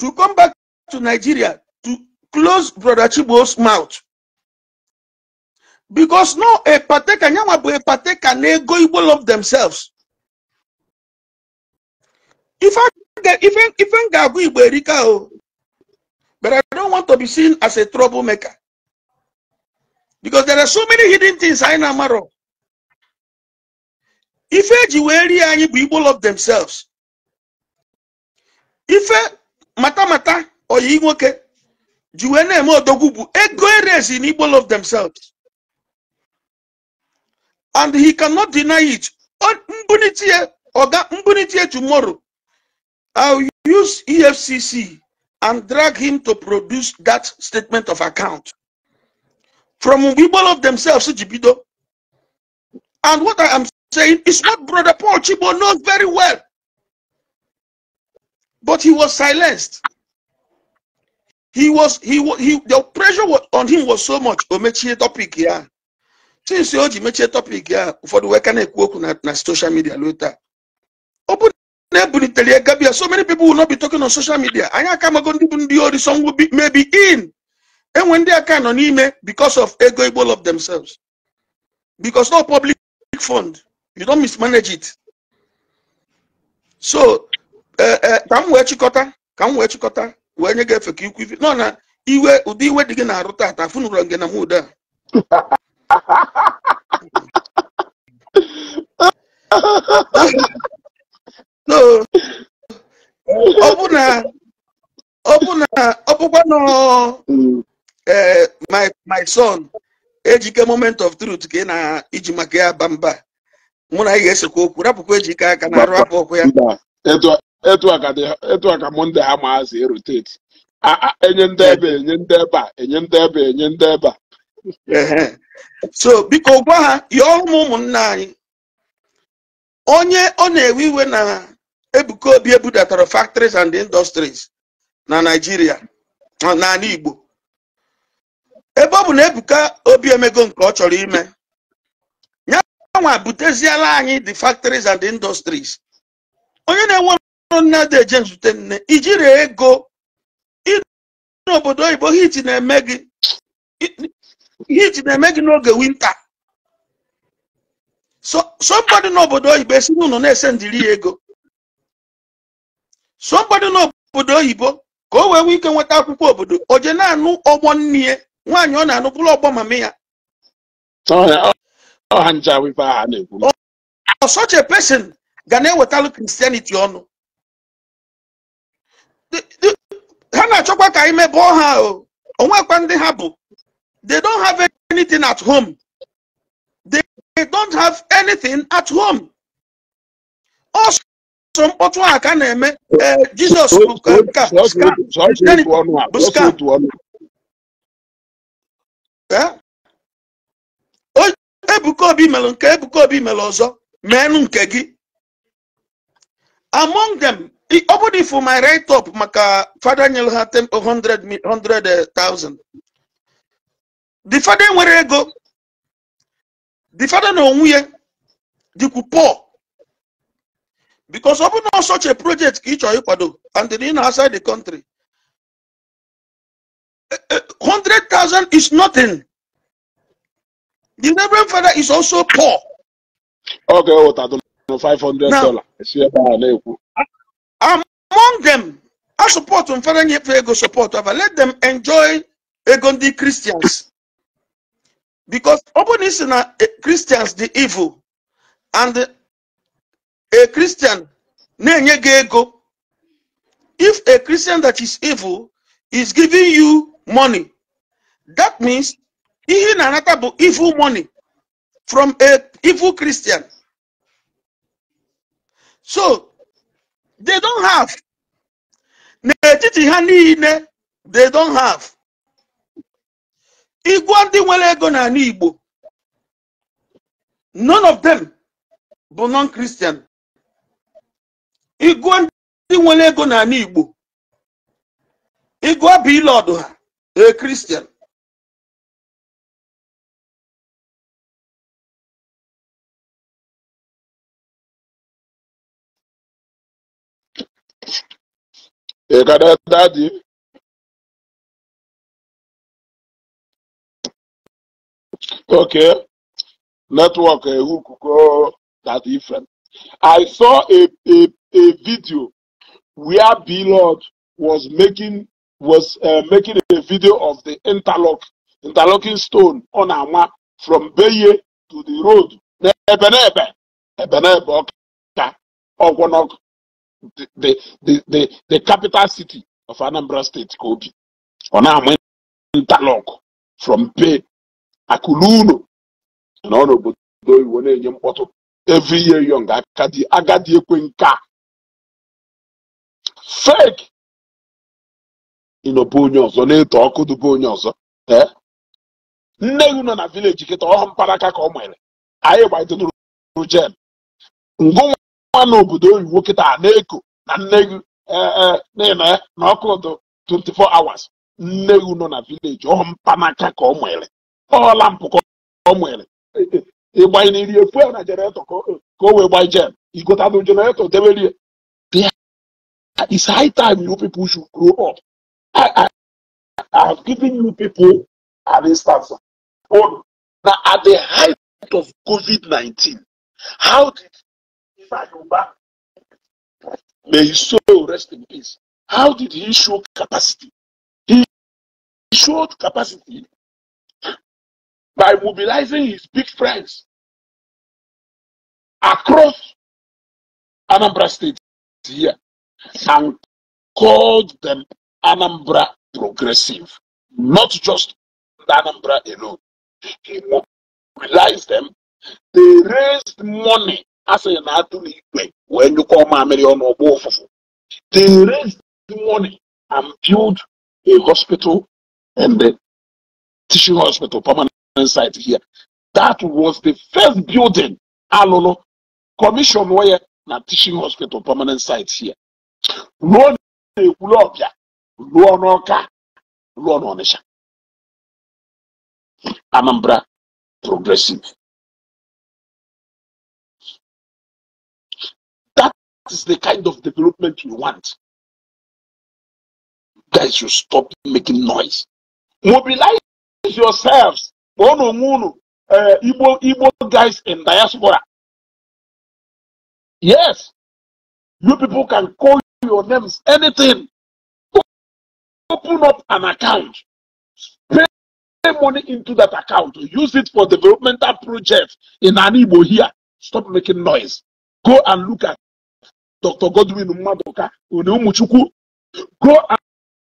to come back to Nigeria to close brother Chibo's mouth because no ekpateka nyanwa bụ ekpateka na-ego igbo love themselves I even even agu igbo erika oh, but i don't want to be seen as a troublemaker because there are so many hidden things anyị na-amarọ ife eji wee rie igbo love themselves ife mata oyi nwoke ji wee na-eme odogwu bụ ego erezi na igbo love themselves and he cannot deny it. On Mbunitie, Oga Mbunitie tomorrow, I'll use EFCC and drag him to produce that statement of account. From people of themselves, And what I am saying is what Brother Paul Chibo knows very well. But he was silenced. He was, he, he the pressure on him was so much. Omechie topic here. since o ji mechie topic ya ụfọdụ wee ka na-ekwu okwu na social soshal midia o taa ọ bụ na-ebunitere gabia so many people will not be talking on social media anyị aka amago ndị bụ ndị ori some maybe in enwe ndị aka nọ n'ime because of ego igbo of themselves because no public fund you don't mismanage it so e, e, ka m wee chịkọta ka m wee chịkọta wee nye gị efe ka ikwu ife nọ na iwe ụdị iwe dị gị na-arụ taata afụnụrụ nge na muda ọ bụkwa na e, my son ejike moment of truth ka ị na-iji maka ya ba mba mụ na ị ga-esekwa okwu rapụkwa ejike aka na arụ apụ ọkụ ya etu aka mụ ndị ha maazị eroteti enye ndị ebe enye ndị ebe a enye ndị ebe enye ndị ebe a so biko gwa ha yọọ m ụmụnna anyị onye ọ na-ewe iwe na Ebuka Obi ebudatara factories and industries na Nigeria n'ala Igbo ebe ọ bụ na Ebuka Obi emego nke ọ chọrọ ime ya nwa buteziela anyị the factories and industries onye na-enwe ọrụ nne eje nzute nne ijiri ego ịnụ n'obodo oyibo hit na-eme gị hit na-eme gị n'oge winta somebody n'obodo oyibo esi n'ụlọ na ese ya ego somebody n'obodo oyibo ka o wee nwee ike nweta akwụkwọ obodo oje na-anụ ọgbọ nne nwaanyị ọ na-anụ bụrụ ọgbọ mama ya ọ such ga na-ewetalụ kristianity ọnụ ha na-achọkwa ka anyị mebe ha o onwekwa ndị ha bụ They don't have anything at home. They, they don't have anything at home. Also, mkpọtụ a ka na-eme eh Jizọs bụ skam Ebuka Obi melụ nke Ebuka Obi melụ ọzọ meenụ nke gị among them ọ bụrụ ifu my right up maka fada nyere ha 100,000 the father nwere ego the father no onwe ya dịkwu poor because ọ bụ such a project ka ị chọrọ ịkwado and then outside the country 100,000 is nothing the reverend father is also poor okay what 500 dollars esi ebe a na among them I support mfere nyefe ego support let them enjoy ego christians because ọ bụrụ na e, Christians dị evil and a Christian na-enye ego if a Christian that is evil is giving you money that means ihe na-anata evil money from a evil Christian so they don't have etiti ha niile they don't have igwe ndị nwere ego n'ala Igbo none of them bụ non-Christian igwe ndị nwere ego n'ala Igbo igwe bụ ile ọdụ ha e Christian ị Okay, network uh, who could go that different. I saw a, a, a video where B Lord was making was uh, making a video of the interlock interlocking stone on Ama from Beye to the road. Ebenebe, Ebenebe, Ogonok, the, the, the, the capital city of Anambra State, Kobe. On Ama interlock from Beye akụlụ unu nọ n'obodo iwo na-enye mkpọtụ every year young akadi agadi ekwe nke a fake ịnọbe onye ọzọ na-eto ọkụ dube onye ọzọ eh? nne gị nọ na vileji kịta ọhụ mkparaka ka ọ nwere anyị gbaitonụrụ jen ngụnwa n'obodo oyibo kịta na-eko na nne gị nna eh, eh, ya na ọkụ dụ 24 hours nne gị nọ na vileji ọhụ mkpanaka ka ọ nwere lampụ ka ọ nwere ịgbanyeriri efuel na jeneretọ ka o wee gbanye jem igotanụ jeneretọ deberie It's high time you people should grow up. I, I, have given you people an instance on oh, that at the height of COVID 19, how did Ifa may he soul rest in peace, how did he show capacity? He showed capacity by mobilizing his big friends across Anambra State here and called them Anambra Progressive, not just Anambra alone. He mobilized them. They raised money as an igwe when you call Mamiri on Obofufu. They raised money and built a hospital and the teaching hospital permanent inside here. That was the first building Alolo commission where na teaching hospital permanent site here. Ruo na-ekwulu ọbịa, ruo Anambra progressive. That is the kind of development you want. Guys, you stop making noise. Mobilize yourselves Ono onwe unu eh, igbo igbo guys in diaspora yes you people can call your names anything open up an account pay money into that account use it for developmental projects in Anibo here stop making noise go and look at dr godwin madoka go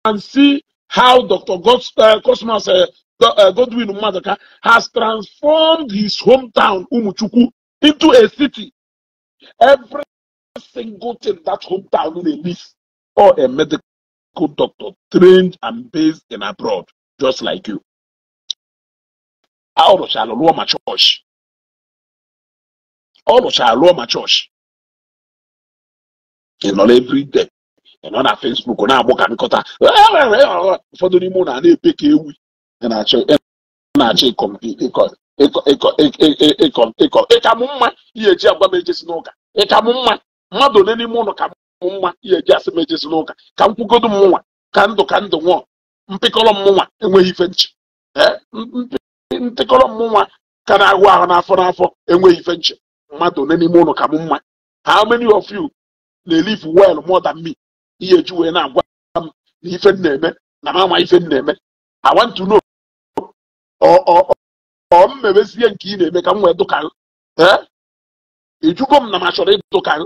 and see how dr God, uh, eh, cosmos uh, eh, Eh, Godwin Maduka has transformed his hometown, umuchukwu into a city. Every single thing that hometown needs, or a medical doctor trained and based in abroad, just like you. All of Shalom, my church. All of Shalom, my church. And not every day. And on our Facebook, on our book, I'm ụfọdụ n'ime ụlọ na epe ka ewi ịkọ ịka m mma ihe eji agwa m ejesi n'ụka ịka m mma mmadụ ole n'ime ụlọ ka m mma ihe eji asị m ejesi n'ụka ka m kwugodo m nwa ka ndụ ka ndụ nwụọ mpịkọrọ m nwa enweghị ife nchi mpịkọrọ m nwa ka na-ahụ ahụ n'afọ n'afọ enweghị ife nchi mmadụ ole n'ime ụlọ ka m mma how many of you na-elive well more than me ihe eji wee na-agwa m na ife m na-eme na m ama ife m na-eme I want to know ọ mmebezie nke ị na-eme ka m wee dụkarị ijugo eh? m na m achọrọ ịdụkarị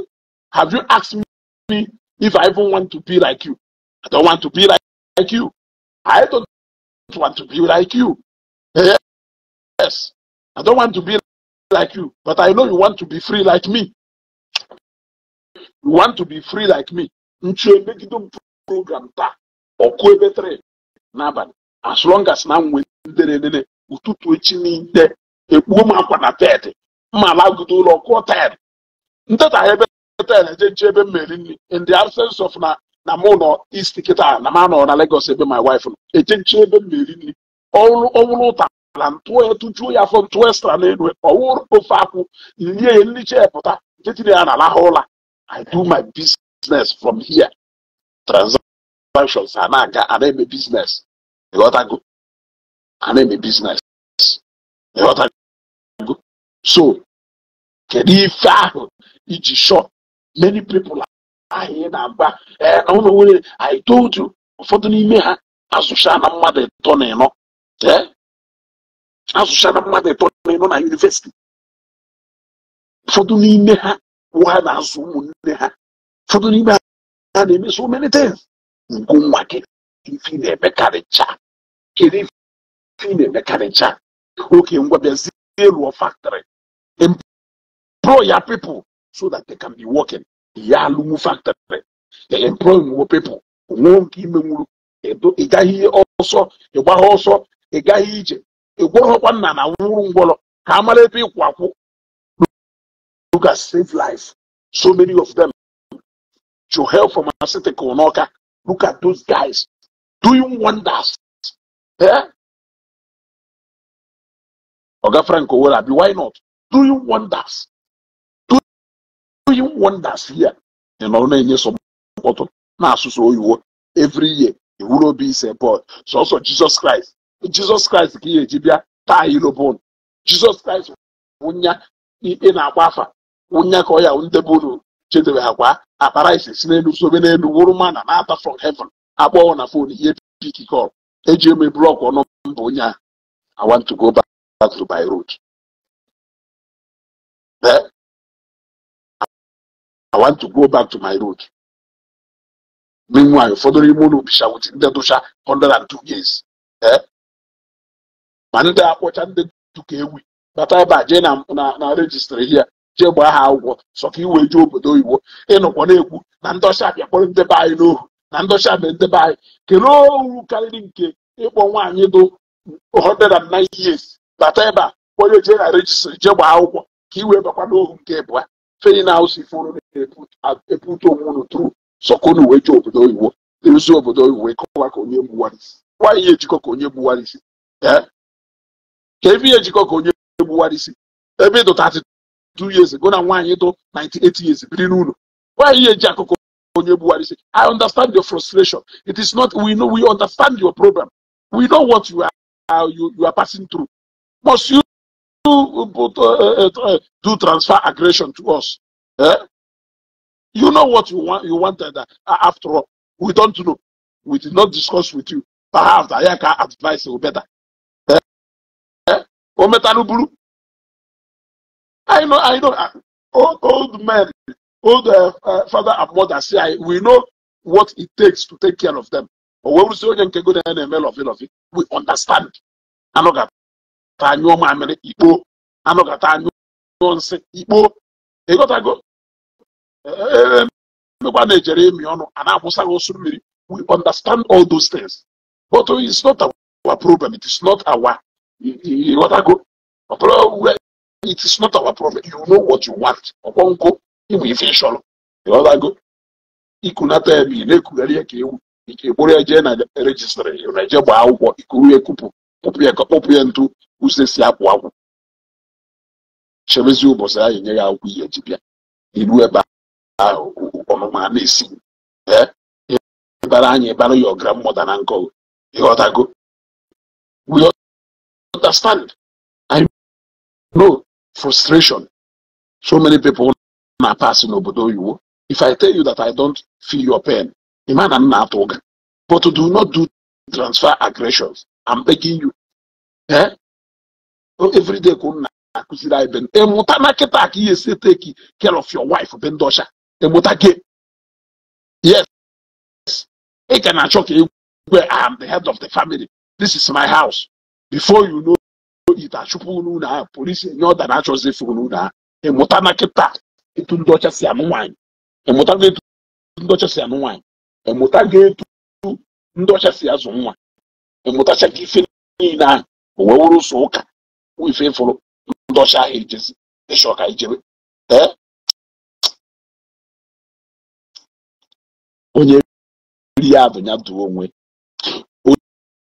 have you asked me if I even want to be like you I don't want to be like you I don't want to be like you yes I don't want to be like you but I know you want to be free like me you want to be free like me nchi emegide m program taa ọkụ ebe 3 n'abalị as long as na m nwere nderede ụtụtụ echi niile ekpuo m akwa na bedị mma alagodo ụlọ kụọ taịlụ nteta ebe taịlụ eje nche ebe m nri in the absence of na na mụ nọ isti kịta na ma anọ na Lagos ebe my wife nọ eje nche ebe m meri nri ọwụrụ ụta na ntụọ ya tụjuo ya afọ ntụọ estra n'elu ọwụrụ ofe akwụ nye ya nricha pụta nke tinye ya na alaha ụla I do my business from here transactions a na-aga ana eme business ịghọtago and then the business. You know what I mean? So, if it's short, many people are here now. And não know I told you, ụfọdụ n'ime ha não, na mmadụ ịtọ na ịnọ asụcha na não ịtọ na ịnọ na yunivesiti não n'ime ha wụ ha na não ụmụnne ha ụfọdụ n'ime não ha na-eme so many things nkụ nwa gị ife na-emekarịcha kedu ife the mechanic. Okay, we're going factory. Employ your people so that they can be working. Yalumu factory. They employ more people. Ị gaghị ọsọ ịgbagha ọsọ ị gaghị ije ị gwọghọkwa nna na wụrụ ngwọrọ ka a mara ebe ịkwụ look at save life. So many of them to help pharmaceutical Noka. Look at those guys doing wonders. Yeah? Oga Frank Owolabi, why not? Doing wonders. Doing wonders here. You know, na-enye sọpọtụ na-asụsụ oyiwo every year iwuru obi ise bọd sọsọ Jizọs Kraịst christ Kraịst christ ị eji bịa taa ilobon jesus Kraịst wụnya i na-agba afa wụnya ka ọ ya ndebụrụ chedebe akwa akpara ise si n'elu sobe n'elu wụrụ mana na-ata from heaven akpọọ na fon ihe call eji eme blọk ọnụ mba onye awa I want to go back. غزو بيروت Then I want to go back to my root. Meanwhile, ụfọdụ n'ime ụlọ obisha wit ndị dụcha 102 years. Eh? Ma ndị akpọcha ndị dụka ewi bata ebe a jee na rejistrị hia jee gbaa ha akwụkwọ sọ ka iwee jee obodo oyibo ịnụkwa na-ekwu na ndị ọcha kpọrọ ndebe anyị n'ohu na ndị abịa mee ndebe anyị kelee ohu karịrị nke ịkpọ nwaanyị dụ 109 years bata ebe a onye jee na rejistri jee gbaa akwụkwọ ka i wee bakwa n'ohu nke bụ feri na haus ife unu na-ebute onwe unu tru sọkunu uwe jee obodo oyibo eruzi obodo oyibo wee kọwa ka onye gbuwarisi nwaanyị ejikọ ka onye gbuwarisi ka ebe ihe ejikọ ka onye gbuwarisi ebe ịdụ 32 years go na nwaanyị dụ 98 years biri n'ụlọ nwaanyị eji akụkọ onye gbuwarisi i understand your frustration it is not we know we understand your problem we know what you are, you, you are passing through must uh, uh, uh, you do transfer aggression to us? Eh? You know what you want. You wanted uh, after all. We don't know. We did not discuss with you. Perhaps I can advise you better. Eh? Eh? Oh, I know. I know. Ah, old, old men, old uh, uh, father and mother say, I, we know what it takes to take care of them. We understand. ka anyụọ mamịrị ikpo anụ kata anyụọ nsị ikpo ịghọtago e, e, e, emekwa na-ejere emi ọnụ a na-akwụsaghị osu mmiri we understand all those things but it's not our problem it is not our ịghọtago ọtụrụ it is not our problem you know what you want ọkwọnkụ ịmụ ife ịchọrọ ịghọtago ikunata ebe ị na-ekugharị ya ka ewu ike gboro ya jee na rejistrị na eje gbaa akwụkwọ ikuru ya ekupụ kpụpụ ya ka kpọpụ ya ntu ụzọ esi apụ akwụ chebezi ụbọchị anyị nye ya akwụ ihe ji bịa iru ebe ahụ ọnụma na-esi ịbara anyị ịbara ya ọgara mmụta na nkọ ịghọtago we understand i know frustration so many people na pass n'obodo oyibo if i tell you that i don't feel your pain ịma na m na-atụ ụga but do not do transfer aggressions i'm begging you eh? everyday ka ụnụ na-akụziri anyị ịmụta na kịta ka ihe esi take care of your wife be ndị ọcha ịmụta gị yes ị e ka na-achọ ka egwe I am the head of the family this is my house before you know it achụpụ n'ụlọ ahụ polisi enye ọda na-achọzi efu n'ụlọ ahụ ịmụta na kịta etu ndị ọcha si anụ nwaanyị ịmụta etu ndị ọcha si anụ nwaanyị ịmụta ga-etu ndị ọcha si azụ nwa ịmụtacha ka ife niile ahụ o wee wụrụ ụzọ ụka wụ ife ịfụrụ ndị ọcha ahụ ijezi ịchọ ka ijebe ee onye ri ya bụ ya duo onwe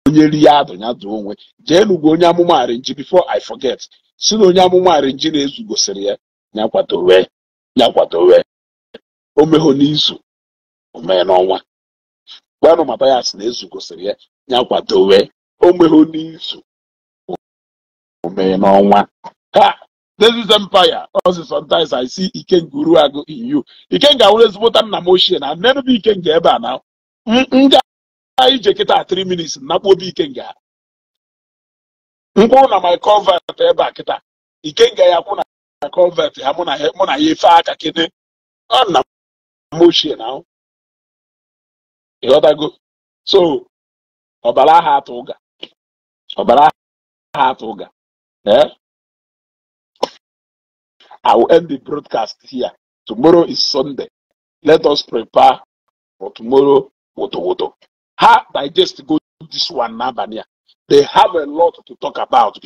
onye ri ya bụ duo onwe jee n'ugwu onye amụma arinji before i forget si na onye amụma arinji na-ezu gosiri ya ya kwadowe O kwadowe omehụ n'izu mee n'ọnwa gwanụ ma bias na-ezu gosiri ya wee o omehụ n'izu mee n'ọnwa ha this empire ozi sometimes I see Ikenga agụ in you Ikenga awụrụ ezigbota nna m ochie na nne bụ nga ebe a na nga ije kịta 3 minutes nakpu obi Ikenga mkpụrụ na my convert ebe a kịta Ikenga ya kwụ na my convert ya mụ na ya efe aka kene ọ nna m ochie na ịghọtago so ọbara aha atụ ọbara aha atụ ụga Yeah, I will end the broadcast here. Tomorrow is Sunday. Let us prepare for tomorrow. Woto woto. How digest go this one now, They have a lot to talk about